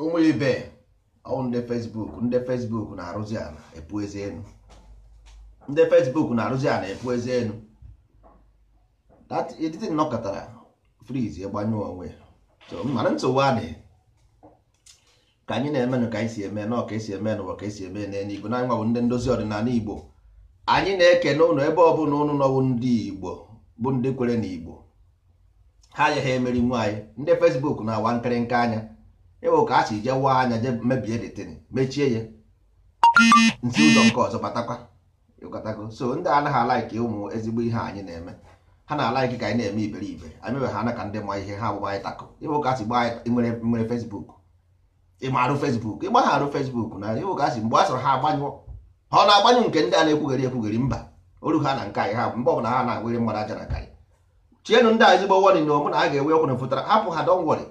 ụmụ ibe ọwụ ndị fesbuk ndị fesbuk na-arụzi ala epu eze enu ndị fesbuk na-arụzi ala epu eze enu editi nnọkọtara friz egbanyụọ onwe mana nsogbu adịghị ka anyị na eme ka anyị si eme nọ ka esi eme n'ụwa ka esi eme n'eluigwe igbo anyịnwa bụ ndị ndozi ọdịnala igbo anyị na-ekene ụnụ ebe ọbụla ụnụ nọwụ ndị igbo bụ ndị kwere na igbo ha agaghị emeri nwaanyị ndị fesbuk na-awa nkịrịnka anya ịwụ ka a si jee waa anya je mebie detin mechie ya nsi ụzọ nke ọzọ batakwa ịkọtago so ndị anaghị alaiki ụmụ ezigbo ihe anyị na-eme ha na-alaiki ka anyị na-eme iberibe anyị mewe ha na ka ndị ma ihe ha agbụgba anyị tako ịwụ ka a si gbaa nwere fesbuk ịmarụ fesbuk arụ fesbuk na ịwụ ka a si mgbe a sọrọ ha agbanyụ ha ọ na-agbanyụ nke ndị a na-ekwugheri ekwugheri mba oru ha na nke anyị ha mgbe ọbụla ha na-agwere mmadụ aja na karị chienụ ndị a ezigbo wọrị na ọmụ na a ga-enwe ọkwụrụ fụtara hapụ ha dọngwọrị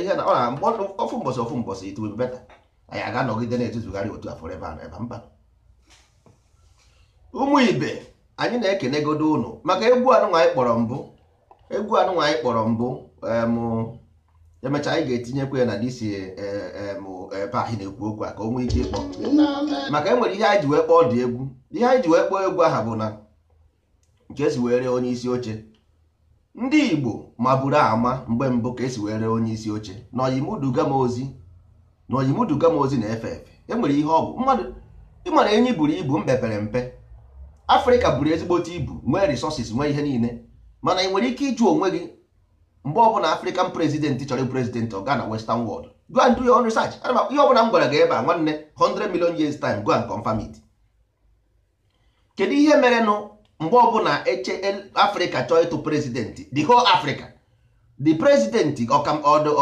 ihe na ọ na ofu mbọsị ofu mbọsị it will be better anyị aga anọgide na-etuzugharị otu a ebe and ebe mba ụmụ ibe anyị na-ekenegodo ụnụ maka egwu anụnwa anyị kpọrọ mbụ egwu anụnwa anyị kpọrọ mbụ emechaa anyị ga-etinyekwa ya na disi ebe anyị na-ekwu okwu a ka o nwee ike ịkpọ maka enwere ihe anyị ji wee kpọọ dị egwu ihe anyị ji wee kpọọ egwu aha bụ na nke si wee onye isi oche ndị igbo maburu ama mgbe mbụ ka esi were onye isi oche na oyimuduga m ozi na oyimuduga na-efe efe enwere ihe ọ bụ mmadụ ịmara enyi buru ibu mpepere mpe afrịka buru ezigbote ibu nwee resources nwee ihe niile mana ị nwere ike ịjụ onwe gị mgbe ọbụla afrịkan prezidentị chọrọ ịbụ prezidentị ọ gaa na western world go and do your own research ihe ọbụla m gwara gị ebe a nwanne 100 million years time go and confirm it kedu ihe merenụ mgbe ọbụla eche afrịka chọọ ịtụ prezidenti the whole africa the president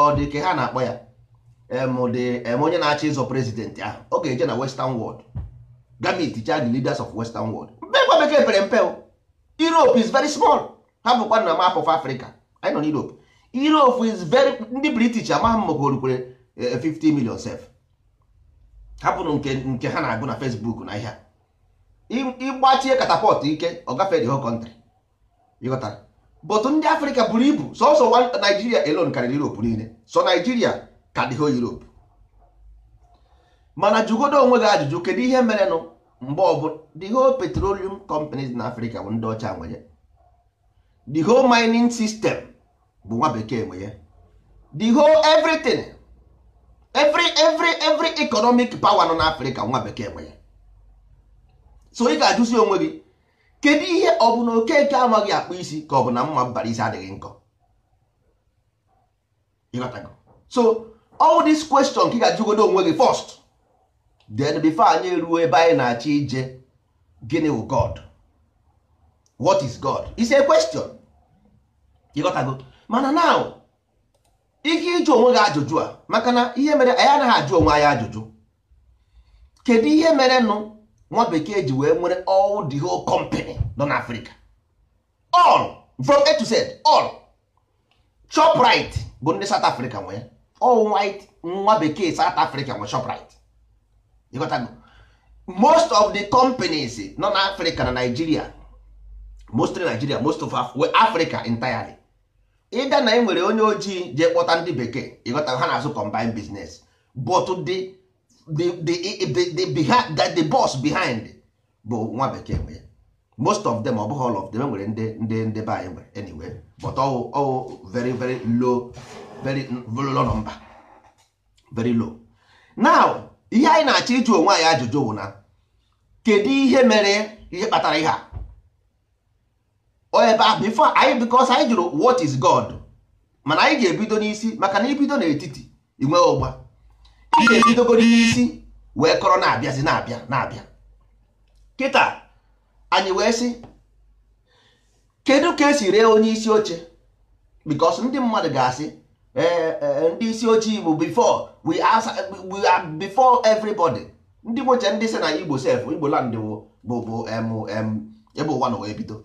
ọdị ka ha na-akpọ ya onye na-achọ ịzọ prezidenti ahụ ọ ga-eje na western world gamit cha the leaders of western world mbe gwa bekee pere mpe europe is very small ha bụkwa na map of africa anyị nọ na europe europe is very ndị british amaghị m maka orukwere 50 eh, million sef hapụrụ nke ha na-agụ na facebook na ihe a ịgbachie katapọt ike ọ gafee the whole country ịghọtara bọtụ ndị afrịka buru ibu sọsọ naijiria elon karịrị europe niile sọ naijiria ka dị ho europe mana jụgodo onwe gị ajụjụ kedu ihe mere nụ mgbe ọbụla the whole petroleum companies na afrịka bụ ndị ọcha nwe ya the whole mining system bụ nwa bekee nwe ya the whole everything every every every economic power nọ na afrịka nwa bekee nwe ya so ị ga-ajụzi onwe gị kedu ihe ọ bụ na okeke amaghị akpụ isi ka ọ bụ na mma mbara isi adịghị nkọ so all this question ka ị ga-ajụgodo onwe gị first then before anyị ruo ebe anyị na-achọ ije gịnị wụ God what is God is a question ịghọtago mana now ike ịjụ onwe gị ajụjụ a maka na ihe mere anyị anaghị ajụ onwe anyị ajụjụ kedu ihe mere nụ nwa bekee ji wee nwere all the whole company nọ na Africa all from A to Z all Shoprite bụ ndị South Africa nwee all white nwa bekee South Africa nwe Shoprite ịghọtago most of the companies nọ na Africa na Nigeria mostly Nigeria most of Africa entirely ịga na e nwere onye ojii je kpọta ndị bekee ịghọtago ha na-azụ combined business but the the that the boss behind bụ nwa bekee nwe most of them ọ all of them nwere ndị ndị ndị be anyị nwere anyway but ọwụ ọwụ very very low very low number very low now ihe anyị na-achọ ịjụ onwe anyị ajụjụ bụ na kedu ihe mere ihe kpatara ihe a ebe bifo before anyị because anyị jụrụ what is God mana anyị ga-ebido n'isi maka na ibido n'etiti inwe ụgba ị ga-ebidogoro isi wee kọrọ na-abịazi na-abịa na-abịa kịta anyị wee sị kedu ka esi ree onye isi oche because ndị mmadụ ga-asị e, ndị isi oche bụ before we are before everybody ndị nweche ndị si na igbo sef igbo land bụ bụ ebe ụwa na wee bido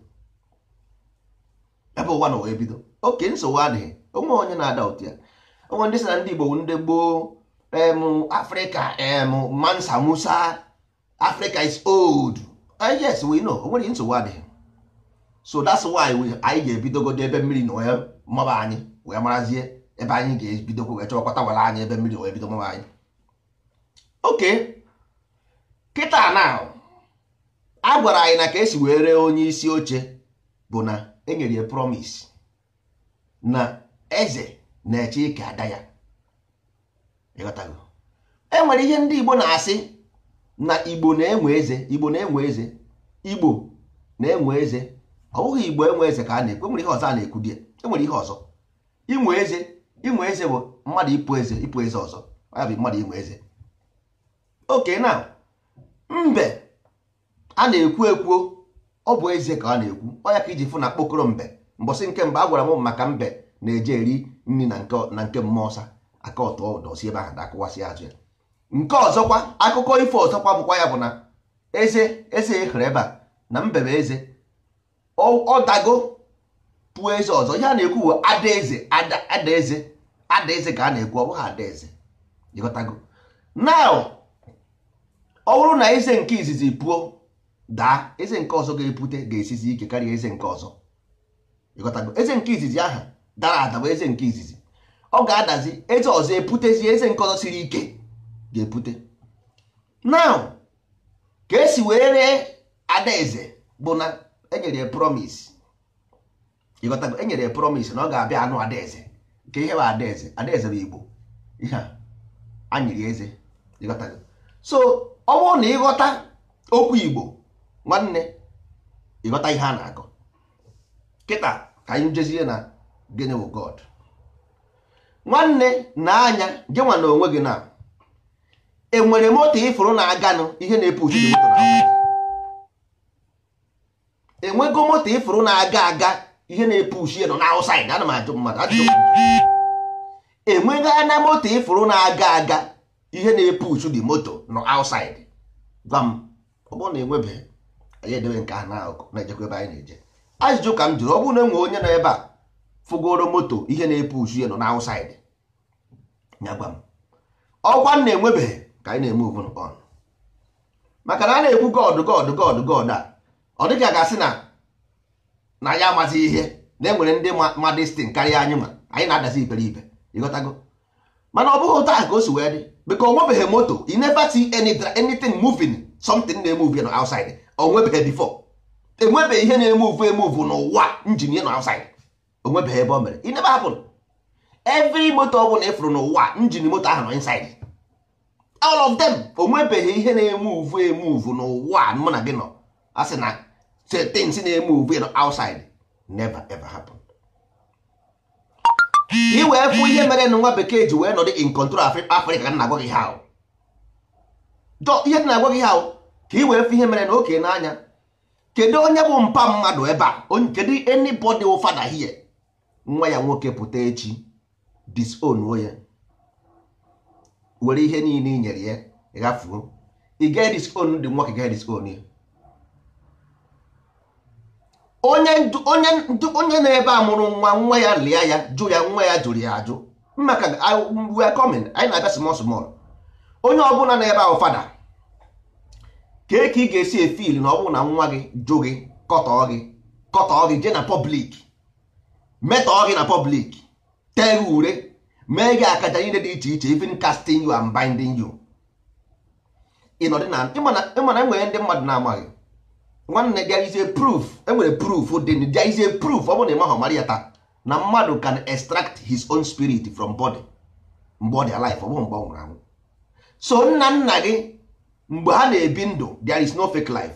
ebe ụwa na wee bido oke nsogbu adịghị onwe onye na-ada otu ya onwe ndị si na ndị igbo ndị gboo em Africa em Mansa Musa Africa is old ah, yes we know onwere nsogbu adịghị so that's why we anyị ga-ebidogodo ebe mmiri na wee anyị wee marazie ebe anyị ga-ebidokwa wee chọkọta wara anyị ebe mmiri wee bido anyị oke kịta na a gwara anyị na ka esi wee ree onye isi oche bụ na enyere ya promise na eze na-eche ike ada ya enwere ihe ndị igbo na-asị na igbo na-enwe eze igbo na-enwe eze igbo na-enwe eze ọ bụghị igbo enwe eze ka a na-ekwu enwere ihe ọzọ a na-ekwu di enwere ihe ọzọ inwe eze inwe eze bụ mmadụ ịpụ eze ịpụ eze ọzọ ya bụ mmadụ inwe eze oke na mbe a na-ekwu ekwuo ọ bụ eze ka ọ na-ekwu ọ ya ka iji fụ na kpokoro mbe mbọsị nke mbe a gwara m maka mbe na-eje eri nri na nke mmụọ ọsa aka ọtọ dọsi ebe ahụ na-akụwasị ya nke ọzọkwa akụkọ ifo ọzọkwa bụkwa ya bụ na eze eze ehere ebe a na mbebe eze ọ dago pụọ eze ọzọ ihe a na-ekwu adaeze adaeze adaeze ka a na-ekwu ọ bụghị adaeze ịghọtago na ọ bụrụ na eze nke izizi pụọ daa eze nke ọzọ ga-epute ga-esizi ike karịa eze nke ọzọ ịghọtago eze nke izizi aha dara ada bụ eze nke izizi ọ ga-adazi eze ọzọ eputezi eze nke ọzọ siri ike ga-epute now ka esi wee ree adaeze bụ na enyere promise ịghọtago enyere promise na ọ ga-abịa anụ adaeze nke ihe bụ adaeze adaeze bụ igbo ihe a nyere eze ịghọtago so ọ bụrụ na ịghọta okwu igbo nwanne ịghọta ihe a na-akọ kịta ka anyị jezie na gịnị bụ god nwanne na anya gị nwa na onwe gị na enwere moto ịfụrụ na-aganụ ihe na-epu uchi enwego moto ịfụrụ na-aga aga ihe na-epu uchi nọ n'aụsaịd ana m ajụ mmadụ enwego anya moto ịfụrụ na-aga aga ihe na-epu uchu dị moto nọ aụsaịd gwa m ọ bụrụ na enwebeghị anyị edebe nke a n'akụkụ na-ejekwa ebe anyị na-eje ajụjụ ka m jụrụ ọ bụrụ na enwe onye nọ ebe a fụgoro moto ihe na-epu uchu ya nọ n'aụsaịd nyagba m ọkwa m na-enwebeghị ka anyị na-eme ugwu on maka na a na-ekwu gọdụ gọdụ gọdụ gọdụ a ọ dịghị a ga-asị na na ya amazighị ihe na enwere ndị ma destin karịa anyị ma anyị na-adazi iberibe ịghọtago mana ọ bụghị ụta ka o si wee dị biko o moto you never see anything moving something na-eme uvu na outside o nwebeghị before enwebeghị ihe na-eme uvu eme uvu n'ụwa njin na outside o ebe o mere it never happened every moto ọ bụla ịfụrụ n'ụwa njin moto ahụ nọ inside all of them o nwebeghị ihe na-eme uvu eme uvu n'ụwa mụ na gị nọ a sị na things na-eme uvu nọ outside never ever happen ị wee fụ ihe mere na nwa bekee ji wee nọdụ in control Africa ka na-agwa gị ha ihe dị na-agwa gị ha ka ị wee fụ ihe mere na oke n'anya kedu onye bụ mpa mmadụ ebe a kedu anybody fada hie nwa ya nwoke pụta echi disonuo ya were ihe niile i nyere ya ghafuo ị gaghị diskon dị nwoke gaghị diskon ya onye na-ebe a mụrụ nwa nwa ya lịa ya jụ ya nwa ya jụrụ ya ajụ maka we are coming anyị na-abịa small small onye ọbụla na-ebe ahụ fada kee ka ị ga-esi efil na ọ na nwa gị jụ gị kọtọọ gị kọtọọ gị jee na pọblik metọọ gị na pọblik tee gị ure mee gị akaja niile dị iche iche even casting you and binding you ịmana enwere ndị mmadụ na-amaghị nwanne gị is a proof enwere proof dị there is a ọ bụ na ịmaghị mara ya taa na mmadụ can extract his own spirit from body body alive ọ bụrụ mgbe ọ nwụrụ anwụ so nna nna gị mgbe ha na-ebi ndụ there is no fake life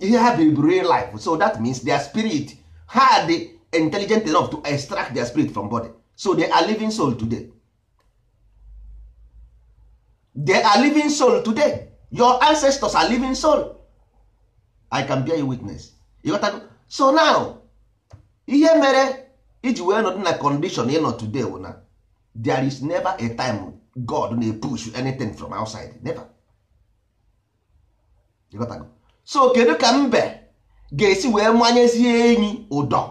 ihe ha biri bụ real life so that means their spirit ha dị intelligent enough to extract their spirit from body so they are living soul today they are living soul today your ancestors are living soul i can bear you witness ịghọtago so now ihe mere iji wee nọdụ na condition ịnọ today wụ na there is never a time god na push anything from outside never ịghọtago so kedu ka mbe ga-esi wee manyezie enyi ụdọ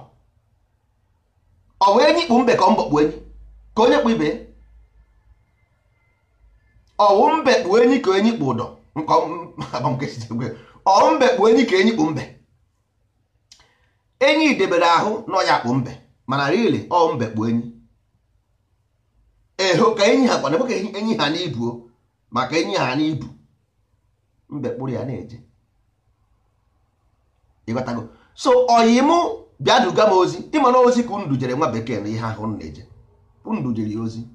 ọ bụ enyi kpụ mbe ka ọ mbọ kpụ enyi ka onye kpụ ibe ọwụ mbe kpụ enyi ka enyi kpụ ụdọ ọwụ mbe kpụ enyi ka enyi kpụ mbe enyi debere ahụ na ọya kpụ mbe mana rili ọ mbe kpụ enyi eho ka enyi ha kwana ka enyi ha n'ibuo maka enyi ha n'ibu mbe kpụrụ ya na-eje ịghọtago so ọyịmụ bịa duga m ozi ịma na ozi ka jere nwa bekee na ihe ahụ na-eje unu jere ya ozi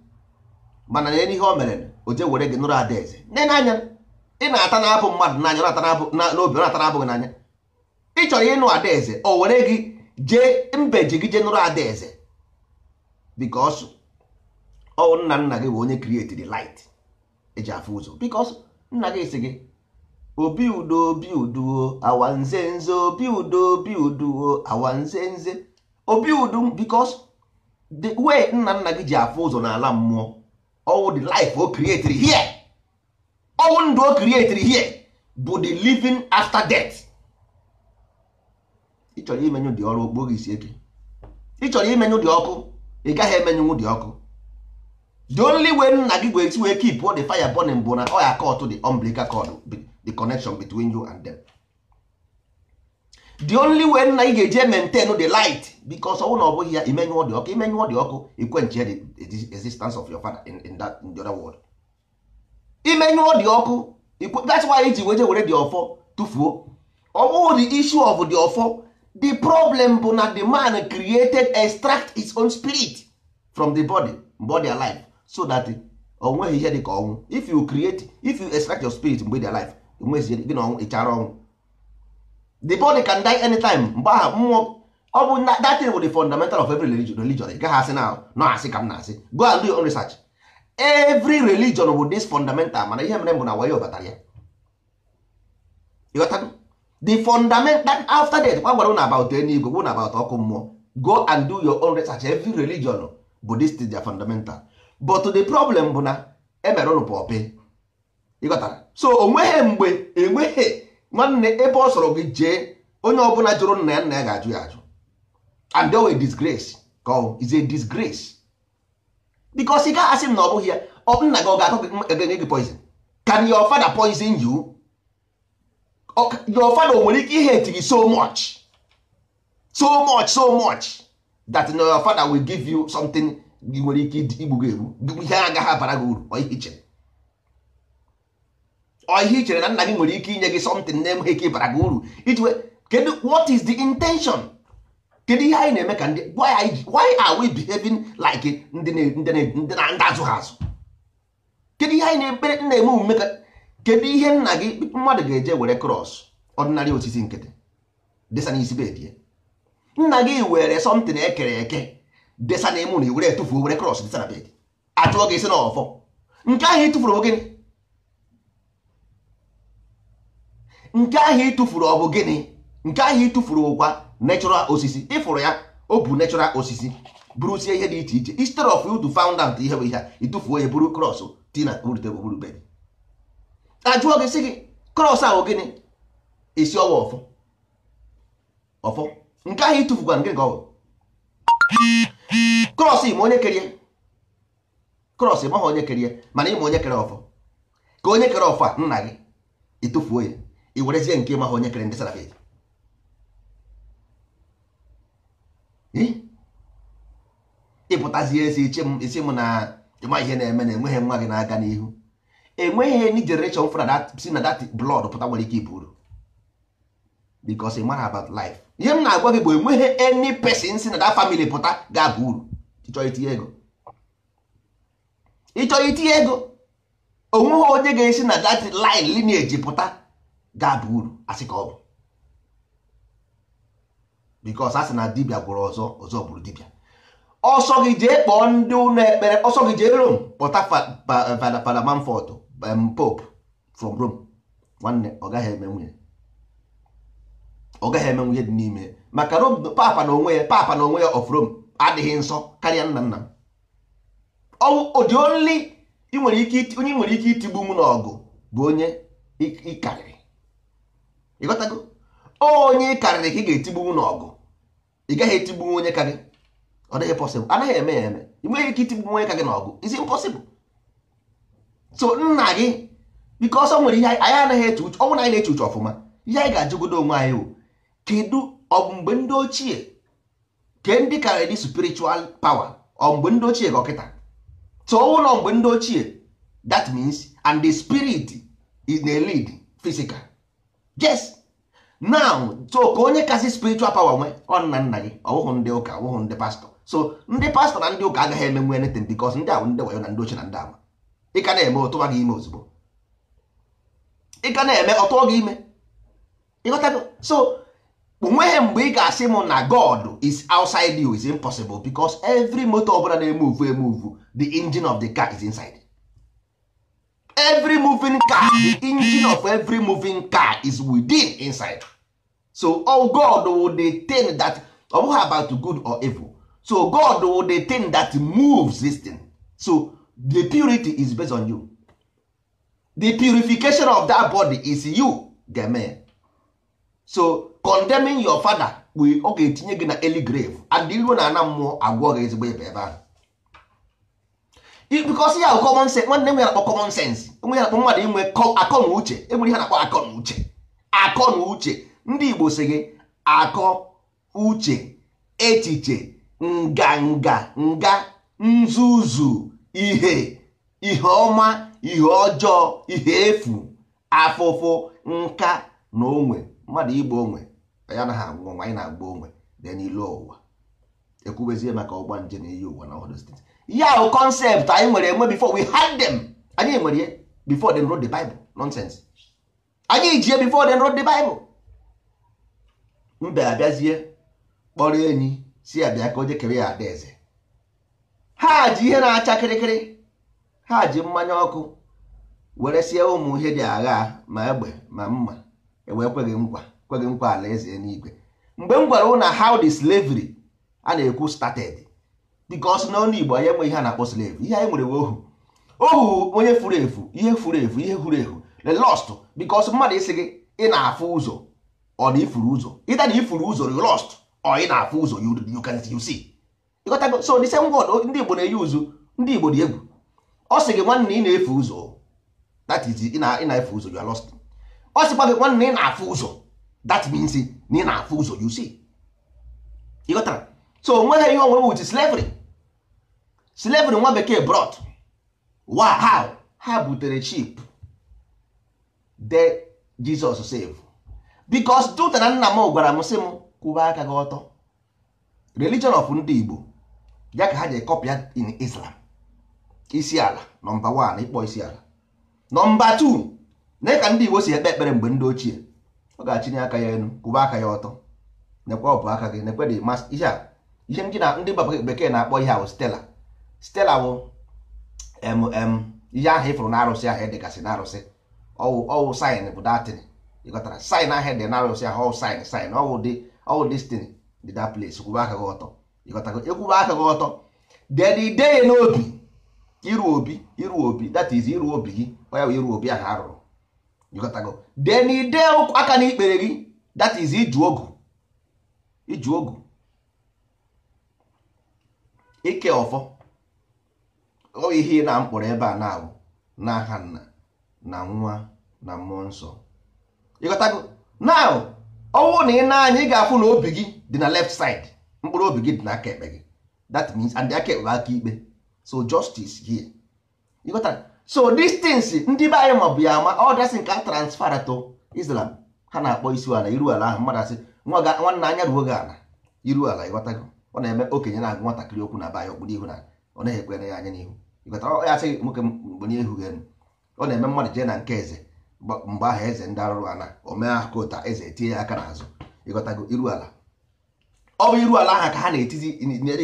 mana na ihe o mere o were gị nụrụ adaeze nne n'anya ị na-ata na-abụ mmadụ n'anya n'obi ọ na-ata abụghị n'anya ị chọrọ ịnụ adaeze o were gị jee ji gị jee nụrụ adaeze bikos ọ nna nna gị bụ onye krietiri light eji afụ ụzọ bikos nna gị si gị obi udo obi uduo awanze nze obi udo obi uduo awanze nze obi udu because the way nna nna gị ji afụ ụzọ n'ala mmụọ ọwụ the life o created here ọwụ ndụ o created here bụ the living after death ịchọrọ chọrọ dị ọrụ okpogị isi eke ịchọrọ chọrọ dị ọkụ ị gaghị emenyenwu dị ọkụ the only way nna gị wee esi wee keep the fire burning bụ na ọ ya kọtụ the umbilical cord the connection between you and them the only way na ị ga-eje maintain the light because ọnwụ na ọ bụghị ya imenyụọ dị ọkụ imenyụọ dị ọkụ ikwenche the existence of your father in, in, that, in the other world imenyụọ dị ọkụ that's why iji weje were dị ọfọ tụfuo ọ bụghị the issue of the ọfọ the problem bụ na the man created extract his own spirit from the body body alive so that o nweghị ihe dị ka ọnwụ if you create if you extract your spirit mgbe dị alive mezie gị na ọnwụ ịchara ọnwụ the body can die anytime mgbe ahụ mmụọ ọ bụ that thing with the fundamental of every religion religion ị gaghị asị na nọ asị ka m na-asị go and do your own research every religion with this fundamental mana ihe mere bụ na wayo batara ya ịghọtago the fundamental after that gwa na about eluigwe gwụ na about ọkụ mmụọ go and do your own research every religion bụ this thing their fundamental but the problem bụ na emere ụnụ pọpị ịghọtara so onweghị mgbe enweghị nwanne ebe ọ sọrọ gị jee onye ọbụla jụrụ nna ya nna ya ga-ajụ ya ajụ and they were disgrace ka ọ is a disgrace because ị gaghị asị m na ọ bụghị ya ọ nna gị ọ ga-akọ gị gị poison can your father poison you your father nwere ike ihe gị so much so much so much that na your father will give you something i nwere ike igbu gị egbu ihe agaghị abara gị uru ọ ihe chere ọ ihe i chere na nna gị nwere ike inye gị something na-enweghị ike ịbara gị uru iji kedu what is the intention kedu ihe anyị na-eme ka ndị why are we behaving like ndị na-azụ ha azụ kedu ihe anyị na-ekpere na-eme omume ka kedu ihe nna gị mmadụ ga-eje were cross ọdịnarị osisi nkịtị desa n'isi bedie nna gị were something ekere eke desa na emu na were etufuo were cross desa na bed achụọ gị isi n'ọfọ nke ahụ etufuru gịnị nke ahụ ịtụfuru ọbụ gịnị nke ahụ ịtụfuru ụkwa natural osisi ịfụrụ ya o bụ natural osisi bụrụsie ihe dị iche iche instead of you to found out ihe bụ ihe a ịtụfuo ya bụrụ krọs tina rutebụrube ajụọ gị sị gị krọs ahụ gịnị isi ọwa ọfọ ọfọ nke ahụ ịtụfukwa nke gị krọs ma onye kerie krọs maghị onye kerie mana ịma onye kere ọfọ ka onye kere ọfọ a nna gị ịtụfuo ya i werezie nke ịma ha onye kere ndị salafis ịpụtazie esi isi m na ịma ihe eh, na-eme na enweghị nwa gị na-aga n'ihu enweghị eh, any generation fụra si na dat blood pụta nwere ike iburu because ịmara about life ihe m na-agwa gị bụ enweghị any pesin si na that famili pụta ga-aba uru ịchọrọ itinye ego ịchọrọ itinye ego onweghị onye ga-esi na that line lineage pụta ga-aba uru asị ka ọ bụ because a sị na dibia gwụrụ ọzọ ọzọ bụrụ dibia ọsọ gị jee kpọọ ndị ụlọ ekpere ọsọ gị jee Rome kpọta Fada eh, Manford um, Pope from Rome nwanne ọ gaghị eme nwunye ọ eme nwunye dị n'ime maka Rome papa na onwe ya papa na onwe ya of rom adịghị nsọ karịa nna nna m ọ dị onye nwere ike itigbu m n'ọgụ bụ onye ịkarịrị ịghọtago onye karịrị ka ị ga-etigbuwu n'ọgụ ị gaghị etigbuwu onye ka gị ọ dịghị pọsịbụl anaghị eme ya eme ị nweghị ike itigbuwu onye ka gị n'ọgụ isi mpọsịbụl so nna gị biko ọsọ nwere ihe anyị anaghị eche uche ọnwụ anyị na-eche uche ọfụma ihe anyị ga-ajụgodo onwe anyị o, kedu ọ mgbe ndị ochie ke ndị karịrị dị spiritual power ọ mgbe ndị ochie ka ọkịta so ụlọ mgbe ndị ochie that means and the spirit is na lead physical yes now so ka onye kasị spiritual power nwee ọ nna nna gị ọwụhụ ndị ụka ọwụhụ ndị pastọ so ndị pastọ na ndị ụka agaghị emenwu anything because ndị ahụ ndị wayo na ndị ochie na ndị ama ị ka na-eme ọtụwa gị ime ozugbo ị ka na-eme ọtụọ gị ime ịghọtago so onweghị mgbe ị ga-asị m na god is outside you is impossible because every motor ọbụla na-emuvu emuvu the engine of the car is inside every moving car the engine of every moving car is within inside so all oh god will detain that ọ oh, about good or evil so god will detain that moves this thing so the purity is based on you the purification of that body is you game so condemning your father we ọ etinye gị na early grave and ilu na ana mmụọ agwọ ezigbo ebe ebe ahụ because ya common sense nwanne m ya akpọ common sense enwe akpọ mmadụ inwe akọ na uche enwere ihe na-akpọ akọ na uche akọ na uche ndị Igbo si gị akọ uche echiche nganga nga nzuzu ihe ihe ọma ihe ọjọọ ihe efu afụfụ nka na onwe mmadụ igbo onwe ya anaghị agwụ ọnwa anyị na-agba onwe dị n'ilu ụwa ekwubezie maka ọgba nje na iyi ụwa na ọdụ steeti ya o concept anyị nwere enwe before we had them anyị nwere ya before them wrote the Bible nonsense anyị ji before them wrote the Bible mbe abịazie kpọrọ enyi si abịa ka o jekere ya adaeze ha ji ihe na-acha kịrịkịrị ha ji mmanya ọkụ were sie ụmụ ihe dị agha ma egbe ma mma ewee kweghị nkwa kweghị nkwa alaeze n'igwe mgbe m gwara na how the slavery a na-ekwu started because na onye Igbo anyị enwe ihe a na-akpọ slave ihe anyị nwere ohu ohu onye furu efu ihe furu efu ihe furu efu the lost because mmadụ isi gị ị na-afụ ụzọ ọ na ifuru ụzọ ịta na ifuru ụzọ you lost ọ ị na-afụ ụzọ you can you see ịghọtago so the same word ndị Igbo na-eyi ụzụ ndị Igbo dị egwu ọ sị gị nwanne ị na efe ụzọ that is ị na-efu ụzọ you are lost ọ sịkwa gị nwanne ị na-afụ ụzọ that means na ị na-afụ ụzọ you see ịghọtara so onweghị ihe onwe bụ slavery slavery nwa bekee brought how ha butere chip de Jesus save because dute na nna m gwara m sị m kwụba aka gị ọtọ religion of ndị Igbo ya ka ha ji kọpịa in Islam isi ala nọmba 1 ịkpọ isi ala nọmba t na ka ndị Igbo si ekpe ekpere mgbe ndị ochie ọ ga achịnye aka ya elu kwụba aka ya ọtọ nekwe ọbụ aka gị nekwe dị ihe ndị bekee na-akpọ ihe ahụ stela stela bụ mm ihe ahụ ịfụrụ na arụsị ahụ dịgasị na arụsị ọwụ ọwụ saịn bụ datin ịghọtara saịn ahụ dị na arụsị ahụ ọwụ saịn saịn ọwụ dị ọwụ destin dị da place kwube aka gị ọtọ ịghọtago ekwube aka gị ọtọ then ideye n'obi iru obi iru obi that is iru obi gị onye bụ iru obi ahụ arụrụ ịghọtago then ide aka ikpere gị that is iju ogu iju ogu ike ọfọ ọ ihe na mkpọrọ ebe a na-awụ n'aka nna na nwa na mmụọ nsọ ịghọtago now ọnwụ na ị na-anya ị ga-afụ na obi gị dị na left side mkpụrụ obi gị dị n'aka ekpe gị that means and aka ekpe aka ikpe so justice here ịghọtara so distance ndị be anyị ma bụ ya ama ọ dasị nke a transfer to Islam ha na-akpọ isi ala iru ala ahụ mmadụ asị nwanne anya ruo gị ala iru ala ịghọtago ọ na-eme okenye na-agụ nwatakịrị okwu na be anyị okpuru ihu na ọ naghị ekwere ya anya n'ihu ya sị nwoke bụ onye ihu ọ na-eme mmadụ jee na nke eze mgbe ahụ eze ndị arụrụ ana omee aka ụta eze etinye ya aka n'azụ ịghọtago iru ala ọ bụ iru ala aha ka ha na-etizi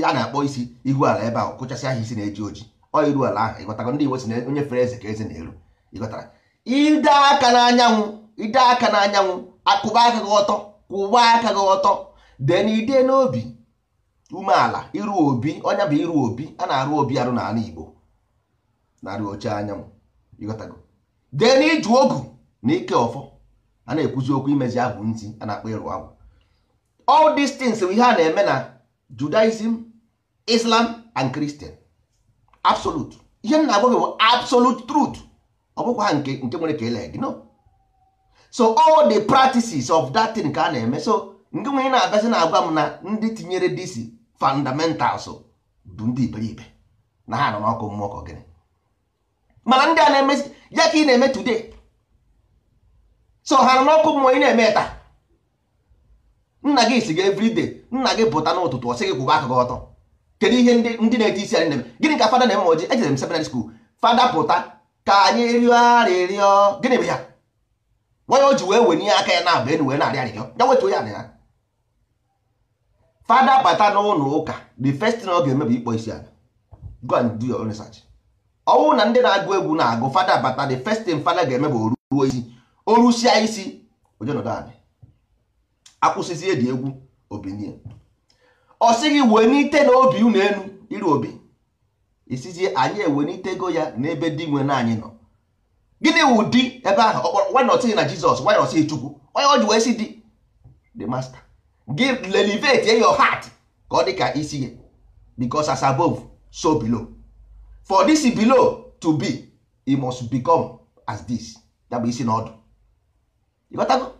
a na-akpọ isi ihu ala ebe ahụ kụchasị aha isi na-eji oji ọ iru ala ahụ ịghọtago ndị Igbo si na onye fere eze ka eze na-eru ịghọtara ide aka n'anyanwụ ide aka n'anyanwụ akụba aka gị ọtọ kwụba aka gị ọtọ den ide n'obi umeala iru obi ọnya bụ iru obi a na-arụ obi arụ n'ala Igbo narị oche anyanwụ ịghọtago dee na iju ogu na ike ọfọ a na-ekwuzi okwu imezi ahụ ntị a na-akpọ ịrụ agwụ bụ ihe a na-eme na Judaism Islam and Christian absolute ihe m na-agwa gị bụ absolute truth ọ bụkwa nke nke nwere ka ele gị no so all the practices of that thing ka a na-eme so nke nwere na-abịazi na-agwa m na ndị tinyere disi fundamentals bụ ndị iberibe na ha nọ n'ọkụ mmụọ ka gịnị mana ndị a na-emezi ya ka ị na-eme today so ha nọ n'ọkụ mmụọ ị na-eme taa nna gị si gị everyday nna gị pụta n'ụtụtụ ọ sị gị kwụba aka ọtọ kedu ihe ndị na-eti isi anyị na-eme gịnị ka fada na-eme ọjị ejere m seminary school fada pụta ka anyị rịọ arịrịọ gịnị bụ ya nwanyị o ji wee wenye ya aka ya na-aba enu wee na-arị arịrịọ ya wetuo ya na ya fada bata n'ụlọ ụka the first thing ọ ga-eme bụ ịkpọ isi ala go and do your own research ọnwụ na ndị na-agụ egwu na-agụ fada bata the first thing fada ga-eme bụ oruo isi orusia isi akwụsịzi eji egwu obinie ọ sịghị wee n'ite na obi unu elu iru obi isizie anyị n'itego ya n'ebe dị nwe na anyị nọ gịnị wụ di ebe ahụ wanọtighị na jizọs wanọtighị chukwu onye ọ ji wee si di the master give elevate your heart ka ọ dị ka isi ya because as above so below for this below to be e must become as this ya bụ isi n'ọdụ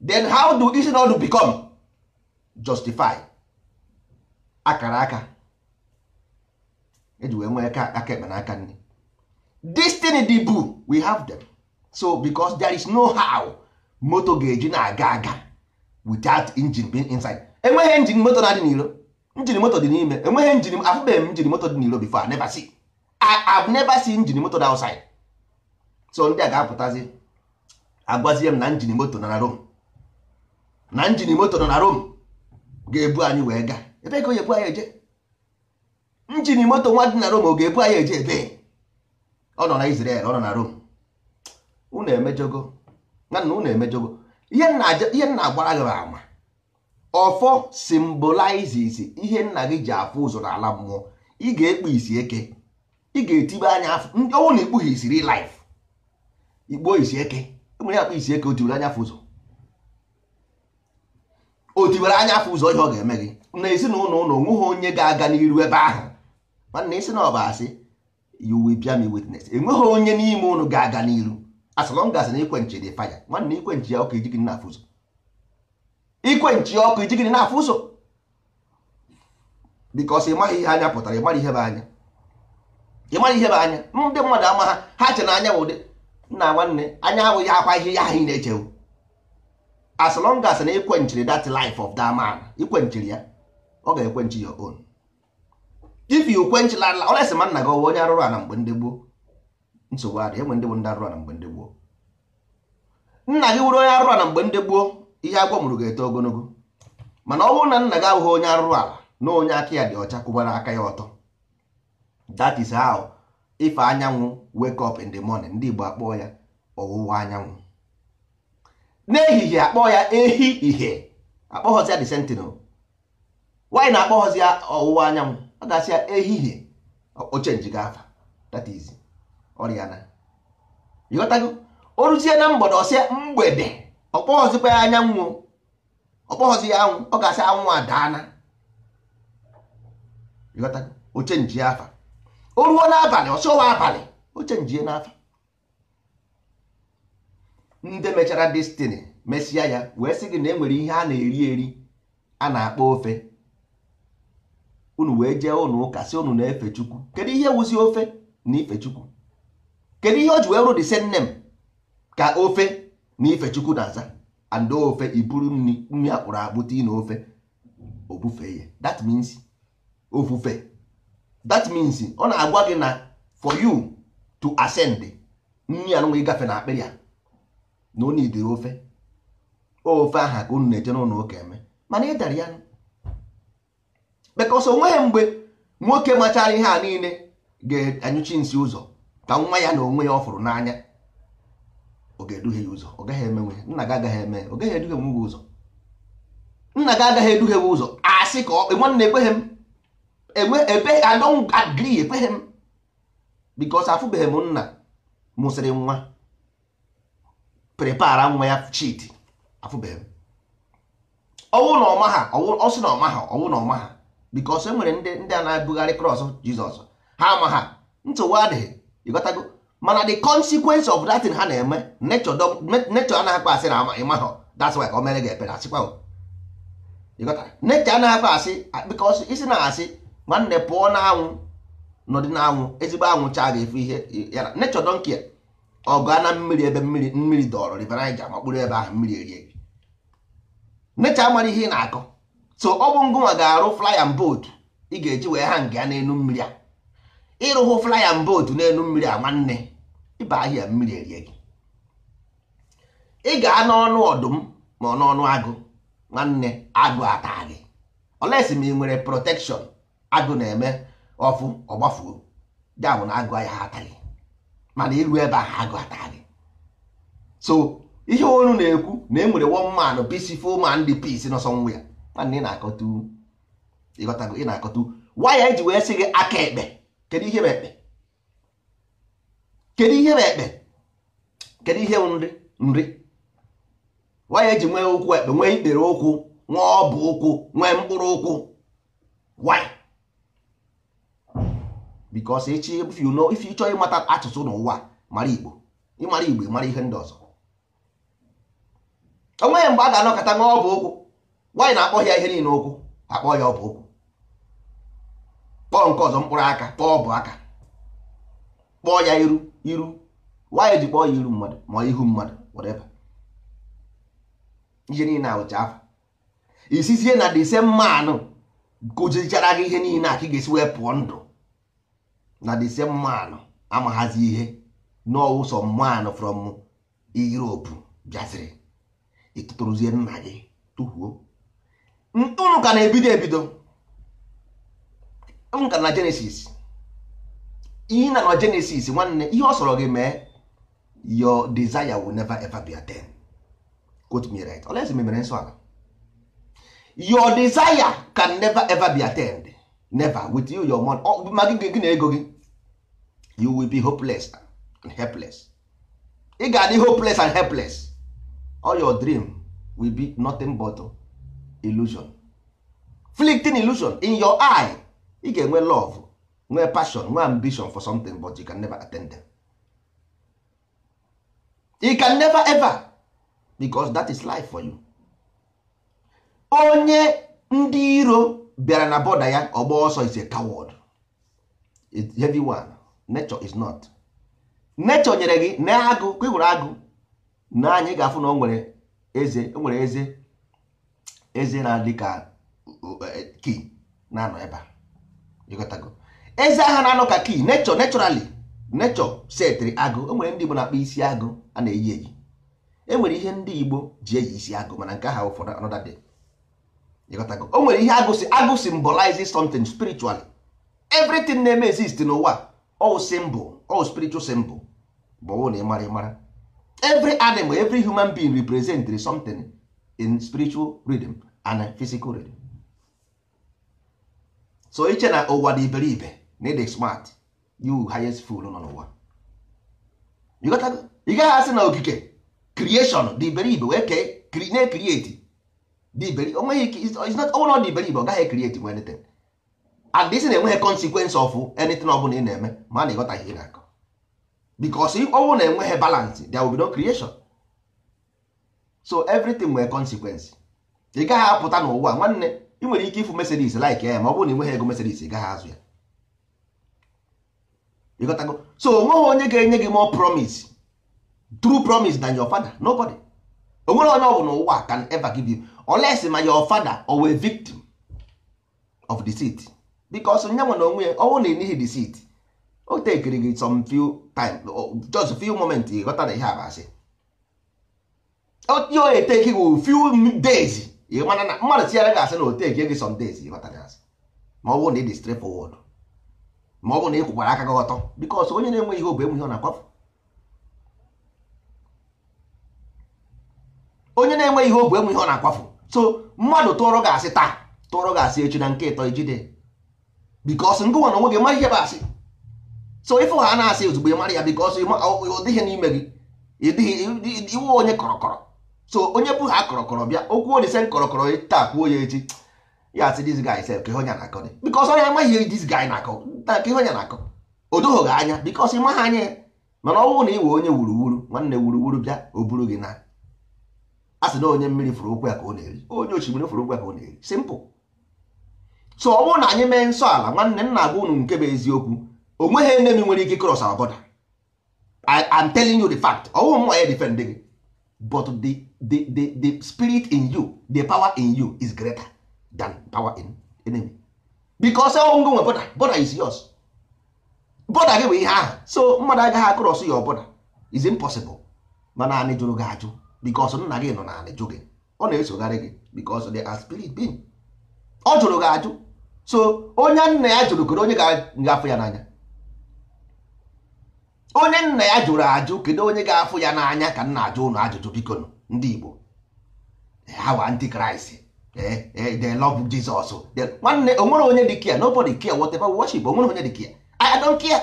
then how do isi n'ọdụ become justify akara aka eji wee nwee aka ekpe na aka nri destiny di bụ we have them so because there is no how moto ga-eji na-aga aga without engine being inside enweghị engine moto na-adị n'iro njin moto dị n'ime enweghị njin afụbeghị m njin moto dị n'iro before I never see I've never seen injin moto na outside so ndị a ga-apụtazi agwazie m na njin moto nọ na Rom na njin moto nọ na Rom ga-ebu anyị wee gaa ebe ka o ebu anyị eje njin moto nwa dị na Rom ọ ga-ebu anyị eje ebe ọ nọ na Israel ọ nọ na Rom. unu emejogo nana unu emejogo ihe nna agbara gị ama ọfọ symbolizes ihe nna gị ji afụ ụzọ n'ala mmụọ ị ga-ekpu isi eke ị ga-etibe anya afọ ndị ọnwụ na ikpughi isiri laif ikpuo isi eke enwere akpa isi eke otibere anya afọ ụzọ otibere anya afọ ụzọ ihe ọ ga-eme gị na ezinụlọ ụlọ onweghị onye ga-aga n'iru ebe ahụ mana isi na ọ asị you will bear me witness enweghị onye n'ime ụlọ ga-aga n'iru asọlọngasị na ikwenchi dị faya nwanna ikwenchi ya ọkụ ijigị n'afọ ụzọ ikwenchi ọkụ ijigị n'afọ ụzọ bikọs ị maghị ihe anya pụtara ị mara ihe bụ anya ị mara ihe bụ anya ndị mmadụ ama ha ha che na anya ụdị nna nwanne anya abụghị akwa ihe ya ahụ ị na-echewu as long as na ikwenchiri that life of that man ikwenchiri ya ọ ga-ekwenchi your own if you kwenchila ala ọ na-esi ma nna gị ọwa onye arụrụ ala mgbe ndị gboo nsogbu adị enwe ndị bụ ndị arụrụ ala mgbe ndị gboo nna gị wụrụ onye arụrụ ala mgbe ndị gboo ihe agwọ mụrụ ga-eto ogologo mana ọ bụrụ na nna gị abụghị onye arụrụ ala na onye aka ya dị ọcha kwụbara aka ya ọtọ that is how if anyanwụ wake up in the morning ndị Igbo akpọọ ya ọwụwa anyanwụ n'ehihie akpọọ ya ehi ihe akpọghọzi ya the sentinel nwaanyị na-akpọghọzi ya ọwụwa anyanwụ ọ gasị ya ehihie oche afa that is ọrịa na ịghọtago o ruzie na mgbọdụ ọsịa mgbede ọkpọghọzikwa ya anyanwụ ọkpọghọzi ya anwụ ọ gasị anwụ adaana ịghọtago oche afa. o ruo n'abalị ọsọwa abalị o chenjie n'afa ndị mechara destini mesịa ya wee sị gị na enwere ihe a na-eri eri a na-akpọ ofe unu wee jee ụnụ ụka sị unu na-efe chukwu kedu ihe wuzi ofe na ife chukwu kedu ihe o ji wee rụ dị m ka ofe na ife chukwu na-aza and ofe iburu nri nri akpụrụ akpụta na ofe obufe ya that means ofufe that means ọ na-agwa gị na for you to ascend nri anụnwa ịgafe na akpịrị ya na onye idiri ofe ofe aha ka unu na-eje n'ụlọ ụka eme mana ị dara ya because onweghị mgbe nwoke machara ihe a niile ga-anyụchi nsị ụzọ ka nwa ya na onwe ya ọ n'anya ọ ga-eduhie ya ụzọ ọ gaghị emenwe nna gị agaghị eme ọ gaghị eduhie nwa ụzọ nna gị agaghị eduhie gị ụzọ sị ka nwanne ekweghị m ebe a don agree ekpeghị m because afụbeghị m nna mụsịrị nwa prepara nwa ya chidi afụbeghị m ọnwụ na ọma ha ọsị na ọma ha ọnwụ na ọma ha because e nwere ndị ndị a na-ebugharị kros jizọs ha ama ha ntụwa adịghị ịgotago mana the consequence of that thing ha na-eme nature anaghị akpa asị na ama ịma ha that's why ka o mere gị ekpere asịkwa nature anaghị akpa asị because isi na-asị nwanne pụọ n'anwụ nọdị n'anwụ ezigbo anwụ chaa ga-efu ihe yara nechọ donkia ọ gaa na mmiri ebe mmiri mmiri dọrọ riverija ma kpụrụ ebe ahụ mmiri erie gị nechọ mara ihe ị na-akọ so ọ bụ ngụnwa ga-arụ flyan boat ị ga-eji wee ha nga n'elu mmiri a ịrụhụ flyan boat n'elu mmiri a nwanne ịba ahịa mmiri erie gị ị gaa n'ọnụ ọdụm ma ọ n'ọnụ agụ nwanne agụ ata gị olesi ma ị nwere protekshọn agụ na-eme ọfụ ọgbafuo ya na agụ ya ha ataghị mana iru ebe ahụ agụ ataghị so ihe onu na-ekwu na e nwere one man peaceful man dị peace nọ somewhere mana ị na-akọtu ịghọtago ị na-akọtu waya eji wee sị gị aka ekpe kedu ihe bụ ekpe kedu ihe bụ ekpe kedu ihe nri nri waya eji nwee ụkwụ ekpe nwee ikpere ụkwụ nwee ọbụ ụkwụ nwee mkpụrụ ụkwụ waya bikos echi if you know if you chọọ ịmata asụsụ n'ụwa mara igbo ịmara igbo mara ihe ndị ọzọ onweghị mgbe a ga-anọkọta nwa ọbụ okwu nwaanyị na-akpọ ya ihe niile okwu akpọ ya ọbụ okwu kpọọ nke ọzọ mkpụrụ aka kpọọ ọbụ aka kpọọ ya iru iru nwaanyị ji kpọọ ya iru mmadụ ma ihu mmadụ whatever ihe niile awụcha afọ isizie na the same man kụjichara gị ihe niile a ka ị ga-esi wee pụọ ndụ na the same man amaghazi ihe n'ọwụ sọ man from Europe bịaziri ịtụtụrụzie nna gị tụhuo unu ka na-ebido ebido nka na Genesis ihe na na Genesis nwanne ihe ọ sọrọ gị mee your desire will never ever be attained quote me right olesi memere nsọ ala your desire can never ever be attend never with you your money oh, ma gị na ego gị you will be hopeless and helpless ị ga-adị hopeless and helpless all your dream will be nothing but illusion fleeting illusion in your eye ị ga-enwe love nwee passion nwee ambition for something but you can never attain them you can never ever because that is life for you onye ndị iro bịara na bọda ya ọ gba ọsọ is a coward it's heavy one nature is not nature nyere gị na agụ ka ịhụrụ agụ na anyị ga-afụ na o nwere eze o nwere eze eze na-adị ka e, e, kii na-anọ ebe a eze aha na-anọ ka kii nature naturally nature setịrị agụ enwere nwere ndị Igbo na-akpa isi agụ a na-eyi eyi e ihe ndị Igbo ji eyi isi agụ mana nke ha ụfọdụ anọdade o nwere ihe agụsị agụ symbolize something spiritually everything na-eme exist n'ụwa all symbol all spiritual symbol bụ na ịmara ịmara every animal every human being represent something in spiritual rhythm and physical rhythm so iche na ụwa dị iberibe na ịdị smart you highest fool nọ n'ụwa ị gaghị asị na okike creation dị iberibe wee kee na-ekrieti onwere ọdị iberibe ọ gaghị ekrieti nwe anything and isi na-enweghị consequence of anything ọ ị na-eme ma na ịghọtaghị ihe na-akọ because ọnwụ na-enweghị balance there will be no creation so everything nwere consequence ị gaghị apụta n'ụwa nwanne ị nwere ike ịfụ Mercedes like ya ma ọ bụrụ na ị nweghị ego Mercedes ị gaghị azụ ya ịghọtago so onweghị onye ga-enye gị more promise true promise than your father nobody onwere onye ọ bụ n'ụwa can ever give you unless ma your father o a victim of deceit because nye nwe na onwe ya ọnwụ na enyighị deceit o tekiri gị some few time just few moment ịghọta na ihe a masị ihe onye teki gị few days ịmana na mmadụ tinyere gị asị na o teki gị some days ịghọta ịghọtara asị ma ọ bụ na ị dị straight ma ọ bụ na ị kwụkwara aka gị ọtọ because onye na-enweghị ihe obu enweghị ọ na akwafu onye na-enweghị ihe obu enweghị ọ na akwafu so mmadụ tụọrọ gị asị taa tụọrọ gị asị echi na nke ịtọ ijide bikos ngụwa na onwe gị ma ihe bụ asị so ife ha na-asị ozugbo ị mara ya bikos ọ dịghị n'ime gị ịdịghị iwe onye kọrọkọrọ so onye bụ ha kọrọkọrọ bịa okwu olise kọrọkọrọ taa kwuo ya echi ya asị dis guy sef ka honya na-akọ bikos ọ na ihe dis akọ ka honya na-akọ o doghị gị anya bikos ịma ha anya mana ọ bụrụ na ị wee onye wuruwuru nwanne wuruwuru bịa o buru gị na asị na onye mmiri fụrụ ụkwụ ya ka ọ na-eri onye osimiri fụrụ ụkwụ ya ka ọ na-eri simpụl so ọ bụrụ na anyị mee nsọ ala nwanne nna gwa unu nke bụ eziokwu o nweghị enemi nwere ike cross our border I am telling you the fact ọ ọwụ mwa ya defend gị but the, the, the, the spirit in you the power in you is greater than power in enemy because ọwụ ngụ nwe border border is yours border gị bụ ihe ahụ so mmadụ agaghị akụrọsụ ya ọbụla is impossible mana anyị jụrụ gị ajụ because nna gị nọ n'ala jụ gị ọ na-esogharị gị because they are spirit being ọ jụrụ gị ajụ so onye nna ya jụrụ kedu onye ga-afụ ya n'anya onye nna ya jụrụ ajụ kedu onye ga-afụ ya n'anya ka nna ajụ ụnụ ajụjụ biko ndị Igbo eh, ha wa antikraịst eh, eh, they love Jesus nwanne onwere onye dị kia nobody care whatever worship onwere onye dị kia I don't care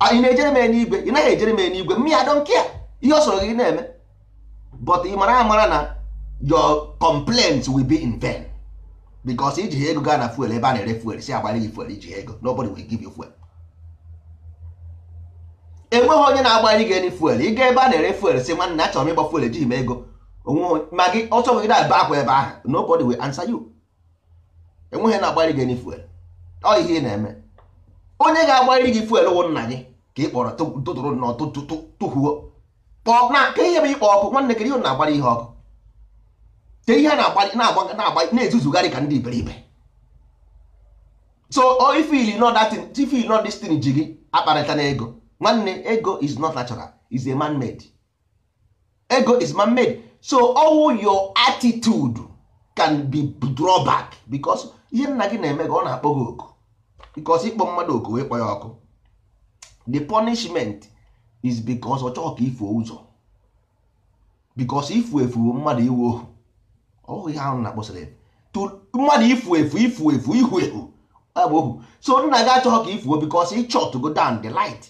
ah, ị na-ejere m enye igwe ị naghị ejere m enye igwe mmiri I don't ihe ọ sọrọ gị na-eme but ị mara amara na your complaints will be in vain because iji ego gaa na fuel ebe a na-ere fuel si agbara gị fuel iji ego nobody will give you fuel enweghị onye na-agbara gị fuel ị gaa ebe a na-ere fuel si nwanne na chọrọ m ịgba fuel ejighị m ego ma gị ọchọ gị na-aba akwa ebe ahụ nobody will answer you enweghị na-agbara gị any fuel ọ ihe ị na-eme onye ga-agbara gị fuel wụ nna gị ka ị kpọrọ tụtụrụ nọ tụhuo kpọọ na nke ihe bụ ịkpọ ọkụ nwanne kiri na-agbara ihe ọkụ ke ihe na-ezuzugharị na-agwa ka ndị iberibe so ifil not that thing ifil not this thing ji gị akparịta na ego nwanne ego is not natural is a man made ego is man made so all your attitude can be drawback because ihe nna gị na-eme gị ọ na-akpọ gị oku because ịkpọ mmadụ oku wee kpọ ya ọkụ the punishment is bikos ọ chọọ ka ifuo ụzọ bikos ifu efu bụ mmadụ iwu ohu ọhụ ihe ahụ na-akpọsịrị mmadụ ifu efu ifu efu ihu ehu abụ ohu so nna gị achọghị ka ifuo bikos ịchọ go down the light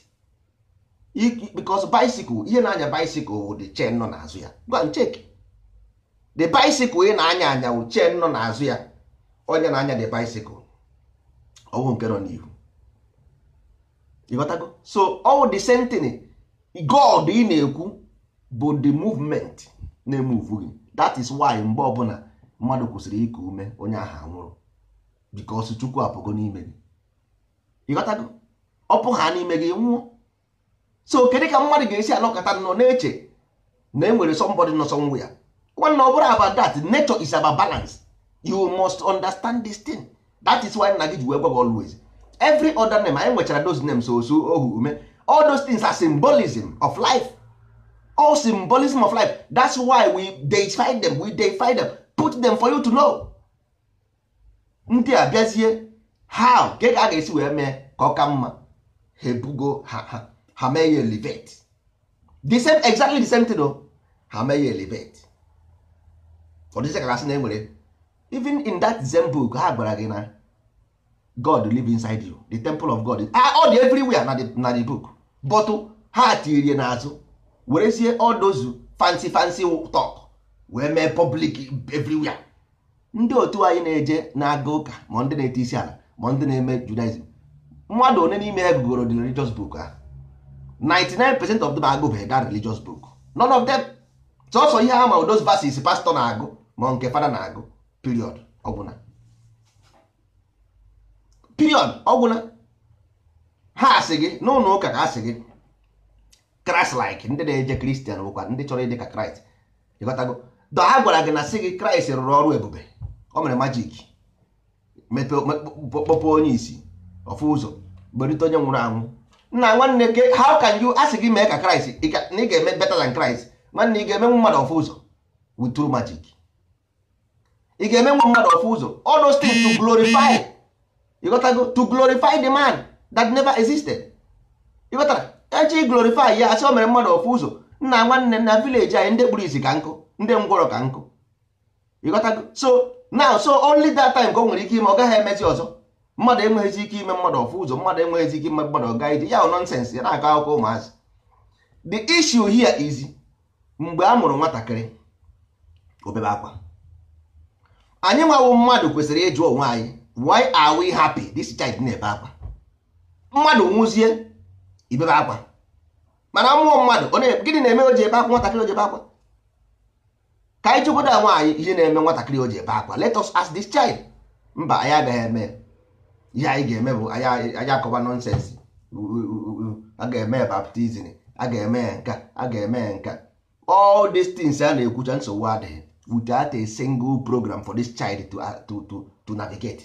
bikos bicycle ihe na-anya bicycle wụ the chen nọ n'azụ ya gwa ncheki the bicycle ị na-anya anya wụ chen nọ n'azụ ya onye na-anya the bicycle ọwụ nke nọ n'ihu ịghọtago so ọwụ the same thing god ị na-ekwu bụ the movement na-emuvu gị that is why mgbe ọbụla mmadụ kwụsịrị ịkụ ume onye ahụ nwụrụ because chukwu apụgo n'ime gị ịghọtago ọpụ ha n'ime gị nwụọ so kedu ka mmadụ ga-esi anọkọta nọ na-eche na enwere somebody nọ somewhere ya nwanne ọ bụrụ aba that nature is about balance you must understand this thing that is why nna gị ji wee gwa gị always every other name anyị nwechara those names osu ohu ume all those things are symbolism of life all symbolism of life that's why we deify them we deify them put them for you to know ndị a bịazie ha ka a ga-esi wee mee ka ọ ka mma ha ebugo ha mee ya elevate the same exactly the same thing o ha mee ya elevate ọ dịzie ka gasị na enwere even in that zen book ha gwara gị na god live inside you the temple of god ah, all the everywhere na the, na the book bọtụ ha tirie n'azụ werezie ọdozu fancy fancy talk wee mee public evriwia ndị otu anyị na-eje na-aga ụka ma ndị na-ete isi ala ma ndị na-eme judaism mmadụ one n'ime ha gụgoro the religious book ha 99% of them agụbeghị that religious book none of them sọsọ ihe ha ma those verses pastọ na-agụ ma nke fada na-agụ period ọgwụna period ọgwụna ha asị gị n'ụlọ ụka ka asị gị kraịst like ndị na-eje kristian bụkwa ndị chọrọ ịdị ka kraịst ịghọtago dọ ha gwara gị na sị gị kraịst rụrụ ọrụ ebube o mere majik kpọpụ onye isi ofu ụzọ gberite onye nwụrụ anwụ nna nwanne gị how can you asị gị mee ka kraịst na ị ga-eme better than kraịst nwanne ị ga eme mmadụ ofu ụzọ with true magic ị ga-emenwu mmadụ ofu ụzọ all those things to glorify ịghọtago to glorify the man that never existed ịghọtara echi glorify ya asị o mere mmadụ ofu ụzọ nna nwanne na village anyị ndị kpuru izi ka nkụ ndị ngwọrọ ka nkụ ịghọtago so now so only that time ka o nwere ike ime ọ gaghị emezi ọzọ mmadụ enweghịzi ike ime mmadụ ọfụ ụzọ mmadụ enweghịzi ike ime mmadụ ọga ije ya nọnsens ya na-akọ akụkọ ụmụazị the issue here is mgbe a mụrụ nwatakịrị obebe akwa anyị nwawo mmadụ kwesịrị ịjụ onwe anyị why are we happy this child na-ebe akwa mmadụ nwụzie ibebe akwa mana mmụọ mmadụ gịnị na-eme o ji ebe akwa nwatakịrị o ji ebe akwa ka anyị chụkwado nwaanyị ihe na-eme nwatakịrị o ji ebe akwa let us ask this child mba anyị agaghị eme ihe anyị ga-eme bụ anyị akọba nọnsensị a ga-eme baptizim a ga-eme nka a ga-eme nka all these things a na-ekwucha nsogbu adịghị without a single program for this child to, to, to navigate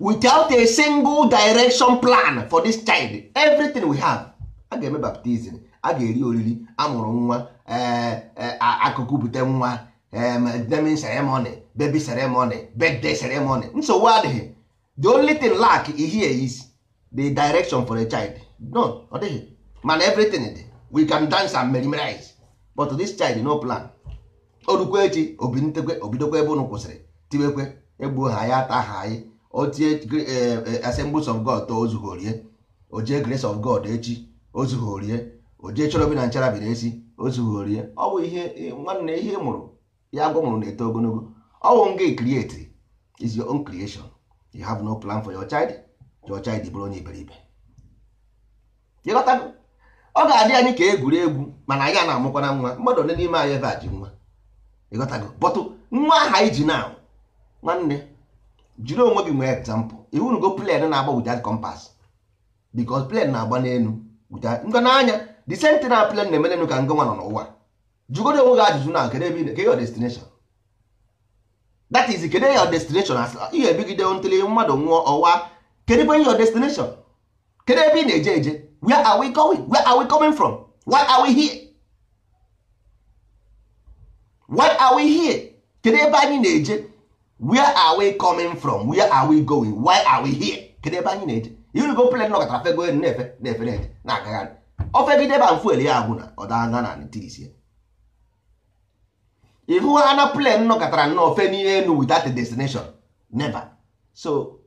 without a single direction plan for this child everything we have a ga-eme baptizim a ga-eri oriri amụrụ nwa eh, eh, akụkụ bute nwa naming ceremony baby ceremony birthday ceremony nsogbu adịghị the only thing lack here is the direction for a child no ọ dịghị mana everything dị we can dance and memorize but this child no plan orukwa echi obintekwe obidokwa ebe unu kwụsịrị tiwekwe egbuo ha ya ata ha anyị otie e, assembles of god to ozughorie ojie grace of god echi ozughorie ojee chọrọ bi na nchara n'esi, esi ozughorie ọ bụ ihe e, nwanne ihe mụrụ ya agwa mụrụ na-eto ogologo ọ bụ nga create is your own creation you have no plan for your child your child bụrụ onye iberibe ọ ga-adị anyị ka egwuregwu mana anyị a na-amụkwana nwa mmadụ ole n'ime anyị ebe a ji nwa ịghọtago bọtụ nwa aha anyị ji na nwanne jiri onwe gị nwee egzampụl iwunugo plen na-agba without compass because plen na-agba n'elu ngọ n'anya the same na plen na-eme n'elu ka ngọ nwa nọ n'ụwa jụgodo onwe gị ajụjụ na kedu ebe kedu your destination that is kedu your destination ihe ebigide ntụli mmadụ nwụọ ọwa kedu ebe your destination kedu ebe ị na-eje eje where are we going where are we coming from why are we here why are we here kedu ebe anyị na-eje where are we coming from where are we going why are we here kedu ebe anyị na-eje irugo plen nọkọtara fego elu na-efe na-efe na-eje na-agagharị ofegide ebe mfuel ya agwụ na ọdana na tisie ịhụ ana plan nọ nọkọtara nnọọ fe n'ihe elu without destination never so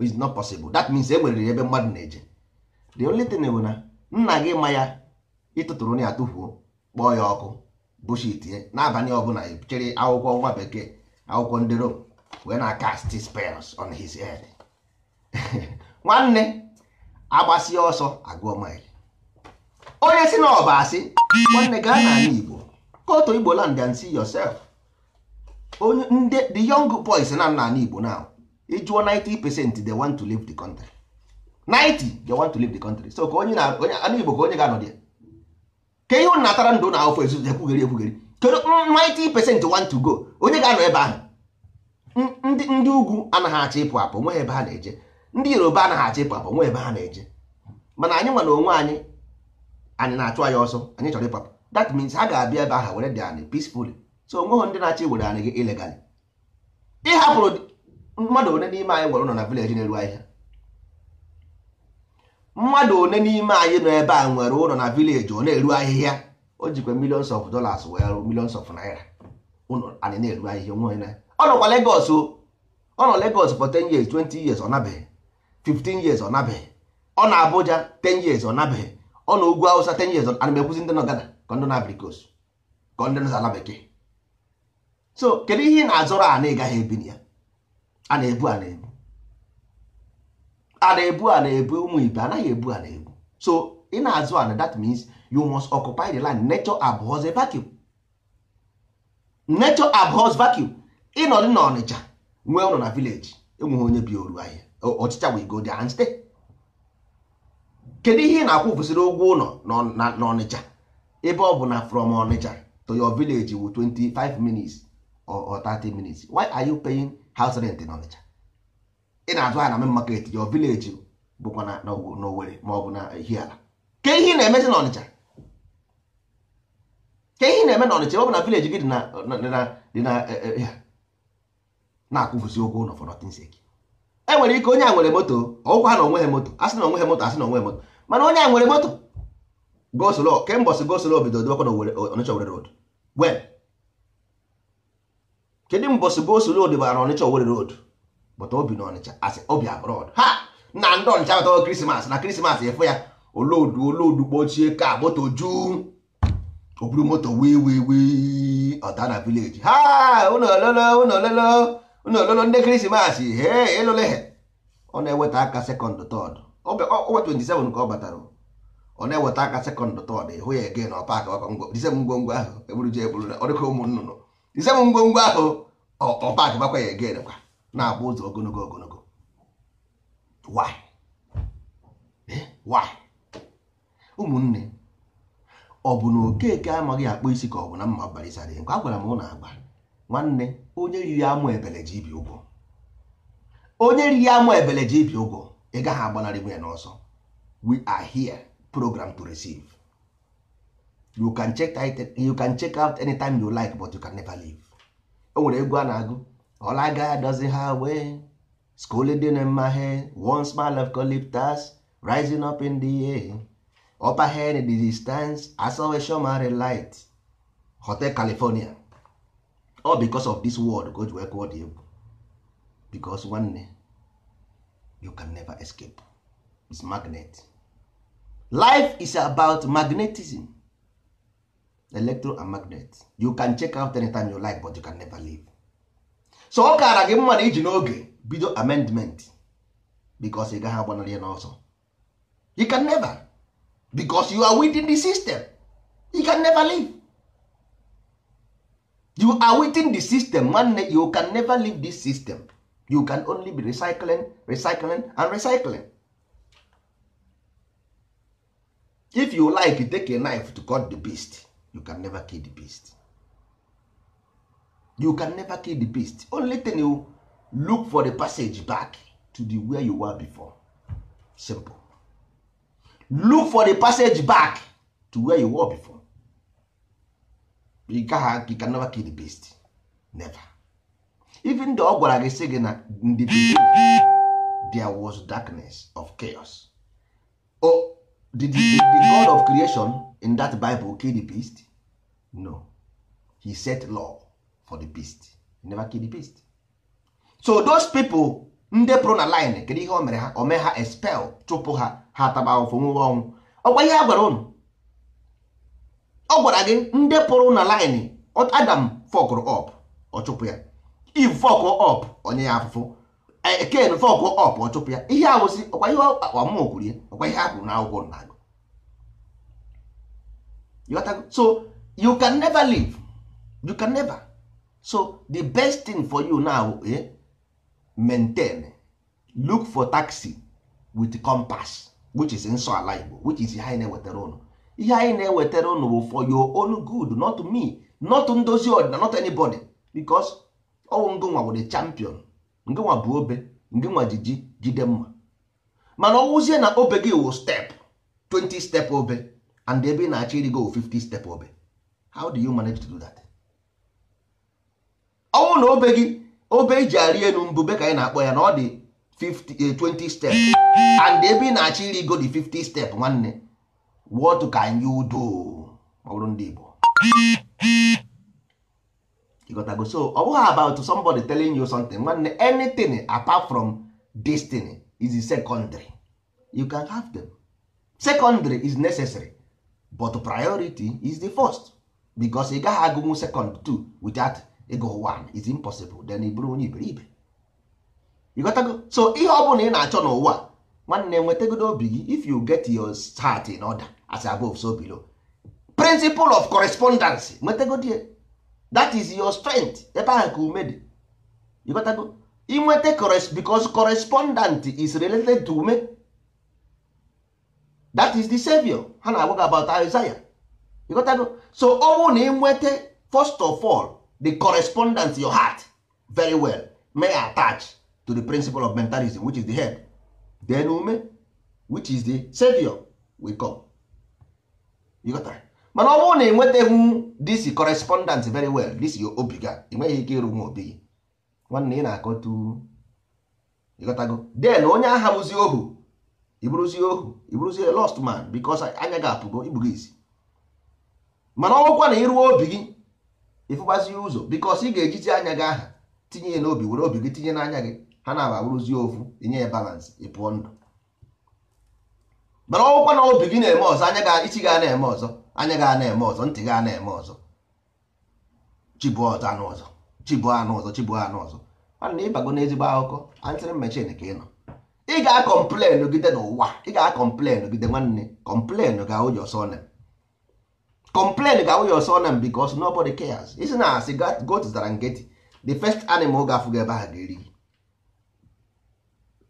it's not possible that means e nwere ebe mmadụ na-eje the only thing bụ na nna gị ma ya ịtụtụrụ na ya tụfuo kpọọ ya ọkụ bụchitie n'abalị ọbụla chịrị akwụkwọ nwa bekee akwụkwọ ndị rom wee na kasti spels on his head nwanne agbasi ọsọ agụọ maịlị onye si na ọba asị nwanne gaa n'ala igbo kotu igbo land and see yourself onye ndị the young boys na n'ala igbo na ịjụọ 90 percent they want to leave the country 90 they want to leave the country so ka onye na onye ala igbo ka onye ga-anọ dị ka ihe ụnụ natara ndụ na ofe ezuzu ekwugheri ekwugheri kedu 90% want to go onye ga-anọ ebe ahụ ndị ugwu anaghị achọ ịpụ apụ nwe ebe ha na-eje ndị yoruba anaghị achọ ịpụ apụ nwe ebe ha na-eje mana anyị nwere onwe anyị anyị na-achụ anyị ọsọ anyị chọrọ apụ that means ha ga-abịa ebe ahụ were dị anyị peacefully so onweghị ndị na-achọ iwere anyị gị ilegali ịhapụrụ mmadụ one n'ime anyị nwere ụlọ na vileji na-eru ahịa mmadụ one n'ime anyị nọ ebe a nwere ụlọ na vileji ọ na-eru ahịhịa o jikwa millions of dollars wee rụ millions of naira ụlọ anyị na-eru ahịhịa nwe na ọ nọkwa Lagos ọ nọ Lagos for 10 years 20 years ọ nabeghị 15 years ọ nabeghị ọ na Abuja 10 years ọ nabeghị ọ na ugwu Hausa 10 years ana m ekwuzi ndị nọ Ghana ka ndị na-abịrị ka ndị nọ ala bekee so kedu ihe ị na-azọrọ a na ịgaghị ebi ya a na-ebu a na-ebu a na-ebu a na-ebu ụmụ ibe anaghị ebu a na-ebu so ị na-azụ ana that means you must occupy the land nature abhors a vacuum nature abhors vacuum ịnọdụ na ọnịcha nwee ụlọ na village enweghị onye bi oru ahịa ọchịcha wee go there kedu ihe ị na-akwụ kwụsịrị ụgwọ ụlọ na ọnịcha ebe ọ bụ na from ọnịcha to your village wu 25 minutes or 30 minutes why are you paying house rent n'Ọnịcha? ị na-azụ ahịa na main market your village bụkwa na ma ọ bụ na ke ihe na-emezi na ke na-eme na ọ bụ na village gị dị na na e, e, e, ụgwọ ụlọ for nothing sake e nwere ike onye a nwere moto ọgwụkwa ha na ha moto asị na ha moto asị na moto mana onye a nwere moto gosolo kembọsị gosolo bido dobakwa na Ọnịcha road bụta obi na ọnịcha asị obi abroad ha na ndị ọnịcha batawa krismas na krismas efe ya olodu olodu kpochie ka moto ju oburu moto wee wee wee ọda na vileji ha ụnụ ololo ụnụ ololo ụnụ ololo ndị krismas he elole ọ na-eweta aka sekọnd tọd ọwa 27 ka ọ batara ọ na-eweta aka sekọnd tọd ịhụ ya ege na ọpak ngwongwo ahụ eburu je eburu ọ dịka ụmụ nnụnụ ngwongwo ahụ ọpak gbakwa ya ege kwa na-akpụ ụzọ ogologo ogologo why eh? why ụmụnne ọ bụ na okeke amaghị akpụ isi ka ọ bụ na mma balisara nke a gwara m ụlọ agba nwanne onye riri amụ ebele ji ibi ụgwọ onye riri amụ ebele ji ibi ụgwọ ị gaghị agbanarị nwunye n'ọsọ we are here program to receive you can check out anytime you like but you can never leave o nwere egwu a na-agụ ọlaga doesn't ha wee scolding in my head one smile of eucalyptus rising up in the air upper head in the distance I saw a shomari light hotel california all because of this world go work kụọ dị egwu because nwanne you can never escape is magnet life is about magnetism electro and magnet you can check out anytime you like but you can never leave so ọ kaara gị mma na iji n'oge bido amendment because ị gaghị agbanarị ya n'ọsọ you can never because you are within the system you can never leave you are within the system nwanne you can never leave this system you can only be recycling recycling and recycling if you like take a knife to cut the beast you can never kill the beast you can never kill the beast only thing you look for the passage back to the where you were before simple look for the passage back to where you were before you can, you can never kill the beast never even though ọ gwara gị sị gị na ndị there was darkness of chaos oh, did, did the god of creation in that bible kill the beast no he set law for the beast you never kill the beast so those people ndị pụrụ na line kedu ihe o mere ha o mee ha expel chụpụ ha ha taba ahụfụ nwụwe ọnwụ ọgwa ihe a gwara ụnụ ọ gwara gị ndị pụrụ na line adam fọkụrụ ọp ọ chụpụ ya eve fọkụrụ ọp onye ya afụfụ ken fọkụrụ ọp ọ chụpụ ya ihe awụsị ọkwa ihe ọmụ kwuru ya ọkwa ihe a na n'akwụkwọ na agụ so you can never live you can never so the best thing for you now eh? maintain look for taxi with compass which is nso ala igbo which is ihe anyị na-ewetara ụnụ ihe anyị na-ewetara ụnụ bụ for your own good not me not ndozi ọdịna not anybody because ọwụ ngụnwa bụ the champion ngụnwa bụ obe ngụnwa jiji jide mma mana ọwụzie na obe gị wụ step 20 step obe and ebe ị na-achọ irigo 50 step obe how do you manage to do that? ọnwụ na obe gị obe iji arị elu mbube ka anyị na-akpọ ya na ọ dị 20 eh, step and ebe ị na-achọ iri go dị 50 step nwanne what can you do ma ndị Igbo ịgotago so ọ bụghị about somebody telling you something nwanne anything apart from destiny is secondary you can have them secondary is necessary but priority is the first because ị gaghị agụnwu second too without ịgụ one is impossible then ị bụrụ onye iberibe ịghọtago so ihe ọ bụla ị na-achọ n'ụwa nwanne nwetagodo obi gị if you get your heart in order as above so below principle of correspondence nwetagodie that is your strength ebe ahụ ka ume dị ịghọtago inweta because correspondent is related to ume that is the savior ha na-agwa gị about Isaiah ịghọtago so ọnwụ na inweta first of all the correspondence your heart very well may attach to the principle of mentalism which is the head then ume which is the savior will come you got that? mana ọ bụrụ na ị nwetaghị this correspondence very well this your obi ga ị nweghị ike ịrụ nwa obi gị nwanne ị na-akọtu gotago, then onye aha bụzi ohu ịbụrụzi ohu ịbụrụzi lost man because anya ga-apụgo igbugo isi mana ọ bụkwa na ịrụọ obi gị ịfụkwazi ụzọ bikos ị ga-ejizi anya gị aha tinye ya n'obi were obi gị tinye n'anya gị ha na-ababụrụzi ofu inye ya balansị ị pụọ ndụ mana ọgwụkwa na obi gị na-eme ọzọ anya gị isi na-eme ọzọ anya gị na-eme ọzọ ntị gị na-eme ọzọ chibụ ọzọ anụ ọzọ chibụ anụ ọzọ chibụ anụ ọzọ mana ịbago n'ezigbo akụkọ antịrị mechin ka ị nọ ị ga-akọmplenụ gide n'ụwa ị ga-akọmplenụ gide nwanne kọmplenụ ga ụjọ sọ complain ga awụ ya ọsọ na because nobody cares isi na asị goat zụtara nkịtị the first animal ga afụga ebe ahụ ga-eri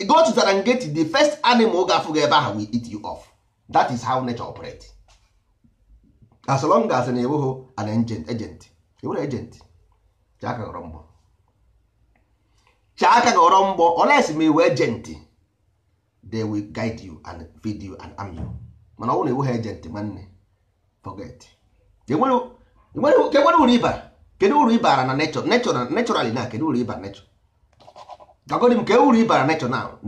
goat zụtara nkịtị the first animal ga afụga ebe ahụ will eat you off that is how nature operate as long as na ewughị an agent agent ewere agent chaka ghọrọ mgbọ chaka ghọrọ mgbọ unless ma agent they will guide you and feed you and arm you mana ọ bụrụ na ewughị agent nwanne forget enwere uru ịbara kedu uru ịbara na nechọ nechọralị na kedu uru ịbara nechọ gagodi m ke uru ịbara nechọ na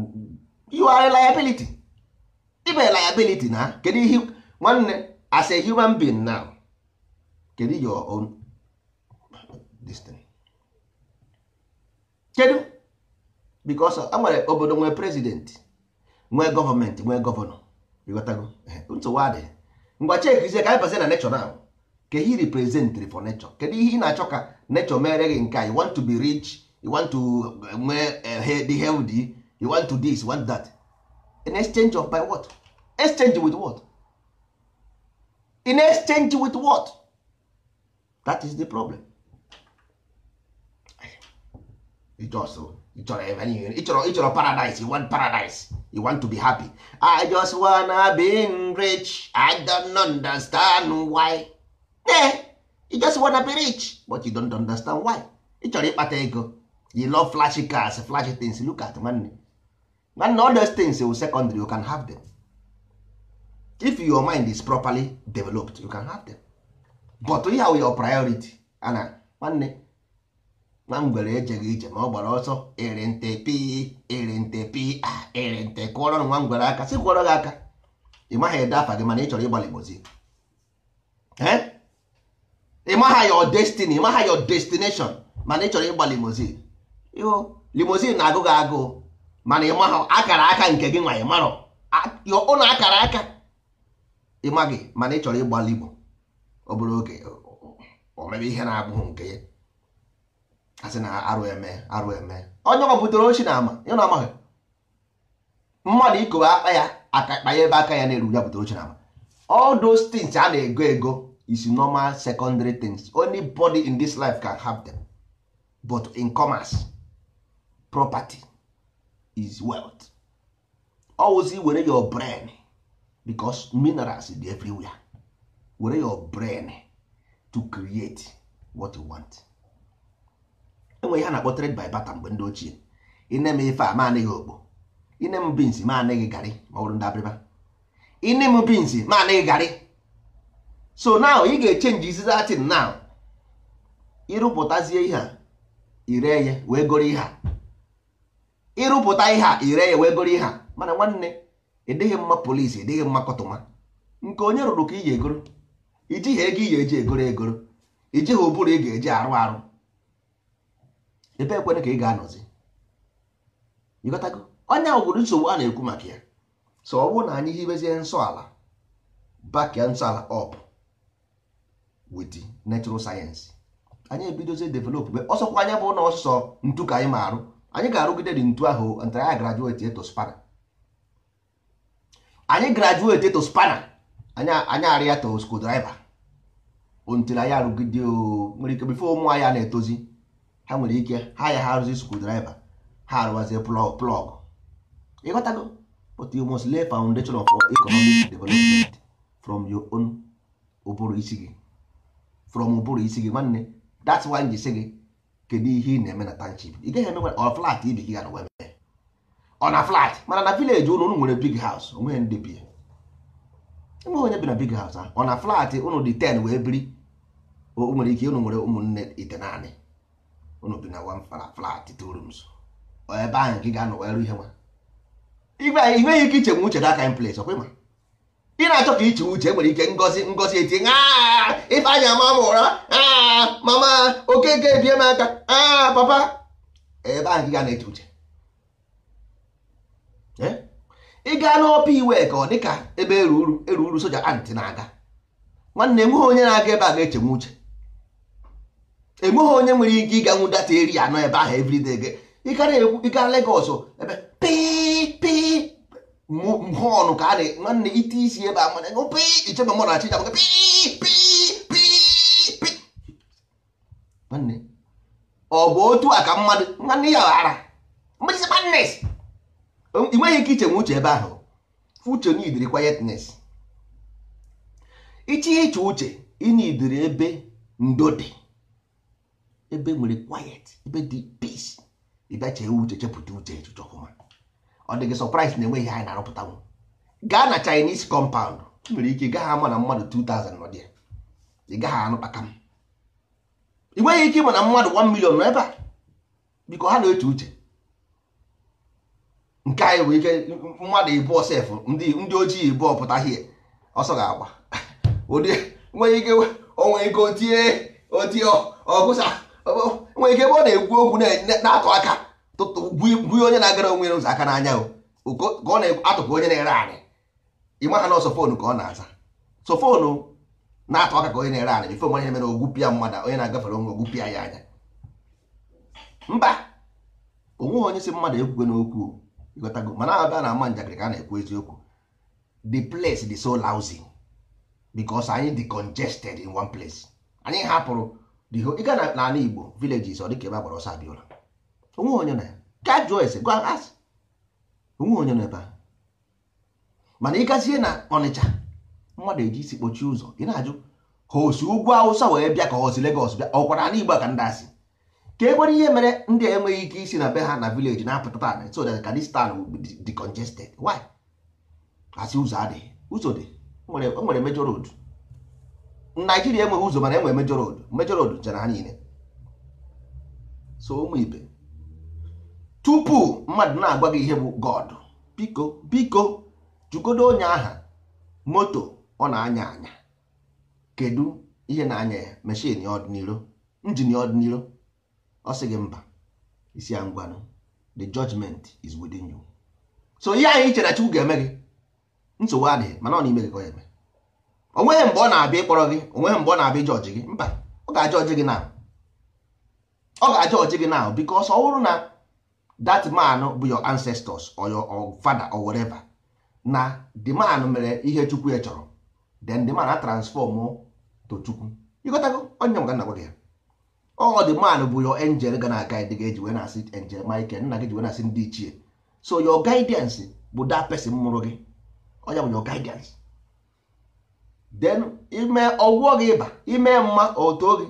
you are liability ibe liability na kedu ihe nwanne as a human being now kedu your own destiny kedu because a nwere obodo nwee president nwee gọọmenti nwee gọvanọ ịghọtago nsogbu adịghị ngwa chekizie ka anyị bazie na nechọ na ka he representri for nechọ kedu ihe ị na-achọ ka nechọ mere gị nke a want to be rich you want to eh, nwee dị eh, healthy you want to this you want that in exchange of by what exchange with what in exchange with what that is the problem ịchọrọ paradise you want paradise you want to be happy i just wanna be rich i don't understand why eh you just wanna be rich but you don't understand why ị chọrọ ịkpata ego you love flashy cars flashy things look at nwanne nwanne all those things will secondary you can have them if your mind is properly developed you can have them but we are your priority ana nwanne na ngwere ejeghị ije ma ọ gbara ọsọ ere nte pi ere nte pi a ere nte kụọrọ nwa ngwere aka si kwụọrọ gị aka ị maghị ede afa gị mana ị chọrọ ịgbalịgbozi ị maha your destiny ị maha your destination mana ị chọrọ ịgba limozin ịhụ limozin na-agụ gị agụ mana ị maha akara aka nke gị nwa ị marọ ụnụ akara aka ịma gị mana ị chọrọ ịgba ọ bụrụ oge o mere ihe na-abụghị nke ya asị na arụ eme arụ eme onye ọ ochie ochi na ama ya na amaghị mmadụ ikowe akpa ya aka kpa ya ebe aka ya na-eru ya butere ochi na ama all those things a na-ego ego is normal secondary things only body in this life can have them but in commerce property is wealth always were your brain because minerals dey everywhere were your brain to create what you want enwe ihe a na-akpọ trade by barter mgbe ndị ochie ine m ife a ma anaghị okpo ine m bins ma anaghị garị ma ọ ndị abịrịba ine m bins ma anaghị garị so now ị ga-echenji izi datin now ịrụpụtazie ihe a ire ya wee goro ihe a ịrụpụta ihe a ire ya wee goro ihe a mana nwanne ịdịghị e mma polisi e ịdịghị mma kọtụma nke onye rụrụ ka ị ga-egoro ijighị ego ị ga-eji egoro egoro ijighị ụbụrụ ị ga-eji arụ arụ ebe ekwere ka ị ga-anọzi ịghọtago onye ahụ nsogbu a na-ekwu maka ya so ọ bụrụ na anyị hibezie nsọ ala bakia nsọ ala up with natural sayensị anyị ebidozie develop mgbe ọsọkwa anya bụ na ntu ka anyị ma arụ anyị ga-arụgide dị ntu ahụ ntara anyị graduate eto spana anyị graduate eto spana anyị arịa to screwdriver ontere anyị arụgide nwere ike bifo ụmụ anyị na-etozi ha nwere ike ha ya ha arụzi screwdriver ha arụwazie plọg ịghọtago but you must lay foundation of economic development from your own ụbụrụ isi gị from ụbụrụ isi gị nwanne that's why ji si gị kedu ihe ị na-eme na township ị gaghị emenwe ọ flat ibi gị ga na wee ọ na flat mana na village ụnụ ụnụ nwere big house onwe ndị bi enweghị onye bi na big house ọ na flat ụnụ dị ten wee biri o nwere ike ụnụ nwere ụmụnne ite naanị unu bi na one flat two rooms ebe ahụ gị ga-anọ wee ihe nwa inweghị ike ichenwe uche that kind place ọkwa ịma ị na-achọ ka iche uche nwere ike ngozi ngozi eti ife anya ama m ụra mama okeke ebie m aka papa ebe ahụ gị ga na eche uche ị gaa n'ọpa iwe ka ọ dịka ebe eruru eruru soja antị na-aga nwanne nweghị onye na-aga ebe a ga-echenwe uche enweghị onye nwere ike ịganwu data eri anọ ebe ahụ ịkara everyday ịga Lagos ebe pii họnụ ka a na nwanne ite isi ebe a mana pii ichebe mmadụ achịcha maka pii pii pii nwanne ọ bụ otu a ka mmadụ nwanne ya ghara ị nweghị ike iche ichenwe uche ebe ahụ uche n'idiri quietness iche iche uche ị n'idiri ebe ndo dị ebe nwere quiet ebe dị peace ịbịa chee uche chepụta uche echuche ọfụma ọ dị gị surprise na enweghị anyị na-arụpụtanwu gaa na Chinese compound nwere ike ị gaghị ama na mmadụ 2000 nọ dị ya ị gaghị anụkpaka m ị nweghị ike ịma na mmadụ 1 million nọ ebe a biko ha na-eche uche nke anyị bụ ike mmadụ ịbụọ sef ndị ojii ịbụọ pụta hie ọsọ ga-agba ụdị nweghị ike onwe ike otie otie ọgụsa nwe ike ebe ọ na-ekwu okwu na-atụ aka buye onye na-agara onwe ụzọ aka n'anya ka ọ na-atụpụ onye na-ere anị ịma ha na ọsọ ka ọ na-aza so na-atụ aka ka onye na-ere anị bifo onye mere ogwupịa mmadụ onye na-agafere onwe ogwupịa ya anya mba onweghị onye si mmadụ ekwugo n'okwu ịghọtago mana abịa na ama njakịrị ka a na-ekwu eziokwu the place the so lousy because anyị de congested in one place anyị hapụrụ ị ga na n'ala Igbo villages ọ dịka ebe a agbara ọsọ abịa ụlọ. onwe onye na ya ka jụọ ese gwa asị onwe onye na ebe a mana ịgazie na Ọnịcha mmadụ eji isi kpochie ụzọ ị na-ajụ ha osi ugwu Awụsa wee bịa ka osi Legọs bịa ọ ọkwara ala Igbo ka ndị asị ka e nwere ihe mere ndị enweghị ike isi na be ha na vileji na-apụta taa so that ka this dị congested why asị ụzọ adịghị ụzọ dị o nwere major road naijiria enweghị ụzọ mana enwe mejọ road mejọ road jere ha niile so ụmụ ibe tupu mmadụ na-agwa gị ihe bụ god biko biko jụgodo onye aha moto ọ na-anya anya kedu ihe na-anya ya meshin ọdịniro injin ọdịniro ọ sị gị mba isi ya the judgment is within you so ihe anyị chere chi ga-eme gị nsogbu adịghị mana ọ na-ime gị ka ọ eme onweghị mgbe ọ na-abịa ịkpọrọ gị onweghị mgbe ọ na-abịa jọji gị mba ọ ga-ajọji gị na ọ ga-ajọji gị na because ọ bụrụ na that man bụ your ancestors or your father or whatever na the man mere ihe chukwu ya chọrọ then the man a transform to chukwu ịgotago onye m ga nagwa gị ya ọ the man bụ your angel ga na guide gị eji wee na-asị angel Michael nna gị ji wee na-asị ndị ichie so your guidance bụ that person mụrụ gị ọ ya bụ your guidance then ime ọgwụgwọ gị ịba ime mma oto gị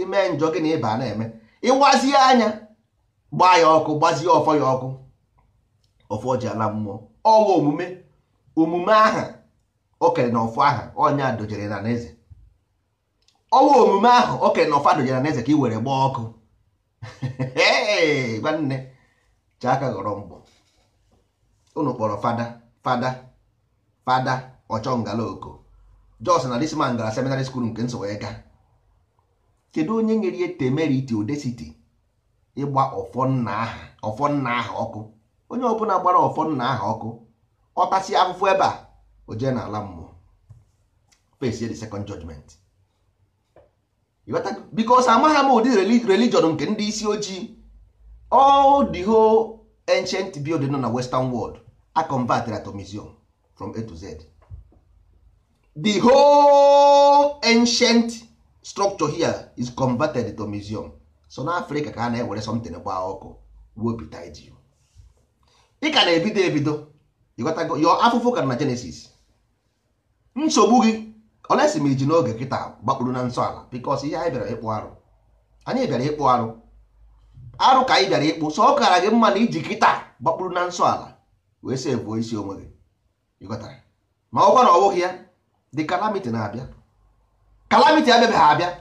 ime njọ gị na ịba na-eme ịgbazie anya gbaa ya ọkụ gbazie ọfọ ya ọkụ ọfọ ji ala mmụọ ọwa omume omume aha okere na ọfọ aha ọnya dojere na n'eze ọwa omume ahụ okere na ọfọ dojere na n'eze ka ị were gbaa ọkụ nwanne chaka ghọrọ mbọ unu kpọrọ fada fada fada ọchọngala oko jos na dis man gara seminary school nke nsọ wee kedu onye nyere ya temeriti odesiti ịgba ọfọ nna aha ọkụ onye ọbụla gbara ọfọ nna aha ọkụ ọtasị afụfụ ebe a o jee n'ala mmụọ face the second judgment bikos amagha m ụdị religion nke ndị isi ojii all the whole ancient building nọ na western world a convertara to museum from a to z the whole ancient structure here is converted to museum so n'afrịka ka a na-ewere something gbaa ọkụ ị ka na-ebido ebido ịghọtago afụfụ ka na Genesis nsogbu gị olesi iji n'oge kịta gbakpuru na nsọ ala because ihe anyị bịara ịkpụ arụ anyị bịara ịkpụ arụ arụ ka anyị bịara ịkpụ sọ ọkara gị mma na iji kịta gbakpuru na nsọ ala wee isi onwe gị ma ọ ya the calamity na-abịa calamity ha abịa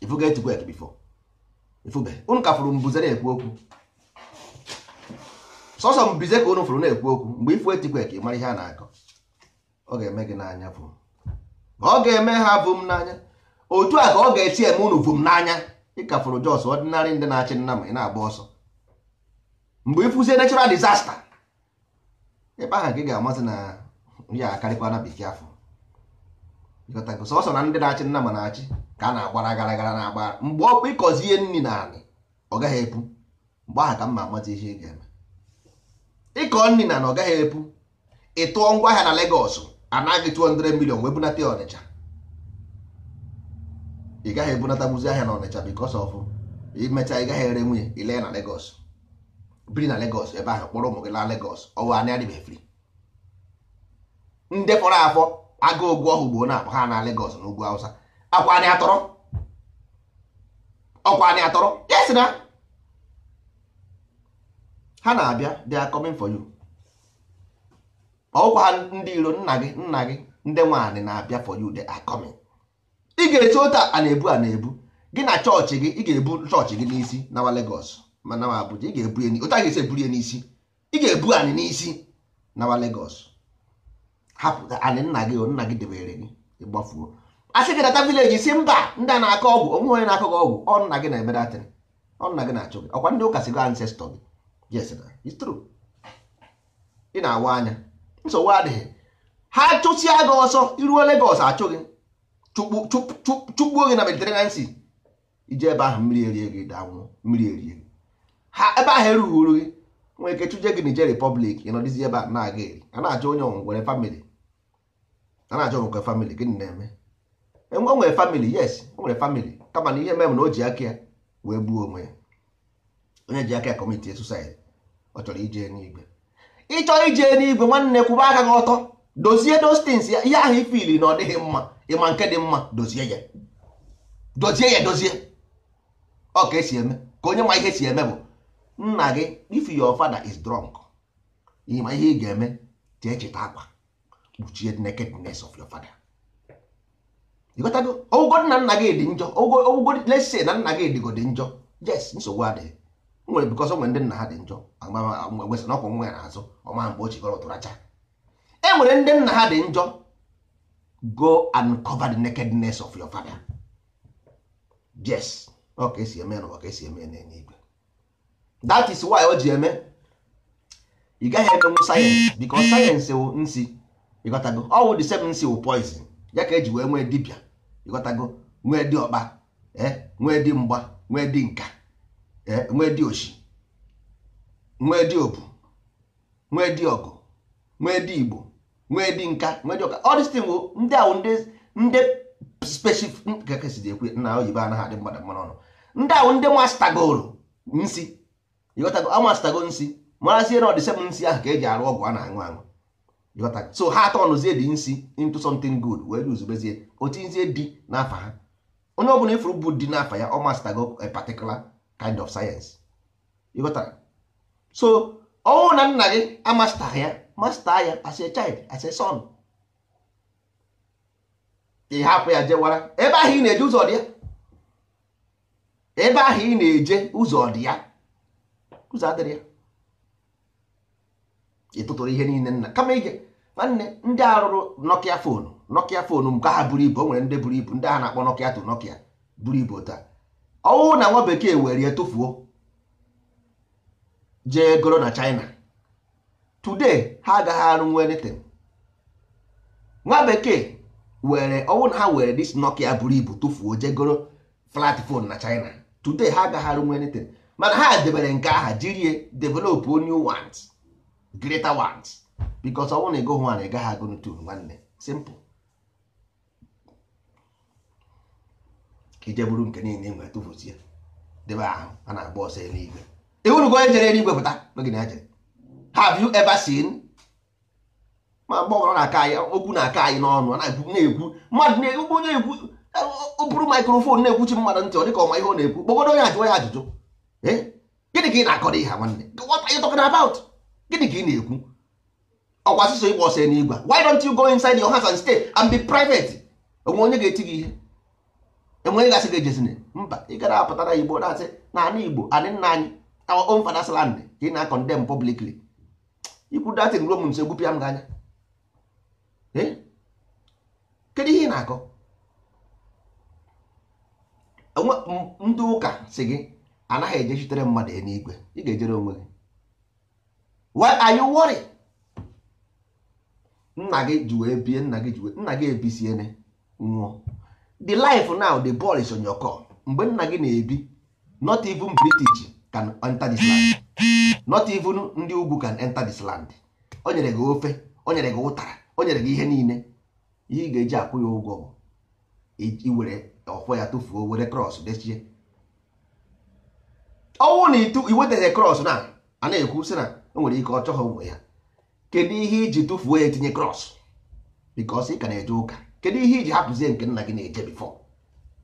ifuga earthquake before ifube unu ka fụrụ mbuze na-ekwu okwu sọsọ mbuze ka unu fụrụ na-ekwu okwu mgbe ifu earthquake mara ihe a na-akọ ọ ga-eme gị n'anya bụ ọ ga-eme ha bụ m n'anya otu a ka ọ ga-esi eme unu bụ m n'anya ịkafụrụ jos ọdịnarị ndị na-achị nna ma ị na-agba ọsọ mgbe ifuzie natural disaster ịkpa ahụ ka ga-amasị na ya akarịkwa na bekee afọ sọsọ na ndị na-achị nna ma na-achị ka a na-agbara gara gara na-agbara mgbe ọkwa ịkọzie nri na anị ọ gaghị epu mgbe aha ka mma amata ihe ị ga-eme ịkọ nri na na ọ gaghị epu ịtụọ ngwa ahịa na Legọs anaghị 200 million wee bunata Ọnịcha ị gaghị ebunata gbuzi ahịa na Ọnịcha bikos of imecha ị gaghị ere nwunye ile na Legọs biri na Legọs ebe ahụ kpọrọ ụmụ gị na Legọs ọwa anị adịbeghị ndị fọrọ afọ aga ogwu ọhụ gboo na-akpọ ha na Lagos na ugwu Hausa akwa atọrọ ọkwa atọrọ yes na ha na-abịa they are coming for you ọkwa ndị iro nna gị nna gị ndị nwaanyị na-abịa for you they are coming ị ga-esi ụta a na-ebu a na-ebu gị na chọọchị gị ị ga-ebu chọọchị gị n'isi nawa legos ma nawa Abuja ị ga-ebu ya ga-esi eburu ya n'isi ị ga-ebu anyị n'isi nawa legos. hapụ anị nna gị nna gị debere gị ịgbafuo asị gị data vileji si mba ndị a na-akọ ọgwụ onwe onye na-akọ gị ọgwụ ọ nna gị na-emere atịrị ọ nna gị na-achụ gị ọkwa ndị ụka si gị ancestọ gị yes it's true ị na-awa anya nsogbu adịghị ha chụsịa gị ọsọ iruo Lagos achụ gị chụgbuo gị na Mediterranean Sea ije ebe ahụ mmiri erie gị danwụọ mmiri erie gị ha ebe ahụ erughị uru gị nwere ike chụje gị Niger Republic ị nọdịzi ebe a na-aga eri a na-achọ onye ọnwụ nwere famili a na-ajụ nke famili gịnị na-eme e, o nwere famili yes o nwere famili kama na ihe mere na o ji aka ya wee gbuo onwe ya onye ji aka ya ọ chọrọ ije n'igwe ịchọrọ ije n'igwe nwanne kwụba aka gị ọtọ dozie dostins ya ihe ahụ ifili na ọ dịghị mma ịma nke dị mma dozie ya dozie ya dozie ọ ka esi eme ka onye ma ihe si eme bụ nna gị if your father is drunk ịma ihe ị ga-eme jee cheta akwa kpuchie nakedness of your father ịghọtago ụgwọ nna nna gị dị njọ ụgwọ lesi na nna gị dịgo dị njọ yes nsogbu adịghị nwere bikọs nwere ndị nna ha dị njọ wesị na ọkwụ nwa ya n'azụ ọma mgbe o chigoro tụracha e nwere ndị nna ha dị njọ go and cover the nakedness of your father yes ọka esi eme na ọka esi eme na-enye igwe that is why o ji eme ị gaghị emenwu sayensị bikọ sayensị wụ nsi ịghọtago ọwụ the seven seal poison ya ka eji wee nwee dibịa ịghọtago nwee dị ọkpa eh? nwee dị mgba nwee dị eh? nka nwee dị oshi nwee dị obu, nwee dị ọgụ nwee dị igbo nwee dị nka nwee dị ọka ọ dịstin bụ ndị ahụ ndị ndị spesifik ekwe na oyibo anaghị adị mmadụ mmanụ ọnụ ndị ahụ ndị mastagoro nsi ịghọtago amastagoro nsi marazie na ọ dị nsi ahụ ka eji arụ ọgwụ a na-aṅụ aṅụ so ha atọnụzie dị nsi into something good wee ruzubezie otinzie dị n'afa ha onye ọbụla ifuru bụ dị n'afa ya ọ mastago a particular kind of science ịghọtara so ọnwụ na nna gị amasta ya masta ya as a child as a son ị hapụ ya jewara ebe ahụ ị na-eje ụzọ dị ya ebe ahụ ị na-eje ụzọ dị ya ụzọ adịrị ya ị tụtụrụ ihe niile nna kama ige nwanne ndị a rụrụ nokia fonu nokia fonu nke ha buru ibu o nwere ndị buru ibu ndị ha na-akpọ nokia to nokia buru ibu taa ọwụ na nwa bekee were ya tụfuo jee goro na china today ha agaghị arụnwu anything nwa bekee were ọwụ na ha were dis nokia buru ibu tụfuo jee goro flat phone na china today ha agaghị arụnwu anything mana ha debere nke aha jirie develop onye want greater want because ọ bụrụ na ị gụghị nwaanyị ị agụ n'utu nwanne simple ije bụrụ nke niile nwe tụfuzie debe ahụ a na-agba ọsọ eluigwe ịhụrụgo onye jere eluigwe pụta n'oge na jere have you ever seen ma mgbe na-aka anyị okwu na-aka anyị n'ọnụ na-ekwu na-ekwu mmadụ na-ekwu onye ekwu oburu maikrofon na-ekwuchi mmadụ ntị ọ dịka ọma ihe ọ na-ekwu kpọgodo onye ajụọ ya ajụjụ eh? gịnị ka ị na-akọrọ ihe nwanne what are you talking about gịnị ka ị na-ekwu ọkwa asụsụ ịgba ọsọ n'igwe why don't you go inside your house and stay and be private onwe onye ga-eti gị ihe enwe onye ga-asị gị ejezine mba ị gara apụtara igbo na-asị na ana igbo anị nna anyị our own father's land ka ị na-akọndem publicly ikwu datin ruo m nso egbupịa m gị anya kedu ihe ị na-akọ ndị ụka si gị anaghị ejechitere mmadụ n'igwe ị ga-ejere onwe gị why are you nna gị ji wee bie nna gị ji wee nna gị ebisiene nwụọ the life now the ball is on your mgbe nna gị na-ebi not even british can enter this land not even ndị ugwu can enter this land o nyere gị ofe o nyere gị ụtara o nyere gị ihe niile ihe ị ga-eji akwụ ya ụgwọ bụ iwere ọfọ ya tụfuo were krọs dechie ọnwụ na itu iwetaghị krọs na a na-ekwu si na o nwere ike ọ chọghị ụmụ ya kedu ihe iji tụfuo ya etinye krọs bikos ị ka na-eje ụka kedu ihe iji hapụzie nke nna gị na-eje bifọ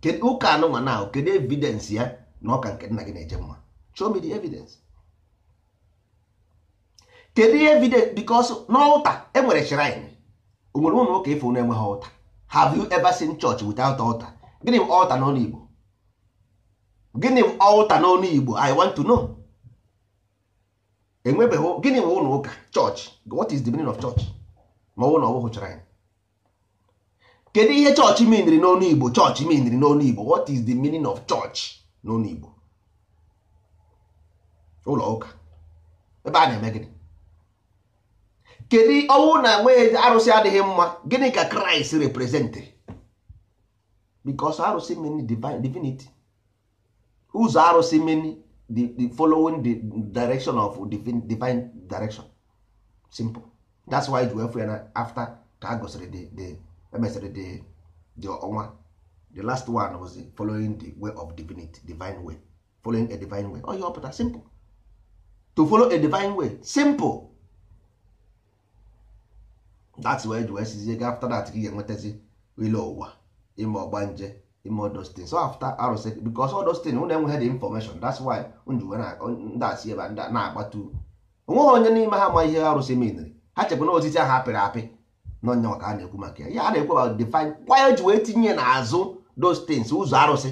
kedu ụka anụnwa na ahụ kedu evidensị ya na ọka nke nna gị na-eje mma show me the kedu ihe evidence bikos n'ụta enwere shrine onwere ụlọ nwoke ifo na-enweghị ụta have you ever seen church without altar gịnị bụ altar n'ọnụ igbo gịnị bụ altar n'ọnụ igbo i want to know enwebeghị gịnị bụ ụlọ ụka chọọchị what is the meaning of church ma ọnwụ na ọbụghị chọrọ anyị kedu ihe chọọchị miniri n'onu igbo chọọchị miniri n'onu igbo what is the meaning of church n'onu igbo ụlọ ụka ebe a na-eme gịnị kedu ọnwụ na enweghị arụsị adịghị mma gịnị ka kraịst reprezentịrị because arụsị meni divinity ụzọ arụsị meni the, the following the direction of divine, divine direction simple that's why ji wee ya na after ka gosiri the the emesịrị the the ọnwa the last one was following the way of divinity divine way following a divine way oyi oh, pụta simple to follow a divine way simple that's why ji wee sizie ga after that ka ị ga-enwetazi ile ụwa ime nje. ime all those things so after arụsị because all those things unu enweghị the information that's why njuwe ndasị ebe na-agbatu onweghị onye n'ime ha ma ihe arụsị menere ha chekwa na osisi ahụ apịrị apị na onye maka a na-ekwu maka ya ya na-ekwu about define why ji wee tinye n'azụ those things ụzọ arụsị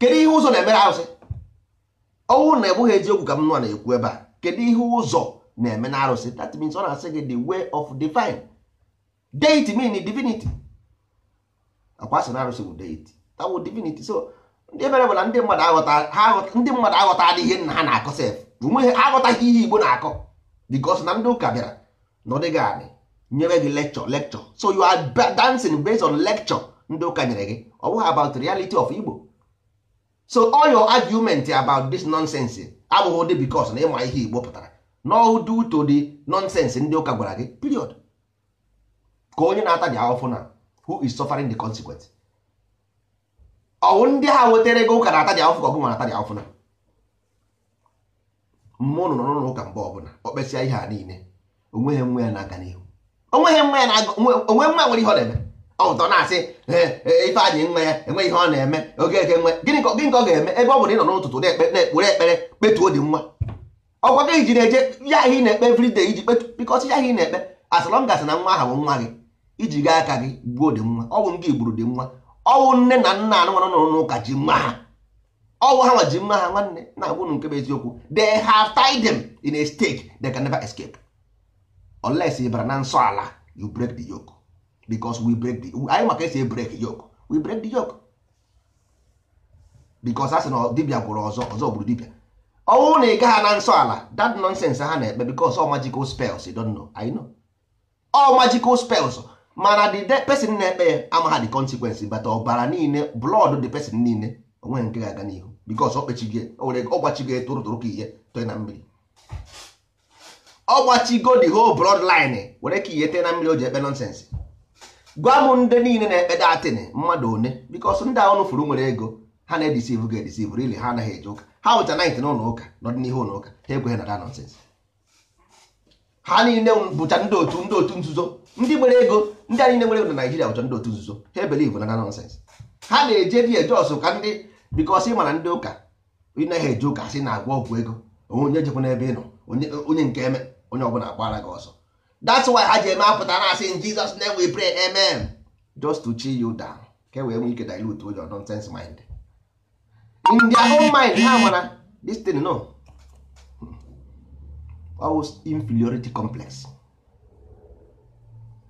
kedu ihe ụzọ na-emere arụsị ọnwụ na egbughị eziokwu ka m nwa na-ekwu ebe a kedu ihe ụzọ na-eme na arụsị that means ọ na-asị gị the way of divine deity mean divinity akwa sị na arụsị bụ deity t'awo divinity so ndị mere bụ na ndị mmadụ aghọta ha ndị mmadụ aghọtala ihe nna ha na-akọ sef onweghị aghọtaghị ihe igbo na-akọ bikos na ndị ụka bịara na anị nyere gị lecture lecture so you are dancing based on lecture ndị ụka nyere gị ọ bụghị about reality of igbo so all your argument about this nonsense abụghị ụdị bikos na ịma ihe igbo pụtara no due to the nonsense ndị ụka gwara gị period ka onye na-ata dị ahụfụ na who is suffering the consequence ọwụ ndị ha wetara ego ụka na-ata dị afụfụ ka nwa na-ata na mmụọ nọ n'ụlọ ụka mgbe ọbụla ọ kpesịa ihe a niile onweghị nwa ya na-aga n'ihu onweghị nwa ya na-aga onwe nwa nwere ihe ọ na-eme ọtọ na-asị e, ife anyị nwa ya enweghị ihe ọ na-eme oge eke nwe gịnị ka ọ ga-eme ebe ọ bụla ị nọ n'ụtụtụ na-ekpere ekpere kpetuo dị nwa ọkwa gị ji na-eje ya ihe ị na-ekpe everyday iji kpetu bikọsi ya ihe ị na-ekpe as long as na nwa ahụ bụ nwa gị iji gaa aka gị gbuo dị nwa ọ bụ ndị igburu dị nwa ọwụ nne na nna anụmanụ nọrọ n'ụka ji mma ha ọwụ ha nwa ji mma ha nwanne na-agwụnụ nke bụ eziokwu they have tied them in a stake they can never escape unless ị bara na nsọ ala you break the yoke because we break the anyị maka esi break yoke we break the yoke because a sị na dibia gwụrụ ọzọ ọzọ gburu dibia ọnwụ na ịga ha na nsọ ala that nonsense ha na-ekpe because all magical spells you don't know I know all magical spells mana the person na-ekpe ya amagha the consequence but ọbara niile blood the person niile onwe nke ga-aga n'ihu because ọ kpechigo ọ gbachigo ka ihe toe na mmiri ọ gbachigo the whole blood line were ka ihe tee na mmiri o ji ekpe nonsense gwa m ndị niile na-ekpe datin mmadụ one because ndị ahụ nụfuru nwere ego ha na-edisivu ga edisivu rili ha anaghị eje ụka ha wụcha nit na ụlọ ụka n'ọdịnihu ụlọ ụka ha ekweghị na da nonsense ha niile bụcha ndị otu ndị otu nzuzo ndị nwere ego ndị anyị nwere enwere na Naijiria ụjọ ndị otu nzuzo ha ebelivu na na nọnsens ha na-eje di ejos ka ndị bikọs ị ndị ụka ịnaghị eje ụka sị na-agwa ọgwụ ego onye jekwa n'ebe ị nọ onye nke eme onye ọbụla agbara gị ọsọ that's why ha ji eme apụta na asị in na name we pray amen just to chill you down ka e wee nwee ike dilute your nonsense mind in their mind ha mara this no ọwụ hmm. inferiority complex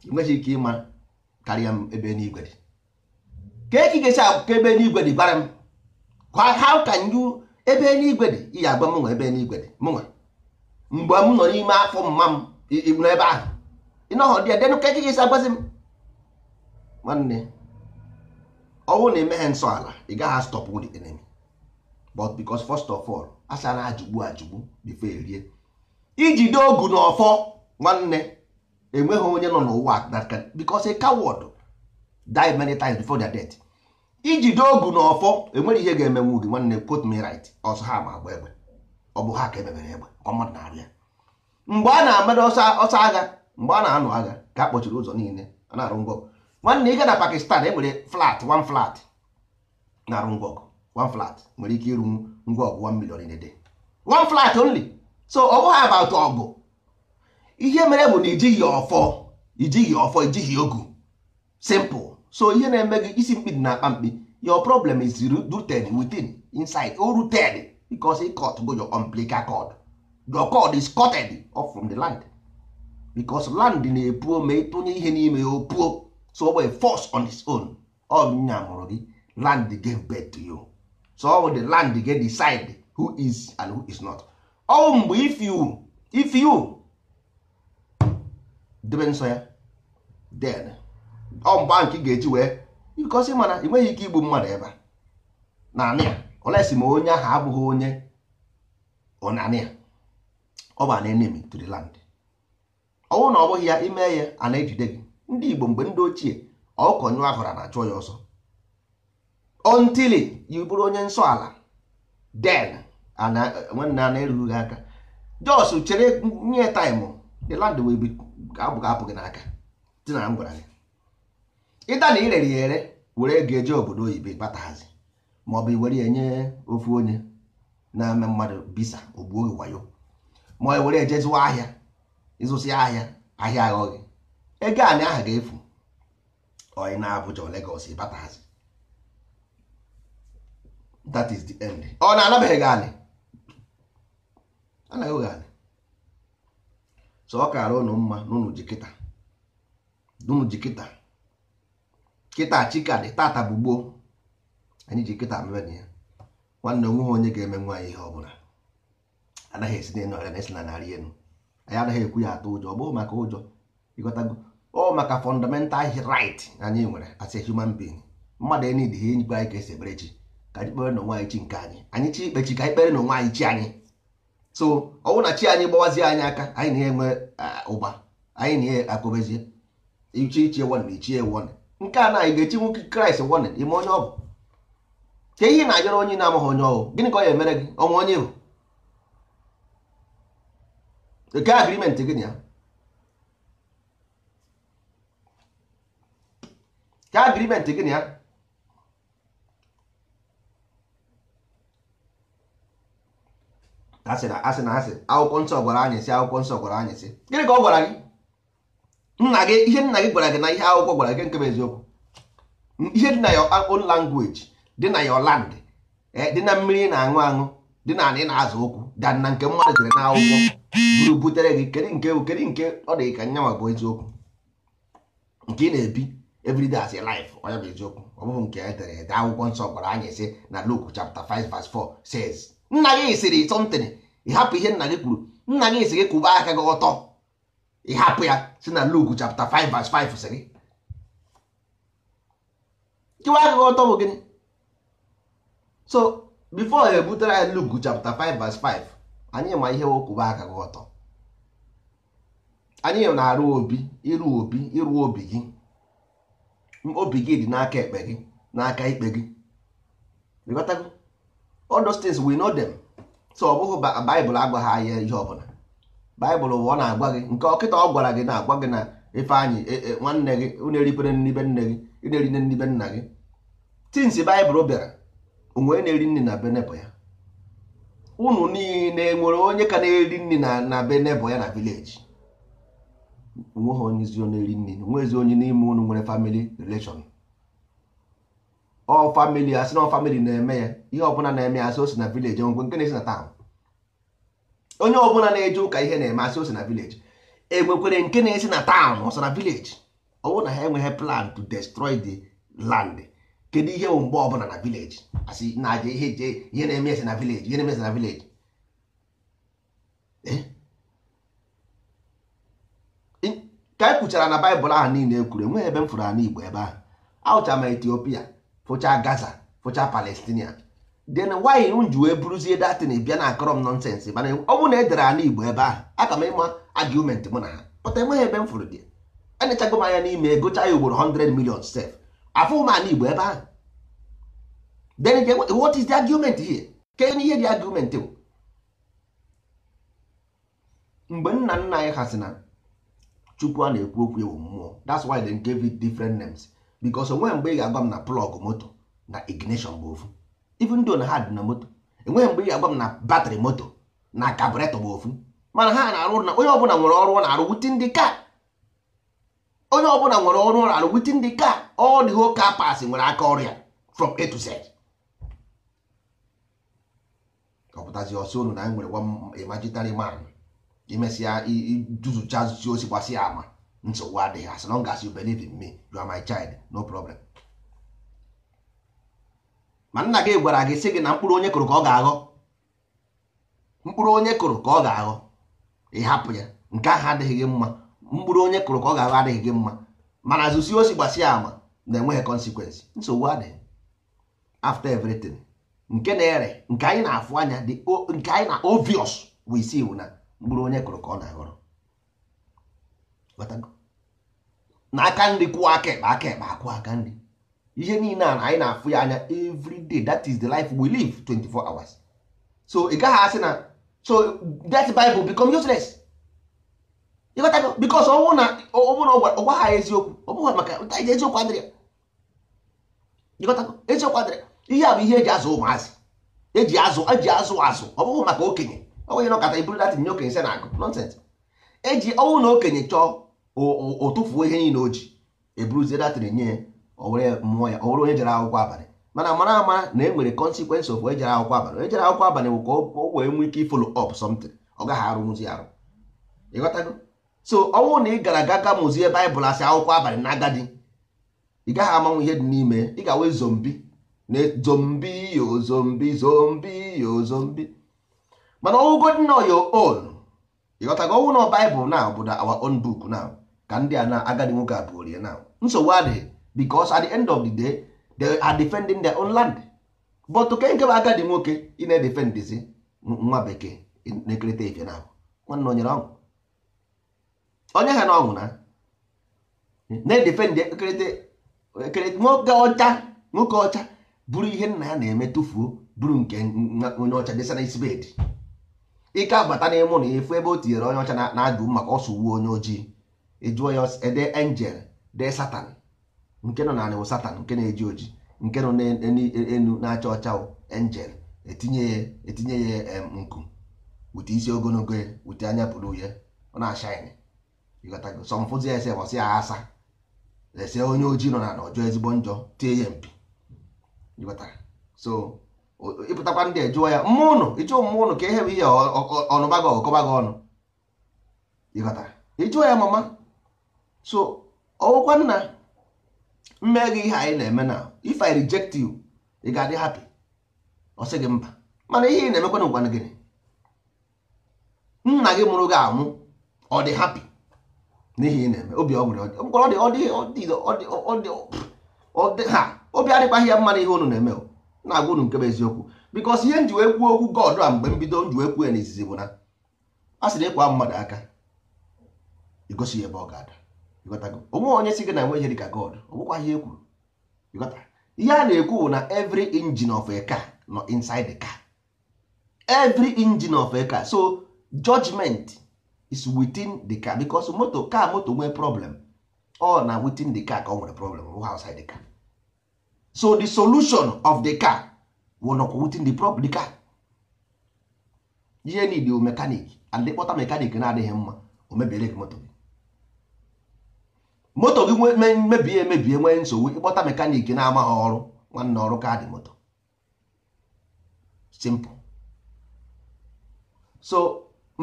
enweghị ike ịma karịa m ebe n'igwe dị ka eki ga-esi ebe n'igwe dị bara m how can you ebe n'igwe dị iyi agba m nwe ebe n'igwe dị mụnwa mgbe m nọ n'ime afọ mma m n'ebe ahụ ịnọghọ dị denụ ka eki ga-esi m nwanne ọnwụ na emeghe nsọ ala ị gaghị stọpụ the enemy but because first of all asa na ajụgbu ajụgbu bifo erie ijide ogu na ọfọ nwanne enweghị onye nọ n'ụwa that because a coward die many times before their death ijide ogu na ọfọ enwere ihe ga-emenwu gị nwanne quote me right ọsọ ha ma agba egbe ọ bụ ha ka emebere egbe ka mmadụ na-arịa mgbe a na-amado ọsọ agha mgbe a na-anọ agha ka a kpọchiri ụzọ niile a na-arụ ngọgụ nwanne ịga na Pakistan e nwere flat one flat na-arụ ngọgụ one flat nwere ike ịrụ ngwa ọgụ one million in a day one flat only so ọ bụghị about ọgụ ihe mere bụ na ijighị ọfọ ijighị ọfọ ijighị ogu simple so ihe na-eme gị isi mkpi dị na akpa mkpi your problem is rooted within inside o rooted because it cut bụ your umbilical cord your cord is cutted off from the land because land na-epuo ma ịtụnye ihe n'ime ya opuo so ọ bụ force on its own ọ nya mụrụ gị land gave birth to you so ọ bụ the land dey decide who is and who is not ọnwụ mgbe if you if you debe nsọ ya den ọ mgbe ahụ ị ga-eji wee ịkọsị mana ị nweghị ike igbu mmadụ ebe a naanị ya olesi ma onye ahụ abụghị onye ọnanị ya ọ bụ na enemy to ọnwụ na ọ bụghị ya ime ya a na-ejide gị ndị Igbo mgbe ndị ochie ọkọ nyụ ahụra na achụọ ya ọsọ until you bụrụ onye nsọ ala den nwanne a na-erughị aka jos chere nye taịmụ the land will abụ ga bụ gị n'aka tinara m gwara gị ịda na irere ya ere were ego eje obodo oyibo ịkpatahazi ma ọ bụ iwere ya nye ofu onye na-eme mmadụ bisa ogbuo gị wayo ma ọ were ejeziwa ahịa ịzụsị ahịa ahịa aghọghị ego anị aha ga-efu onye na-abụja Lagos ịbatahazi that is the end ọ na-anabeghị gị anị anaghị oge anị so ọ kara ụnụ mma n'ụnụ ji kịta n'ụnụ ji kịta kịta chika dị tata bụ gboo anyị ji kịta mere ya nwanne onweghị onye ga-eme nwa ihe ihe ọbụla anaghị esi na ọrịa na esi na narị elu anyị anaghị ekwu ya atụ ụjọ ọ bụghị maka ụjọ ịghọtago ọ maka fọndamental rit anyị nwere as a human being mmadụ enyi dị ihe nyikpe anyị ka esi ekpere chi ka anyị kpere na onwe anyị chi nke anyị anyị chi ikpe chi ka anyị kpere na onwe anyị chi anyị so ọ na chi anyị gbawazie anyị aka anyị na-enwe ụba anyị na-enye akụbezie ichi ichie wọn ichie wọn nke a na anyị ga-echi nwoke kraịst wọn ime onye ọ bụ ka ihe na-ajọrọ onye na-amaghị onye bụ gịnị ka ọ ga emere gị ọnwa onye bụ nke agrimenti gị ya agrimenti gị ya asị na asị na akwụkwọ nsọ gwara anyị akwụkwọ nsọ gwara anyị gịnị ka ọ gwara gị nna gị ihe nna gị gwara gị na ihe akwụkwọ gwara gị nke bụ eziokwu ihe dị na ya own language dị na your land eh, dị na mmiri na-aṅụ aṅụ dị na ana ị na-azụ ụkwụ dan na nke mmadụ dere na akwụkwọ buru butere gị kedụ nke kedu nke ọ dị ka nyanwa bụ eziokwu nke ị na-ebi everyday as lif life onye bụ eziokwu ọ bụghị nke e dere ede akwụkwọ nsọ gwara anyị sị na Luke chapter 5 verse 4 says nna gị sịrị sọntịn ịhapụ ihe nna gị kwuru nna gị sị gị kwụba aka gị ọtọ ịhapụ ya si na Luke chapter 5 verse 5 sịrị kịwa aka gị ọtọ bụ gịnị so before ebutere anyị Luke chapter 5 verse 5 anyị ma ihe kwụba aka gị ọtọ anyị na-arụ obi ịrụ obi ịrụ obi gị obi gị dị n'aka ekpe gị n'aka ikpe gị odostins those things we know them so ọ bụghị baịbụl agwaghị anya ihe ọbụla baịbụl ọ na-agwa gị nke ọkịta ọ gwara gị na-agwa gị na ifeanyị e- e- nwanne gị na-eripere nnibe nne gị na-eri nne nnibe nna gị tinsi baịbụl bịara onwe na-eri nri na benebụ ya ụnụ niile nwere onye ka na-eri nri na benebụ ya na vileji onweghị onye ezi onye eri nri onwe ezi onye n'ime ụnụ nwere family relation ọ famili asị na famili na-eme ya ihe ọbụla na-eme asị osi na vileji nwekwe nke na-esi na taụn onye ọbụla na-eje ụka ihe na-eme asị osi na vileji enwekwere nke na-esi na taụn ọsọ na vileji ọwụ na ha enweghị plan to destroy the land kedu ihe bụ mgbe ọbụla na vileji asị na-aja ihe je ihe na-eme esi na vileji ihe na-eme esi na vileji ka e kwuchara na baịbụl ahụ niile e kwuru enweghị ebe m fụrụ ana igbo ebe ahụ ahụchara m etiopia fụcha gaza fụcha palestinia then why m ji wee bụrụzie datin bịa na akọrọ m nọnsensị mana ọ bụ na edere ala igbo ebe ahụ aka m ịma argument mụ na ha pụta enweghị ebe m fụrụ dị enyechago m anya n'ime gụcha ya ugboro 100 million sef afụ m ala igbo ebe ahụ then what is the argument here ke ihe dị argument bụ mgbe nna nna anyị ha sị na chukwu a na-ekwu okwu ewu mmụọ that's why they gave it different names because onwe mgbe ị ga-agwa m na plọg moto na ignition bụ ofu even though na ha dị na moto enweghị mgbe ị ga-agwa m na batrị moto na kaburetọ bụ ofu mana ha na-arụ na onye ọbụla nwere ọrụ ọ na-arụ witin dị ka onye ọbụla nwere ọrụ ọ na-arụ witin dị ka ọ dị ho kapas nwere aka ọrịa from a to z ọpụtazi ọsọ unu na anyị nwere imaginary man imesịa ijuzucha zuzi osi gbasịa ama nsogbu adịghị as long as you believe in me you are my child no problem ma nna gị gwara gị sị gị na mkpụrụ onye kụrụ ka ọ ga-aghọ mkpụrụ onye kụrụ ka ọ ga-aghọ ịhapụ ya nke ahụ adịghị gị mma mkpụrụ onye kụrụ ka ọ ga-aghọ adịghị gị mma mana zụsi osi gbasia ama na-enweghị consequence nsogbu adịghị after everything nke na-ere nke anyị na-afụ anya nke anyị na obvious we see na mkpụrụ onye kụrụ ka ọ na-aghọrọ na aka nri kwụọ aka ekpe aka ekpe akwụ aka nri ihe niile a anyị na-afụ ya anya evriday that is the life we live 24 hours so ị gaghị asị na so that bible become useless ịghọtago because ọnwụ na ọgwa ha eziokwu ọ bụghị maka eziokwu adịrị ya ịghọtago eziokwu adịrị ihe a bụ ihe eji azụ ụmụazị eji azụ eji azụ azụ ọ bụghị maka okenye ọ nwenye nọkọta iburu datin nye okenye se na agụ nonsens eji ọnwụ na okenye chọọ o ihe niile o ji eburuzie datịrị nye owere mmụọ ya owere onye jere akwụkwọ abalị mana mara ama na e nwere consequence of onye akwụkwọ abalị onye jere akwụkwọ abalị bụ ka o wee nwee ike follow up somtin ọ gaghị arụnwụzi arụ ịghọtago so ọnwụ na ị gara aga ga mụzie baịbụl asị akwụkwọ abalị na agadi ị gaghị amanwụ ihe dị n'ime ị ga-awe zombi na zombi yo zombi zombi yo zombi mana ọwụgo dị na ya on ịghọtago ọnwụ na baịbụl na obodo our own book now ka ndị a na agadi nwoke a pụorie na nsogbu adịghị because at the end of the day they are defending their own land but ka nke bụ agadi nwoke ị na-edefendizi nwa bekee na-ekerịta ife na nwanne onyere ọṅụ onye ha na ọṅụ na na-edefendi nwoke ọcha nwoke ọcha bụrụ ihe nna ya na-eme tụfuo bụrụ nke onye ọcha desana isi bedi ike abata n'ịmụ na efu ebe o tinyere onye ọcha na-ajụ maka ọsụ uwe onye ojii ị ya ya ede angel dee satan nke nọ n'anị wụ satan nke na-eji oji nke nọ n'enu na-acha ọcha angel etinye ya etinye ya nku wute isi ogologo ya wute anya pụrụ ya ọ na-ashaịnị sọmfụzi ese wasị ya asa ese onye ojii nọ n'ala ọjọọ ezigbo njọ tie ya mpi so ịpụtakwa ndị ejụọ ya mmụọ ụnụ ịjụọ mmụọ ụnụ ka e ihe bụ ihe ọnụba gị ọkọba gị ọnụ ịjụọ ya mama so ọwụkwa nna mme gị ihe anyị na-eme na if i reject you ị ga-adị happy ọ sị gị mba mana ihe ị na-emekwa na gị nna gị mụrụ gị anwụ ọ dị happy n'ihi ị na-eme obi adịkwaghị ya mma na ihe unu na-eme na-agwa unu nke bụ eziokwu bikos ihe nji wee kwuo okwu God a mgbe mbido nji wee kwuo ya n'izizi bụ na a sị na ịkwa mmadụ aka igosi ya ebe ọ ga-ada onwe onye si gị na nwe ihe dịka God ọ bụkwa ihe ekwuru ihe a na-ekwu bụ na every engine of a car nọ inside the car every engine of a car so judgment is within the car because moto car moto nwee problem ọ na within the car ka ọ nwere problem ọ outside the car so the solution of the car wụ nọkwa within the problem the car ihe niile mekanik and kpọta mekanik na-adịghị mma o mebiere gị moto moto gị mebie emebie nwee nsogbu ịkpọta mekaniki na-amaghị ọrụ nwanne ọrụ kaadị moto simple so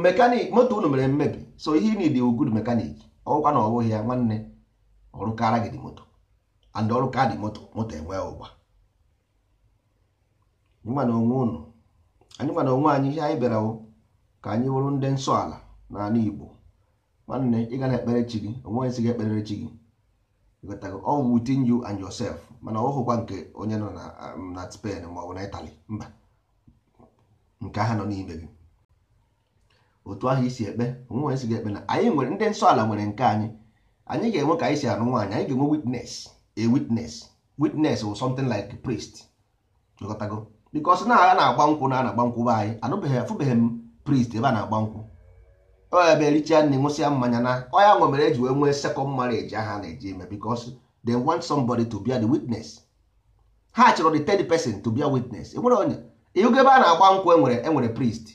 mekanik moto unu mere mmebi so ihe ị dị good mekanik ọgwụkwa na ọbụghị ya nwanne ọrụ kara gị dị moto and ọrụ kaadị moto moto enweghị ụgba anyị na onwe unu na onwe anyị ihe anyị bịara ka anyị wụrụ ndị nsọ ala n'ala Igbo nwanne ị ga na-ekpere chi gị onweghị si gị ekpere chi gị all within you and yourself mana ọ hụkwa nke onye nọ na um, spen ma ọ bụ na Italy mba nke ha nọ n'ime gị otu ahụ isi ekpe onweghị si gị ekpe na anyị nwere ndị nsọ ala nwere nke anyị anyị ga-enwe ka anyị si anụ nwaanyị anyị ga-enwe witness a witness witness or something like a priest ịghọtago because na agha na-agba nkwụ na a na-agba nkwụ be anyị anụbeghị afụbeghị m priest ebe a na-agba nkwụ ọ ya bịa elicha nri mmanya na ọ ya nwe mere eji wee nwee sekọnd marriage aha na-eji eme because want somebody to be the witness ha chọrọ the third person to be witness enwere onye ịhụgo ebe a na-agba nkwụ enwere enwere priest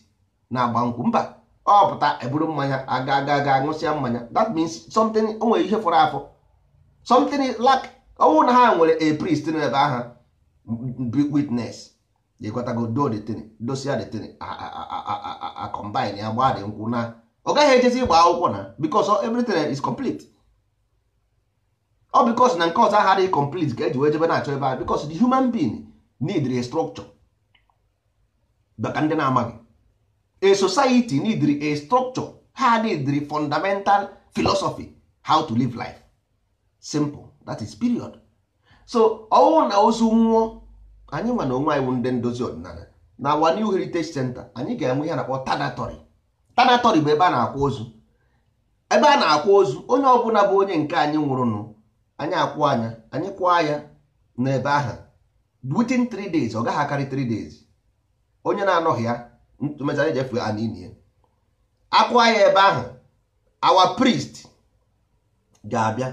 na-agba nkwụ mba ọ pụta eburu mmanya aga aga aga ṅụsịa mmanya that means something o ihe fọrọ afọ something like ọnwụ na ha nwere a ebe aha witness dosia ya gbaa dị nkwụ na ọ gaghị ejezi ịgba akwụkwọ na because everything is complete ọ because na nke ọzọ aghara complete ka eji wee jebe na-achọ ebe a because the human being need a structure baka ndị na-amaghị a society need a structure ha need fundamental philosophy how to live life simple that is period so ọwụ na ozu nwụọ anyị nwa na onwe anyị ndị ndozi ọdịnala na our new heritage center anyị ga-enwe ihe na-akpọ tadatory tanatọri bụ ebe a na-akwa ozu ebe a na-akwa ozu onye ọbụla bụ onye nke anyị nwụrụnụ anyị akwụ anya anyị kwaa anya n'ebe ahụ within 3 days ọ gaghị akarị 3 days onye na-anọghị ya mechara ejefe anini ya ya ebe ahụ awa priest ga-abịa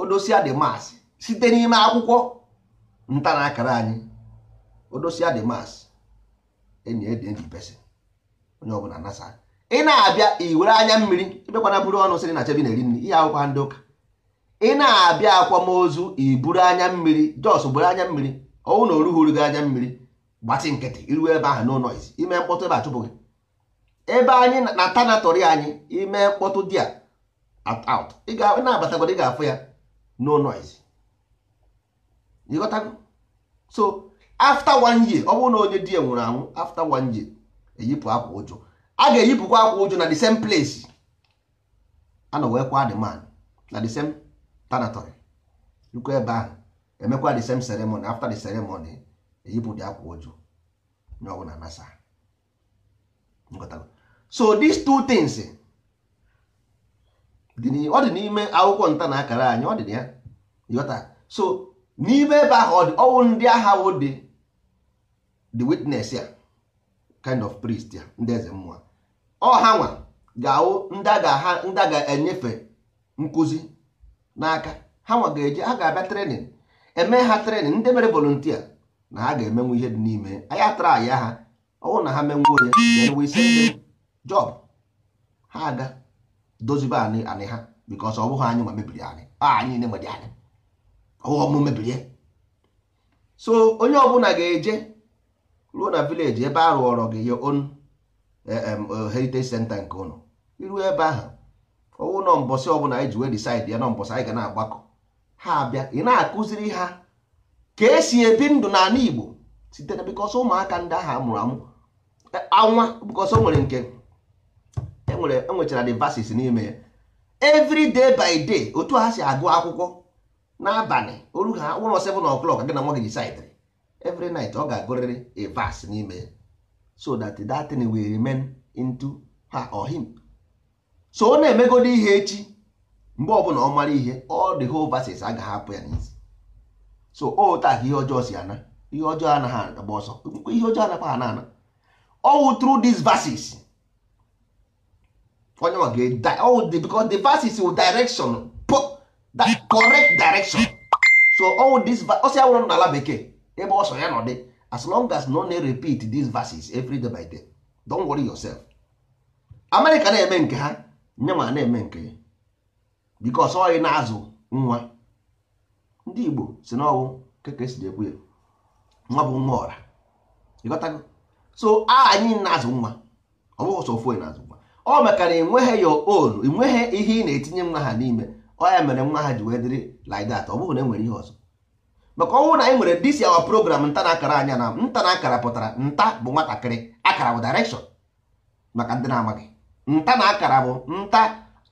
odosia dị mas site n'ime akwụkwọ nta na akara anyị odosia dị mas enyi ede ndị pesin onye ọbụla nasa ị na-abịa iwere anya mmiri ebekwana buru ọnụ sịrị na chebi na-eri nri ihe akwụkwọ ndị ụka ị na-abịa akwamozu iburu anya mmiri jos buru anya mmiri ọnwụ na oruhuru gị anya mmiri gbatị nkịtị iru ebe ahụ no noise ime mkpọtụ ebe achụpụghị ebe anyị na tanatory anyị ime mkpọtụ dị a out ị na-abatagodo ị ga-afụ ya no noise ịghọtago so after one year ọ bụrụ na onye di ya nwụrụ anwụ after one year eyipụ akwa ụjọ a ga-eyipụkwa akwa ụjụ na the same place ana wee kwa the man na the same tanatory rukwa ebe ahụ emekwa the same ceremony after the ceremony eyipụ dị akwa ụjụ n'ọgwụ na nasa so these two things ọ dị n'ime akwụkwọ nta na akara anyị ọ dị na ya yọta so n'ime ebe ahụ ọ dị ọnwụ ndị agha wụ dị the witness ya kind of priest ya ndị eze mmụọ ọha nwa ga-awụ ndị a ga-enyefe nkụzi n'aka ha nwa ga-eje ha ga-abịa trenin eme ha trenin ndị mere volontia na ha ga-emenwu ihe dị n'ime anyị atara aya ha ọnwụ na ha ya. menwu onye jọb ha aga dozibe anị anị ha bikos ọ bụghị anyị nwa mebiri anyị anyị niile nwere anyị ọbụghị ọmụ mebiri ya so onye ọbụla ga-eje ruo na vileji ebe a rụọrọ gị ya onu Eh, eh, heritage center nke ụnụ iru ebe ahụ ọwụ nọ mbọsị ọbụla anyị e ji wee decide ya nọ mbọsị anyị ga na-agbakọ ha abịa ị na-akụziri ha ka esi ebi ndụ n'ala Igbo site na bikọsọ ụmụaka ndị ahụ amụrụ amụ eh, anwa bikọsọ nwere nke enwere enwechara devasis n'ime ya every by day otu ha si agụ akwụkwọ n'abalị oru ha ụlọ 7 o'clock gị na nwa gị decide every night ọ ga-agụrịrị a n'ime ya so that that thing will remain into her or him. so ọ na-emegodi ihe echi mgbe ọbụla ọ mara ihe all the whole verses agaghị hapụ ya n'isi so ota ka ihe ọjọọ si ana ihe ọjọọ anaghị agba ọsọ ihe ọjọọ anakwa ha na-ana all through these verses onye ọ ga the because the verses will direction correct direction so all this ọsọ ya nwụrụ n'ala bekee ebe ọsọ ya nọ dị as long as no na repeat these verses every day by day don't worry yourself amerịka na-eme nke ha nye na-eme nke ya because ọ na-azụ nwa ndị igbo si n'ọwụ keke si ekwu ya nwa bụ nwa ọra ịghọtago so a anyị na-azụ nwa ọ bụghị sọ ofu na-azụ nwa ọ mekara enweghị ya olu enweghị ihe ị na-etinye nwa ha n'ime ọ ya mere nwa ha ji wee dịrị like ọ bụghị na enwere ihe ọzọ maka ọnwụ na anyị nwere dis our program nta na akara anya na nta na akara pụtara nta bụ nwatakịrị akara bụ direction maka ndị na-amaghị nta na akara bụ nta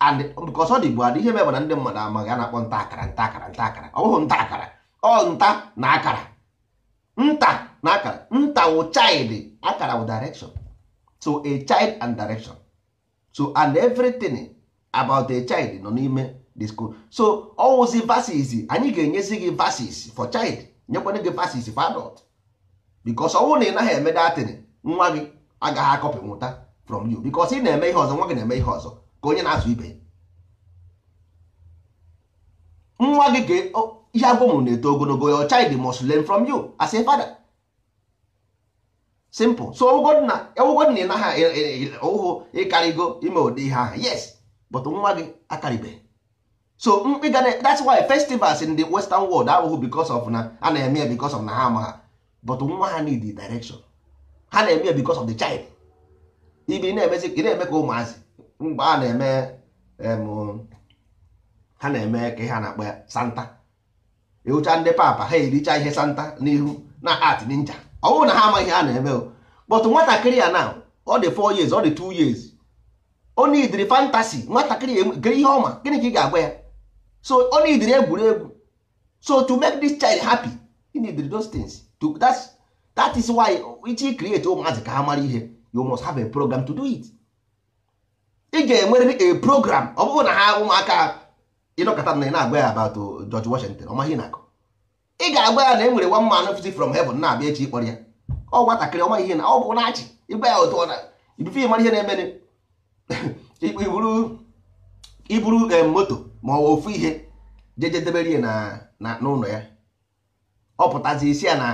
and bụ adị ihe mebe na ndị mmadụ amaghị a na-akpọ nta akara nta akara nta akara ọ nta akara ọ nta na akara nta na akara nta wụ chaịdị akara wụ direction so a child and direction so and everything about a child nọ n'ime disco so ọwụzi vasis anyị ga-enyezi gị vasis for child nyekwana gị vasis for adult because ọnwụ na ị naghị eme datịn nwa gị agaghị akọpị nwụta from you because ị na-eme ihe ọzọ nwa gị na-eme ihe ọzọ ka onye na-azụ ibe nwa gị ga ihe agwụmụrụ na-eto ogologo your child must learn from you as a father simple so ọwụgod na ị naghị ụhụ ịkarịgo ime ụdị ihe ahụ yes but nwa gị akaribeghị so mkpi ga that's why festivals in the western world abụghị because of na a na-eme ya because of na ha ma ha but nwa ha need the direction ha na-eme ya because of the child ibi na-emezi ka ị na-eme ka ụmụazị mgbe a na-eme ha na-eme ka ihe a na-akpọ ya santa ịhụcha ndị papa ha ericha ihe santa n'ihu na art ninja ọ bụrụ na ha amaghị ihe a na-eme o but nwatakịrị ya na ọ dị 4 years ọ dị 2 years ọ idiri fantasy nwatakịrị ya e, ihe ọma gịnị ka ị ga agba ya so ọ nidiri egwuregwu so to make this child happy he needed those things to, that's, that is why iji create ụmụazị oh, ka ha mara ihe you must have a program to do it ị ga-enwerịrị a program ọ bụrụ na ha ụmụaka ịnọkọta na ị na-agwa ya about oh, George Washington ọ maghị na-akọ ị ga-agwa ya na e nwere one man fiti from heaven na-abịa echi ịkpọrọ ya ọ nwatakịrị ọma ihe na ọ bụ na-achị ịgwa ya otu ọ na ibife ịmara ihe na-emere iburu iburu moto ma ọ ofu ihe jeje debere na n'ụlọ ya ọ pụtazi isi ya na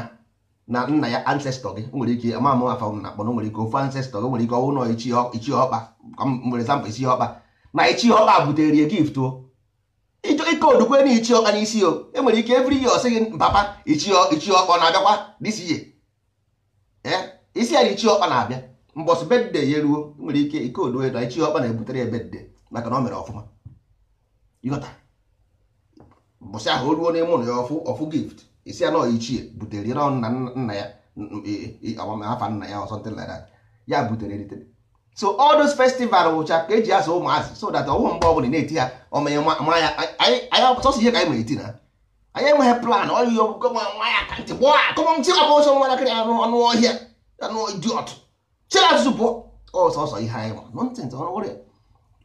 na nna ya ancestor gị nwere ike ama ama afa na akpọ nwere ike ofu ancestor gị nwere ike ọnwụ nọ ichie ọkpa nwere zampụ ichie ọkpa na ichie ọkpa butere ya gift o ịchọ ike odukwe na ichie ọkpa n'isi o enwere ike every year ọsị gị papa ichie ọkpa na-abịakwa this year eh? isi ya na ichie ọkpa na-abịa mbọsị bedde ya eruo e nwere ike ike odue na ichie ọkpa na-ebutere ya bedde maka na o mere ọfụma ịghọta mbọsị ahụ o ruo n'ime ụlọ ya ọfụ gift isi ya nọọ ichie butere na nna ya nna ya ọsọ e, e, e, ntịla ya ya butere eritere so all those festival wụcha ka eji azụ ụmụazị so that ọwụ mgbe ọbụla na-eti ya ọmanye ya anyị ọsọsọ ihe ka anyị ma eti na anyị enweghị plan ọyị nwa ya ka ntị ọbụ ọnụ ọhịa anụ chere azụzụ pụọ anyị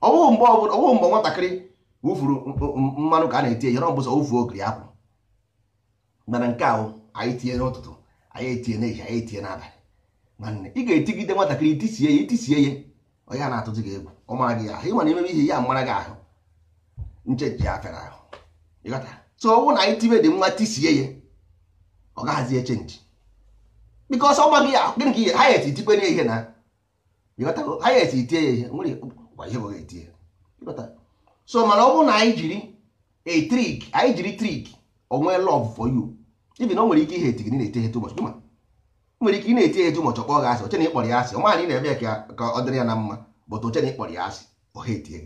mgbe nwatakịrị wụfuru mmanụ ka a na-eti enyere ọ bụzọ wụfuo okiri apụ mana nke ahụ anyị tinye n'ụtụtụ anyị etinye n'ehihie anyị etinye n'abalị nwanne ị ga-etigide nwatakịrị itisie ya itisie ya onye a na atụtụ gị egwu ọ mara gị ahụ ịmana imebe ihe ya mara gị ahụ nchechi ya fere ahụ ịghọta so ọnwụ na anyị tibe dị nwa tisie ya ọ gaghazi echenji bikos ọ gị ya gịnị ka ihe ha ya esi tikpe n'ihe na ịghọta ha ya esi itie ya ihe nwere ihe bụ ga-etie ịghọta so mana ọ bụrụ na anyị jiri a trick anyị jiri trick onwe love for you na o nwere ike ihe etigị na-eti ihe too much nwere ike ị na-eti ihe too ọkpọ gị asị ochena ịkpọrọ ya asị ọma anyị na-eme ka ọ dịrị ya na mma bụtụ ochena ịkpọrọ ya asị ọha etie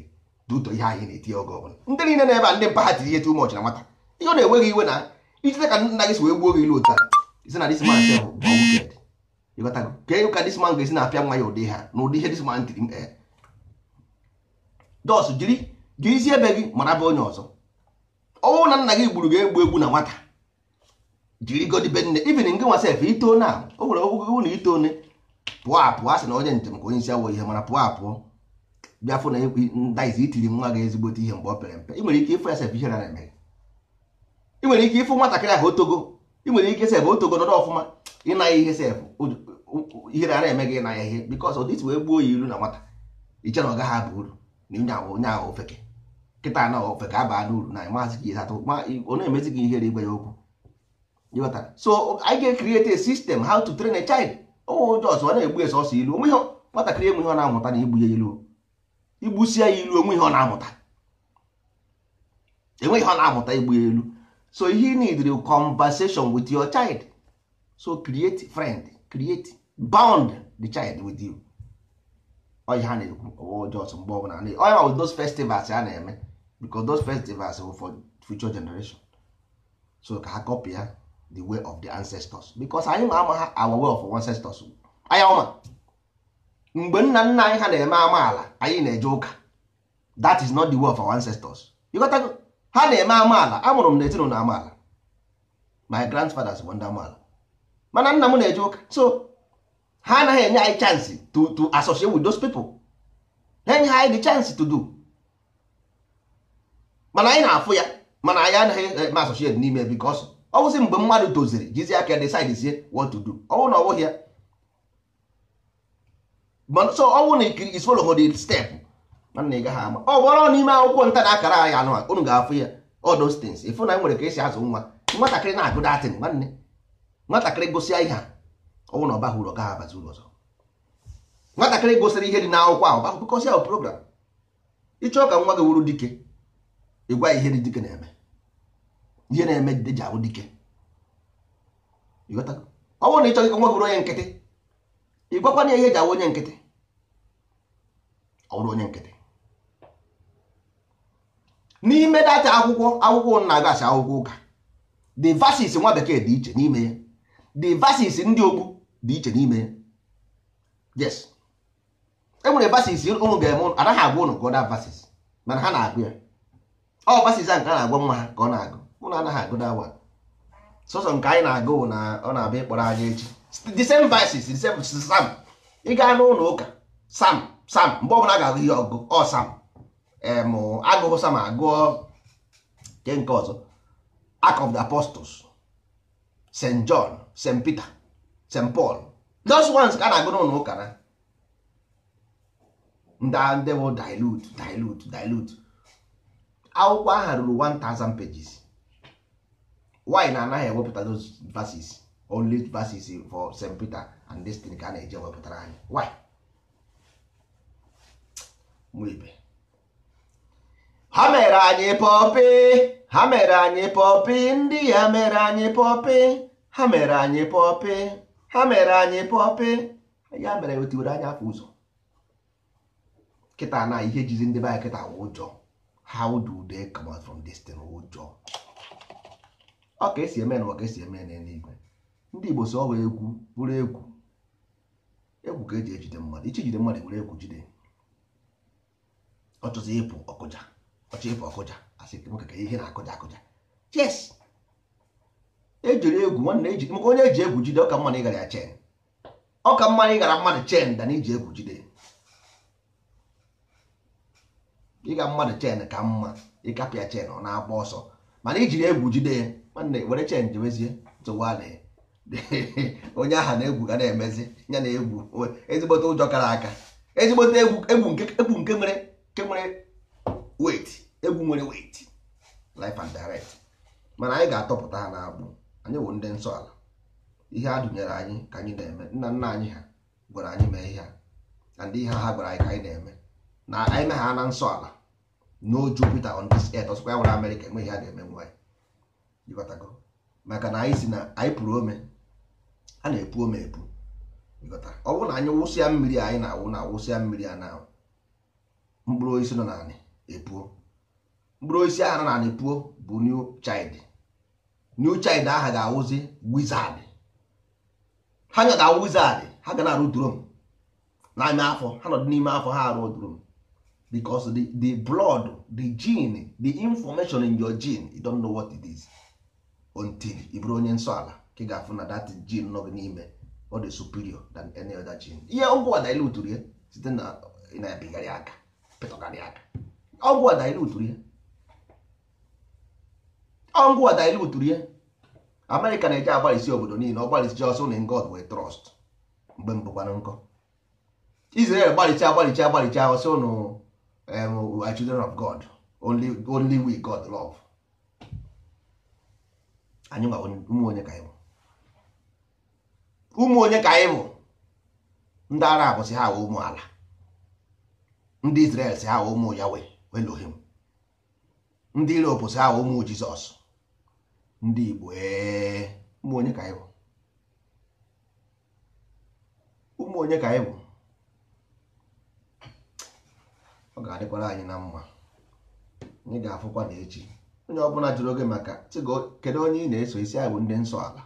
gị ihe anyị na-eti oge ọbụla ndị niile na-ebe a ndị mpa tiri ihe na nwata ihe ọ na-enweghị iwe na ijite ka nna gị si wee gbuo gị ilu isi na this na-apịa nwa ya ụdị ha na ụdị ihe gị isi ebe gị mara bụ onye ọzọ ọnwụ na nna gị gburu gị egbu egbu na nwata jiri godibe nne ibin ngị nwa sef ito na o nwere gị na ito one pụọ apụọ a sị na onye njem ka onye isi awọ ihe mana pụọ apụọ bịa fụ na ekwe ndaizi itiri nwa gị ezigbote ihe mgbe ọ pere mpe ị nwere ike ịfụ ya sef ihe na-eme ị nwere ike ịfụ nwatakịrị ahụ otogo ị nwere ike sef otogo nọdụ ọfụma ịnaghị ihe sef ihe rara eme gị ịna ya ihe bikọs ụdịsi wee gbuo ya ilu na nwata iche na ọ gaghị aba uru na onye ahụ ofeke nkịta anọ ofe ka abaa n'uru na maazị gị atọ ọ na-emezi gị ihere igwe ya okwu so anyị ga-ekriti a system how to train a child ụmụ ụjọ ọsọ na-egbu ya sọsọ ilu onwe ihe nwatakịrị enwe ihe ọ na-amụta na igbu ya ilu igbusi ya ilu onwe ihe ọ na-amụta enwe ihe ọ na-amụta igbu ya ilu so he need a conversation with your child so create friend create bound the child with you Ọ ha na-ekwu ọwa ọjọọ ọsọ mgbe ọbụla onye ma with those festivals a na-eme because those festivals were for future generation so ka ha copy the way of the ancestors because anyị ma ama ha our way of ancestors anya ọma mgbe nna nna anyị ha na-eme amaala anyị na-eje ụka that is not the way of our ancestors ịghọtago ha na-eme amaala amụrụ m na ezinụlọ amaala my grandfathers bụ ndị amaala mana nna m na-eje ụka so ha anaghị enye anyị chance to to associate with those people enye ha anyị chance to do mana anyị na-afụ ya mana anyị anaghị eme eh, associate n'ime because ọ bụzi mgbe mmadụ toziri jizi aka decide what to do ọwụ na ọwụghị ya so ọwụ na ikiri is step ama ọ n'ime akwụkwọ nta na akara anyị anụ unu ga-afụ ya all ịfụ na e nwere ka esi azụ nwa nwatakịrị na-agụ datin nwanne nwatakịrị gụsịa ihe ọwụ na ọba hụrụ ọ abazi ụlọ ọzọ nwatakịrị ahụ ahụ program ịchọọ ka nwa gị wuru dike ịgwa ihe dike na-eme ihe na-eme dide ji ahụ dike ọ bụrụ na ị chọghị ka nwa bụrụ onye nkịtị ịgwakwana ihe ji ahụ onye nkịtị ọ bụrụ onye nkịtị n'ime data akwụkwọ akwụkwọ na agasị akwụkwọ ụka the vasis nwa bekee dị iche n'ime ya the verses ndị okpu dị iche n'ime ya yes enwere vasis ụmụ ga-eme anaghị agwa ụnụ gụda vasis mana ha na-agụ ya ọ basiza nke a na-agwa nwa ha ka ọ na-agụ ụnụ anaghị agụ na sọsọ nke anyị na-agụ na ọ na-abịa ịkpọrọ anyị echi the same verses the same sam ị gaa n'ụlọ ụka sam sam mgbe ọbụla a ga-agụ ihe ọgụ ọ sam em agụụ sam agụọ nke nke ọzọ Act of the Apostles St John St Peter St Paul those ones ka a na-agụ n'ụlọ ụka na ndị ndị bụ dilute dilute dilute akwụkwọ aha ruru 1000 pages why na anaghị ewepụta those verses only verses for St. Peter and this ka a na-eji ewepụtara anyị why mụibe ha mere anyị pọpị ha mere anyị pọpị ndị ya mere anyị pọpị ha mere anyị pọpị ha mere anyị pọpị ya mere otiwere e anya afọ ụzọ kịta na ihe jizi ndị be anyị ụjọ how do they come out from this thing ụjọ ọ ka esi eme na ọ ka esi eme na n'eluigwe ndị Igbo so ọwa egwu bụrụ egwu egwu ka eji ejide mmadụ ichi jide mmadụ were egwu jide ọchọzi ịpụ ọkụja ọchọ ịpụ ọkụja asị ka ihe na-akụja akụja yes ejiri egwu nwanne eji maka onye eji egwu jide ọ ka mma ịgara ya chen ọ ka mma ịgara mmadụ chen da na iji egwu jide ịga mmadụ chen ka mma ịkapịa chen ọ na-agba ọsọ mana ijiri egwu jide nwanne were chen jewezie tụwale onye aha na-egwu ga na-emezi ya na egwu ezigbote ụjọ kara aka ezigbote egwu nke nwere nke nwere wet egwu nwere wait life and direct mana anyị ga-atọpụta ha na n'agbụ anyị bụ ndị nsọ ala ihe a dụnyere anyị ka anyị na-eme nna nna anyị ha gwara anyị mee ihe a na ndị ihe ha gwara anyị ka anyị na-eme na anyị na ha na nsọ ala no jupiter on this earth ọsọkwa ya nwere amerịka enweghị ha na-eme nwa ịghọtago maka na anyị si na anyị pụrụ ome a na-epu ome epu ịghọta ọ bụrụ na anyị wụsịa mmiri anyị na-awụ na awụsịa mmiri a na mkpụrụ osisi nọ na n'anị epuo mkpụrụ osisi ahụ nọ na n'anị puo bụ new child new child aha ga-awụzi wizard ha ga ga-awụ wizard ha ga na-arụ drum n'ime afọ ha nọdụ n'ime afọ ha arụ drum because the, the blood the gene the information in your gene you don't know what it is until ị bụrụ onye nsọ ala ka ị ga-afụ na dat gene nọ gị n'ime ọ dị superior than any other gene ihe ọgwụ a dilutụrụ ya site na ịna-ebigharị aka pịtọgarị aka ọgwụ a dilutụrụ ya ọgwụ a dilutụrụ ya amerịka na-eje agbalịsi obodo niile ọ gbalịsi ọsọ na God wee trust mgbe mbụkwanụ nkọ Israel gbalịchi agbalịchi agbalịchi ahụ sị ụnụ um, we are children of god only, only we god love anyị nwa ụmụ onye ka anyị bụ ụmụ onye ka anyị bụ ndị arab si ha wee ụmụ ala ndị israel si ha wee ụmụ yawe elohim ndị europe si ha wee ụmụ jizọs ndị igbo ụmụ onye ka anyị bụ ụmụ onye ka anyị bụ ọ ga-adịkwara anyị na mma anyị ga-afụkwa na echi onye ọbụla jụrụ oge maka kedu onye ị na-eso isi anyị bụ ndị nsọ ala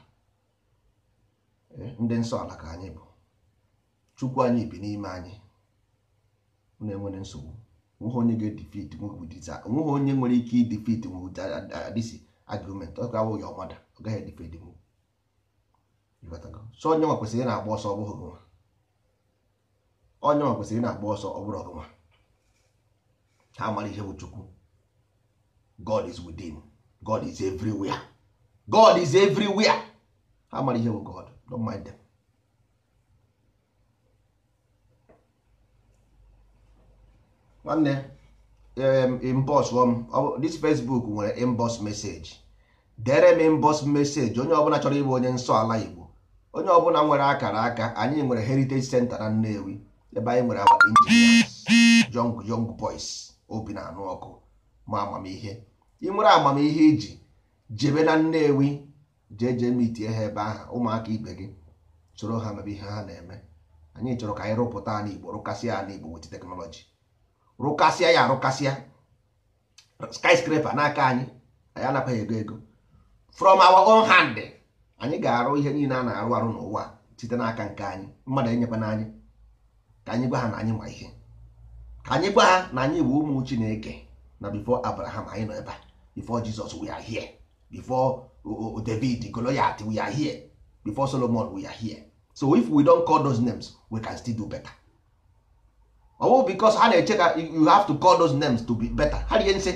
ndị nsọ ala ka anyị bụ chukwu anyị bi n'ime anyị na-enwere nsogbu nweghị onye ga-edifit nweghị onye nwere ike idifit dịsi agụmentị ọ ga-awụghị ọmada ọ gaghị edifit nwu so onye nwa kwesịrị na-agba ọsọ ọ bụghị gụnwa onye nwa kwesịrị na-agba ọsọ ọ bụrụ ọgụnwa ha amara ihe bụ chukwu god is within god is everywhere god is everywhere ha amara ihe bụ god don't mind them nwanne inbox m um, this facebook nwere inbox message dere m inbox message onye ọbụla chọrọ ịbụ onye nsọ ala igbo onye ọbụla nwere akara aka anyị nwere heritage center na nnewi ebe anyị nwere agba injinias young young boys obi na-anụ ọkụ ma amamihe ị nwere amamihe iji e jebe na Nnewi jee jee mitie ha ebe ahụ ụmụaka ibe gị chọrọ ha mebe ihe ha na-eme anyị chọrọ ka anyị rụpụta ala Igbo rụkasịa ala Igbo wet teknọlọji rụkasịa ya arụkasịa skyscraper n'aka anyị anyị anapaghị ego ego from our own hand anyị ga-arụ ihe niile a na-arụ arụ n'ụwa site n'aka nke anyị mmadụ enyekwana anyị ka anyị gwa ha na anyị ma ihe anyị gwa ha na anyị bụ ụmụ chineke na before abraham anyị nọ ebe a before jesus we are here before david goliath we are here before solomon we are here so if we don't call those names we can still do better ọwụ because ha na-eche ka you have to call those names to be better ha rie nsị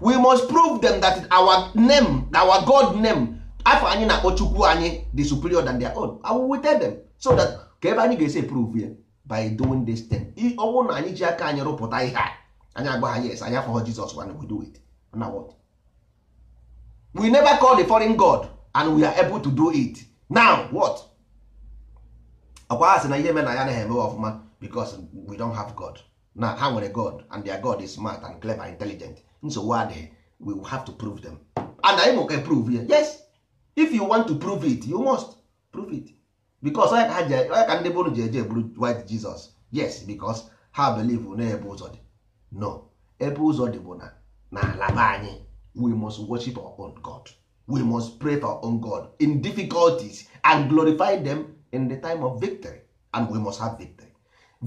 we must prove them that our name our god name afọ anyị na-akpọ chukwu anyị the superior than their own I will tell them so that ka ebe anyị ga-esi prove ya by doing this thing ọ bụrụ na anyị ji aka anyị rụpụta ihe a anyị agwa ha yes anyị afọ Jizọs and we do it na what we never call the foreign god and we are able to do it now what ọkwa ha sị na ihe mere na ya anaghị eme ọfụma because we don have god na ha nwere god and their god is smart and clever and intelligent nsogbu adịghị we will have to prove them and anyị mụka prove ya yes if you want to prove it you must prove it because onye ka ndị bụrụ ji eje white Jesus yes because ha believe n'ebe ụzọ dị no ebe ụzọ dị bụ na n'ala be anyị we must worship our own God we must pray for our own God in difficulties and glorify them in the time of victory and we must have victory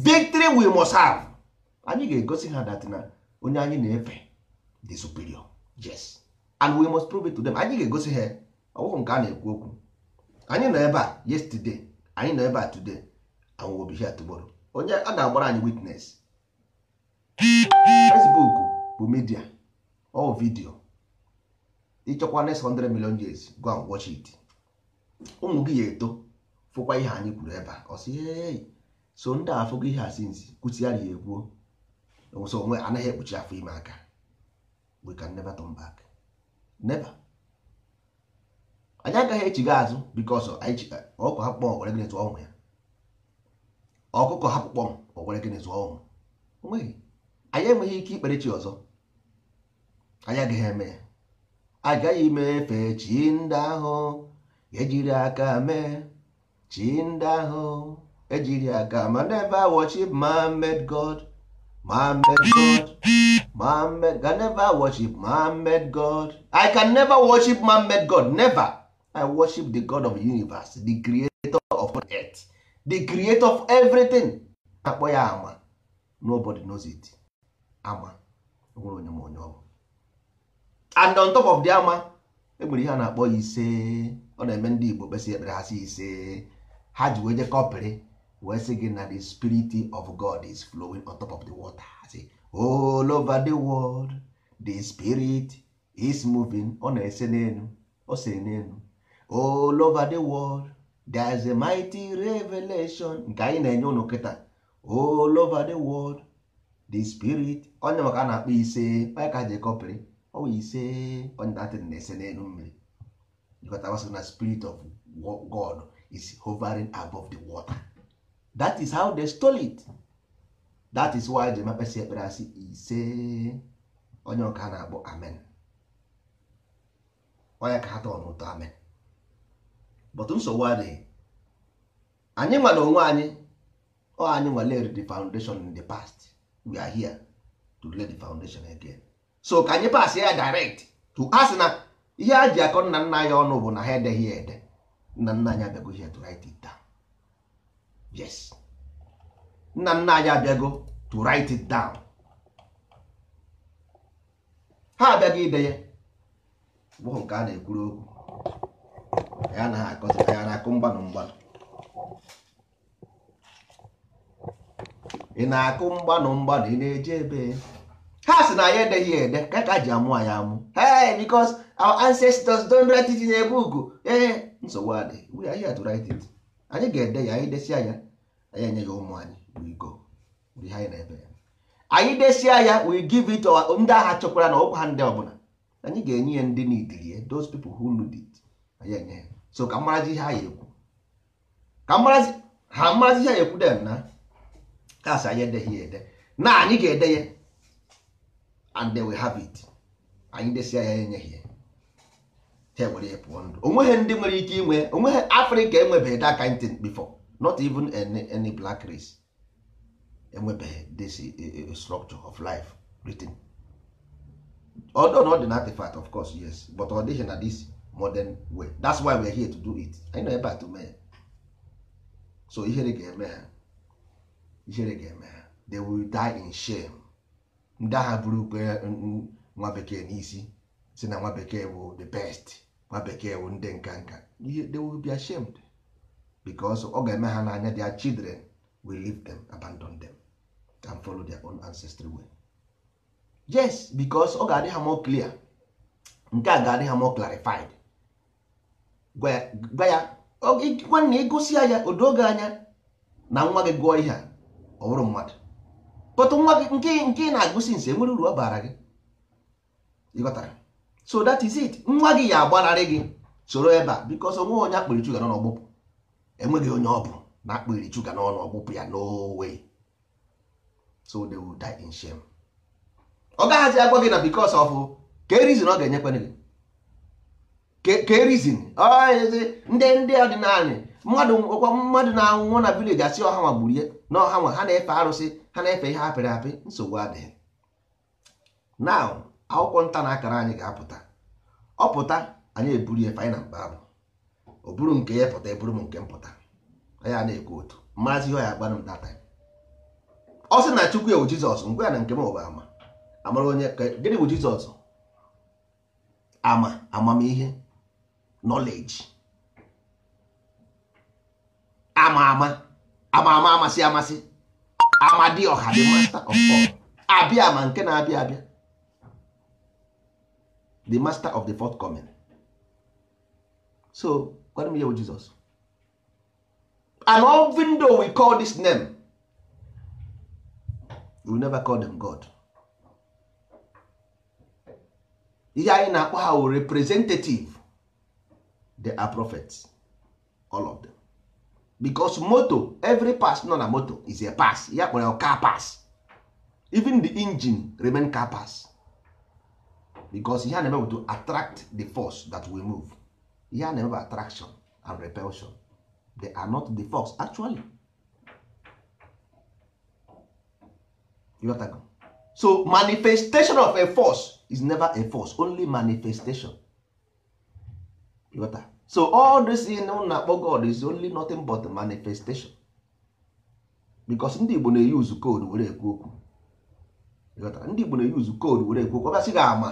victory we must have anyị ga-egosi ha dat na onye anyị na-efe the superior yes and we must prove it to them anyị ga-egosi ha ọwụghị nke a na-ekwu okwu anyị nọ ebe a yesterday anyị nọ ebe a today and we'll be here onye a ga-agbara anyị witnes Facebook bụ media ọ vidio ịchọkwa next 100 million years go and watch it ụmụ gị ya eto fụkwa ihe anyị kwuru ebe a ọ sị hey so ndị afụgo ihe a sinzi kwụsịara ya ekwuo onwe anaghị ekpuchi afọ ime aka we can never turn back never anyị agaghị echighi azụ bikos ọkụkọ hapụkpọ were gịnị tụọ ụmụ ya ọkụkọ hapụkpọ m were gịnị tụọ ụmụ onweghị anyị enweghị ike ikpere chi ọzọ anyị agaghị eme ya agaghị ime efe chi ndị ahụ ejiri aka mee chi ndị ahụ ejiri aka ma never worship Mohammed God Mohammed God Mohammed ga never worship Mohammed God I can never worship Mohammed God never i worship the god of the universe the creator of earth the creator of everything akpọ ya ama nobody knows it ama nwere onye ma onye ọ bụ and on top of the ama enwere ihe a na-akpọ ise ọ na-eme ndị igbo kpesị ekpere ha ise ha ji wee jekọpịrị wee sị gị na the spirit of god is flowing on top of the water say, all over the world the spirit is moving ọ na-ese n'elu ọ sere n'elu all over the world there is a mighty revelation nke anyị na-enye ụnụ kịta all over the world the spirit onye maka a na-akpọ ise maka ji kọpịrị ọwụ ise onye datịrị na-ese n'elu mmiri jikọtagasị na spirit of God is hovering above the water that is how they stole it that is why ji mekpesị ekpere asị ise onye ọka na-akpọ amen onye ka ha tọọ n'ụtọ amen but nsogbu adịghị anyị nwere onwe anyị ọ anyị nwa the foundation in the past we are here to lay the foundation again so ka anyị pass ya direct to asị na ihe a ji akọ nna nna ya ọnụ bụ na ha edeghị ya ede nna nna anyị abịago ihe to write it down yes nna nna anyị abịago to write it down ha abịago ide ya bụ nke a na-ekwuru okwu ya anaghị akọzịta ya na-akụ mgbanụ mgbanụ na-akụ mgbanụ mgbanụ ị na-eje ebe ha si na ya edeghị ede ka ka ji amụ anyị amụ hey because our ancestors don't write it in a book ee eh, nsogbu adị we are here to write it anyị ga-ede ya anyị desia ya anyị enye ya ụmụ anyị we go ihe anyị na-ebe ya anyị desia ya we give it our ndị agha chọkwara na ọkwa ha ndị ọbụla anyị ga-enye ya ndị n'idiri ya those people who need it anyị enye ya so ka mmarazi ihe ha ya ekwu ka mmarazi ha mmarazi ihe ha ekwu dem na kasị anyị edeghị ya ede na anyị ga-ede ya and they will have it anyị desia ya enyeghị ya ha were ya pụọ ndụ onweghị ndị nwere ike inwe onweghị afrịka enwebeghị that kind thing before not even any, any black race enwebeghị this eh, eh, eh, structure of life written although not an artifact of course yes but ọ dịghị na dis modern way that's why we are here to do it anyị nọ ebe a tụmee so ihere ga-eme ha ihere ga-eme ha they will die in shame ndị agha bụrụkwa nwa bekee n'isi si na nwa bekee bụ the best nwa bekee bụ ndị nka nka they will be ashamed because ọ ga-eme ha n'anya their children will leave them abandon them and follow their own ancestry way yes because ọ ga-adị ha more clear nke a ga-adị ha more clarified gwa ya nwanne ịgụsi ya odoge anya na nwa gị gụọ ihe a ọ bụrụ mmadụ pụtụ nwa gị nke nke ị na-agụsi nsi enwere uru ọ baara gị ịghọtara so that is it nwa gị ya agbanarị gị soro ebe a because onwe onye akpịrị chuga n'ọnụ ọgbụpụ enweghị onye ọ bụ na akpịrị chuga n'ọnụ ọgbụpụ ya no so they will die in shame ọ gaghịzi agwa gị na because of ka erizin ọ ga-enyekwana gị ke reason ah, eh, eh, ndị ndị ọdịnala mmadụ ọkwa mmadụ na-anwụ na village asị ọha nwa gburie na ọha nwa ha na-efe arụsị ha na-efe ihe apịrị apị nsogbu adịghị na akwụkwọ nta na akara anyị ga-apụta Ọ pụta, anyị eburu ya faina mkpa abụ ọ bụrụ nke ya pụta eburu m nke mpụta ya na-ekwu otu mmazi ihe ọ ya agbanụ m data ọ sị na chukwu ewu jizọs ngwa na nke m ụba ama amara onye gịnị bụ jizọs ama amamihe knowledge ama ama ama ama amasị amasị the master of all abịa ma nke na-abịa abịa the master of the fourth coming so gwara m ya bụ Jizọs and even though we call this name we never call them God ihe anyị na-akpọ ha wụ representative they are prophets all of them because moto every pass nọ na moto is a pass ya kpọrọ car pass even the engine remain car pass because ihe a na to attract the force that will move ihe a na attraction and repulsion they are not the force actually so manifestation of a force is never a force only manifestation Yotago. so all this in na-akpọ god is only nothing but manifestation because ndị igbo na-eyuzu koodu were ekwu okwu ndị igbo na-eyuzu koodu were ekwu okwu ọbịasị gị ama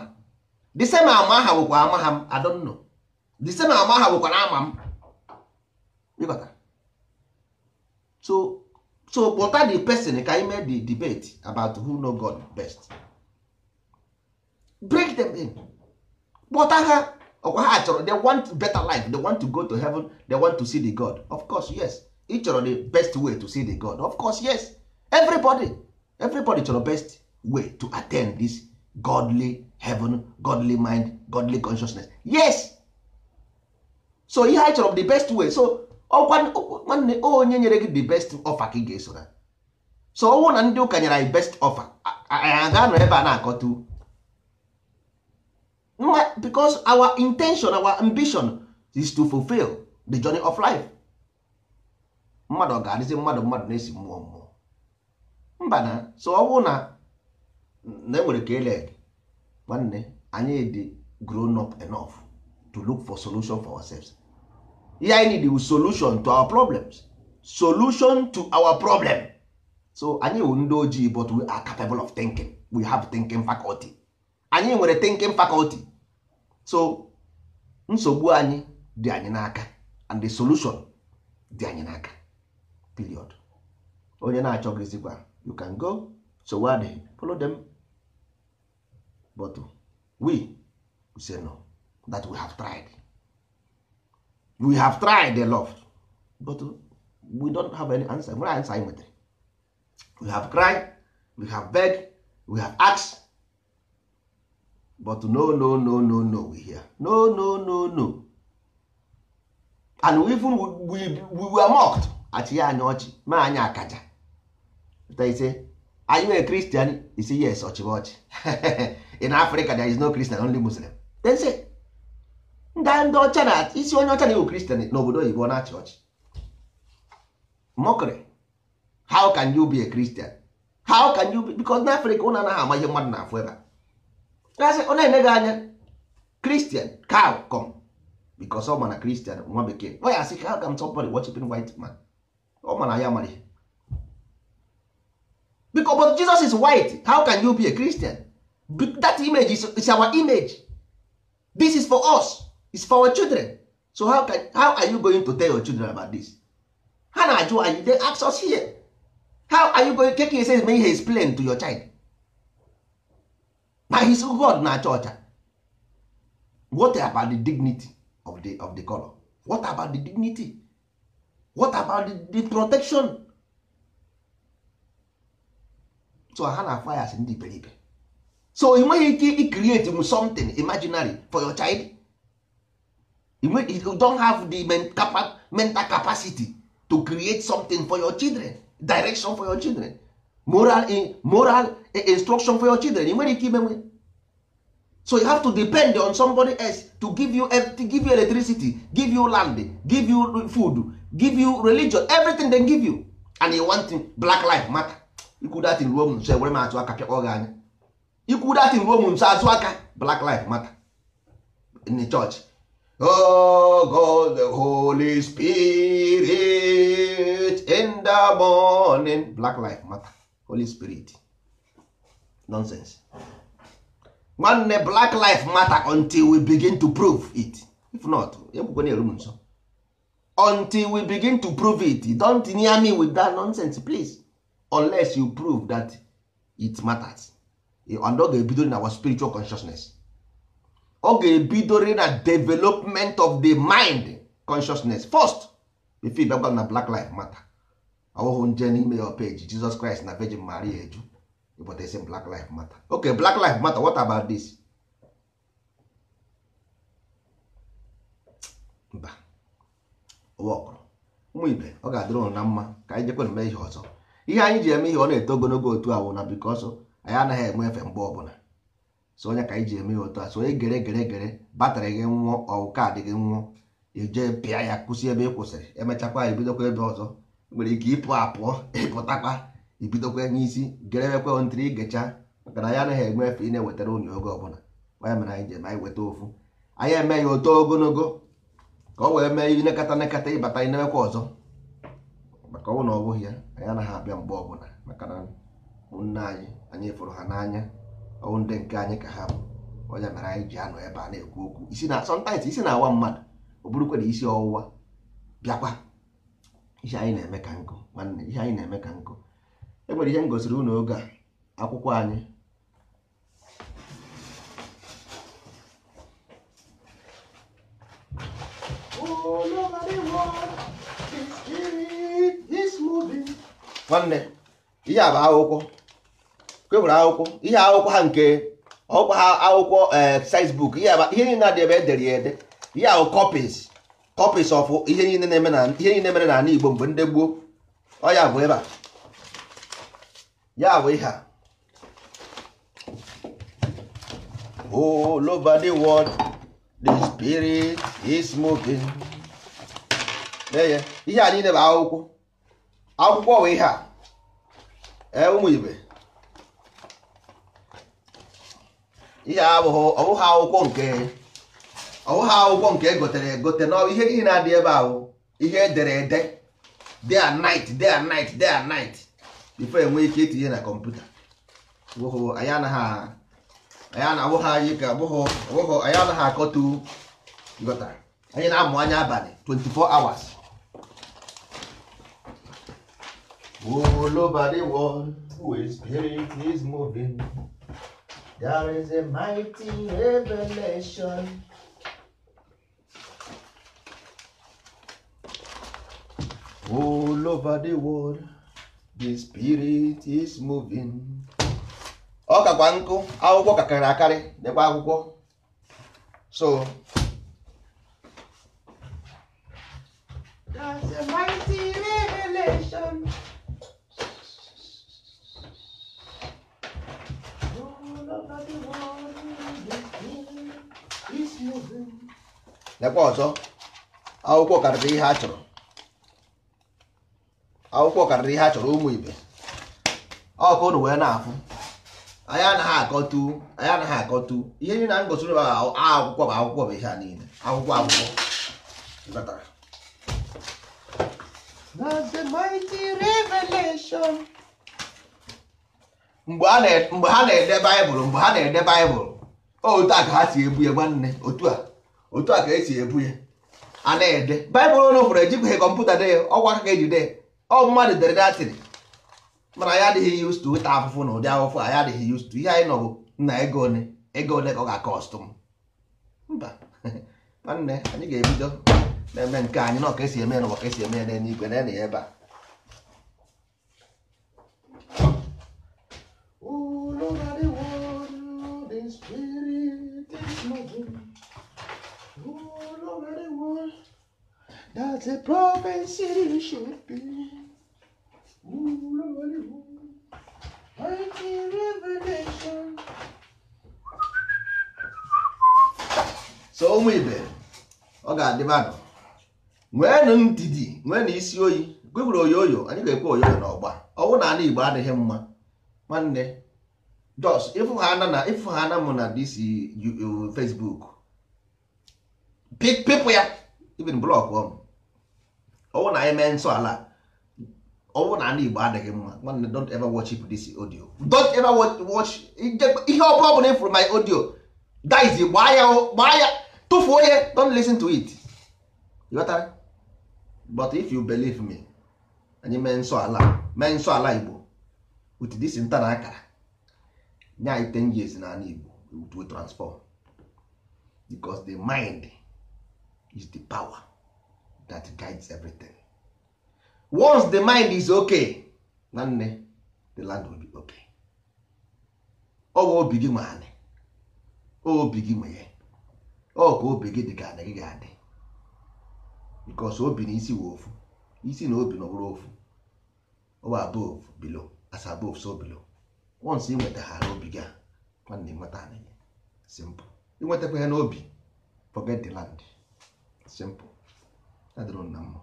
the same ama aha bụkwa ama ha m adọnnọ the same ama aha bụkwa na ama m ịghọta so so pụta the person ka anyị mee the debate about who know god best break them in kpọta ha ọkwa ha chọrọ they want better life they want to go to heaven they want to see the god of course yes ị chọrọ the best way to see the god of course yes everybody everybody chọrọ best way to attend this godly heaven godly mind godly consciousness yes so ihe anyị chọrọ the best way so ọkwa nwanne onye nyere gị the best offer ka ị ga-esora so ọnwụ na ndị ụka nyere anyị best offer anyị aga nọ ebe a na-akọta because our intention our ambition is to fulfill the journey of life mmadụ ọ ga-adịzi mmadụ mmadụ na-esi mmụọ mmụọ mba na so ọ bụrụ na na enwere ka ele nwanne anyị dị grown up enough to look for solution for ourselves ihe anyị need is solution to our problems solution to our problem so anyị wụ ndị ojii but we are capable of thinking we have thinking faculty anyị nwere thinking faculty so nsogbu anyị dị anyị n'aka and the solution dị anyị n'aka period onye na-achọghịzikwa you can go so wade follow them but we, we say no that we have tried we have tried a lot but we don't have any answer nwere answer anyị nwetara we have cried we have beg we have asked but no no no no no we hear no no no no and we even we, we were mocked achị ya anya ọchị ma anyị akaja are you anyị nwere you isi yes ọchịba ọchị in africa there is no christian only muslim then say nda ndị ọcha na isi onye ọcha na-ewu kristian n'obodo oyibo na-achị ọchị mockery how can you be a christian how can you be because n'africa ụna anaghị ama ihe mmadụ na-afụ ebe a gasị ọ na-ene gị anya kristian cow come because ọ mana kristian nwa bekee ọ ya asị ka ka m somebody worshiping white man ọ mana ya mara because but jesus is white how can you be a christian that image is, is our image this is for us it's for our children so how, can, how are you going to tell your children about this ha na-ajụ anyị they ask us here how are you going to take it says may he explain to your child Na his god na-acha ọcha eh? what about the dignity of the, of the color what about the dignity what about the, the protection so ha na fires ndị iberibe so ị nweghị ike i create something imaginary for your child you don't have the mental capacity to create something for your children direction for your children moral moral instruction for your children ị nwere ike imenwe so you have to depend on somebody else to give you to give you electricity give you land give you food give you religion everything they give you and you want black life matter ikwu datin ruo m nso ewere m atụ aka pịakpọ gị anya ikwu datin ruo m nso azụ aka black life matter in the church Oh God, the Holy Spirit in the morning. Black life matter. holy spirit nonsense nwanne black life matter until we begin to prove it if not ekwukwe na-eru nso until we begin to prove it don't near me with that nonsense please unless you prove that it matters and ọ ga-ebidori na our spiritual consciousness ọ ga-ebidori na development of the mind consciousness first before ịbịagwa na black life matter ọwụhụ nje n'ime ya peji Jizọs Kraịst na Virgin Maria eju ịpụtasi Black Life Matter okay Black Life Matter what about this mba ụmụ ibe ọ ga-adịrị na mma ka anyị jekwana mee ihe ọzọ ihe anyị ji eme ihe ọ na-eto ogologo otu ahụ na bikọsọ anyị anaghị enwe efe mgbe ọbụla so onye ka anyị ji eme ihe otu a so onye gere gere gere batrị gị nwụọ ọwụ kaadị gị nwụọ ije pịa ya kwụsị ebe ị kwụsịrị emechakwa ya ebidokwa ebe ọzọ nwere ike ịpụ apụọ ịpụtakwa ibidokwa n'isi geremekwe ntiri igecha maka na ya anaghị enwe efe ị na-ewetara unyi oge ọbụla waya mere anyị jem anyị weta ofu anyị eme ya oto ogologo ka ọ wee mee ihe nekata nekata ịbata anyị na ọzọ maka ọnwụ na ọ bụghị ya anyị anaghị abịa mgbe ọbụla maka na ụmụnne anyị anyị fụrụ ha n'anya ọnwụ ndị nke anyị ka ha bụ onye mere anyị ji anọ ebe a na-ekwu okwu isi na sọntaịtị isi na-awa mmadụ ọ bụrụ na isi ọwụwa bịakwa ihe anyị na-eme ka nkụ nwanne ihe anyị na-eme ka nkụ e nwere ihe m gosiri unu oge a akwụkwọ anyị nwanne ihe a bụ akwụkwọ kwewere akwụkwọ ihe akwụkwọ ha nke ọkwa ha akwụkwọ eh, size book ihe niile na-adị ebe edere ya ede ihe ahụ copies copies of ihe niile na-eme na ihe niile mere n'ala Igbo mgbe ndị ọ ya bụ ebe a ya bụ ihe a all over the spirit is moving ihe a niile bụ akwụkwọ akwụkwọ bụ ihe a ee ụmụ ibe ihe abụghị ọ akwụkwọ nke ọwụha akwụkwọ nke egotere egote na ihe niile na-adị ebe ahụ ihe edere ede day and night day and night day and night before enwee ike itinye na kọmputa anyị anaghị akọtu anyị na-amụ anya abalị 24 hours is moving there is a mighty revelation All over the world, the spirit is moving. Ọ kakwa nkụ akwụkwọ kakarị akarị dịkwa akwụkwọ so That's a mighty revelation. All over the world, the spirit is moving. Lekwa ọzọ akwụkwọ karịrị ihe a chọrọ akwụkwọ karịrị ihe a chọrọ ụmụ ibe ọkụ ụnụ wee na-afụ anyị anaghị akọtu anyị anaghị akọtu ihe niile na ngosiri bụ akwụkwọ bụ akwụkwọ bụ ihe a niile akwụkwọ akwụkwọ That's mgbe ha na-ede baịbụl mgbe ha na-ede baịbụl otu a ka ha si ebu ya nwanne otu a otu a ka esi ebu ya a na-ede baịbụl ụlọ fụrụ ejibụghị kọmputa dee ọgwa ka eji dee ọ mmadụ dere datịrị mana anyị adịghị used to weta afụfụ na ụdị afụfụ anyị adịghị used to ihe anyị nọbụ na ego one ego one ka ọ ga-akọstụ m mba nwanne anyị ga-ebido na-eme nke anyị na ọka esi eme na ka esi eme ya n'eluigwe na ya ebe a so ụmụ ibe ọ ga-adịba Nwee nweenụ ndidi nwee na isi oyi gwegwuru oyoyo anyị ga-ekwe oyoyo n'ọgba ọwụ na ala igbo adịghị mma nwanne jos ifu ha ana na ịfụ na dis facebook pipụ ya ibin blọk ọmụ ọwụ na anyị mee nsọ ala ọ na ana igbo adịghị mma nwanne don't ever watch this audio don't ever watch ihe ọ bụla na ịfụrụ my audio guys gbaa ya gbaa ya tụfuo ya don't listen to it ghọtara but if you believe me anyị mee nsọ ala mee nsọ ala igbo with this nta na akara nye anyị 10 years na ana igbo it will transform because the mind is the power that guides everything once the mind is okay na nne the land will be okay ọ bụ obi gị nwe anị obi gị nwe ya ọ ka obi gị dị ka anị gị ga-adị because obi na isi wụ ofu isi na obi na ọbụrụ ofu ọwa above below as above so below once ị nwetaghara obi gị a nwanne nweta anị gị simple ịnwetakwa ya n'obi forget the land simple adịrọ na mma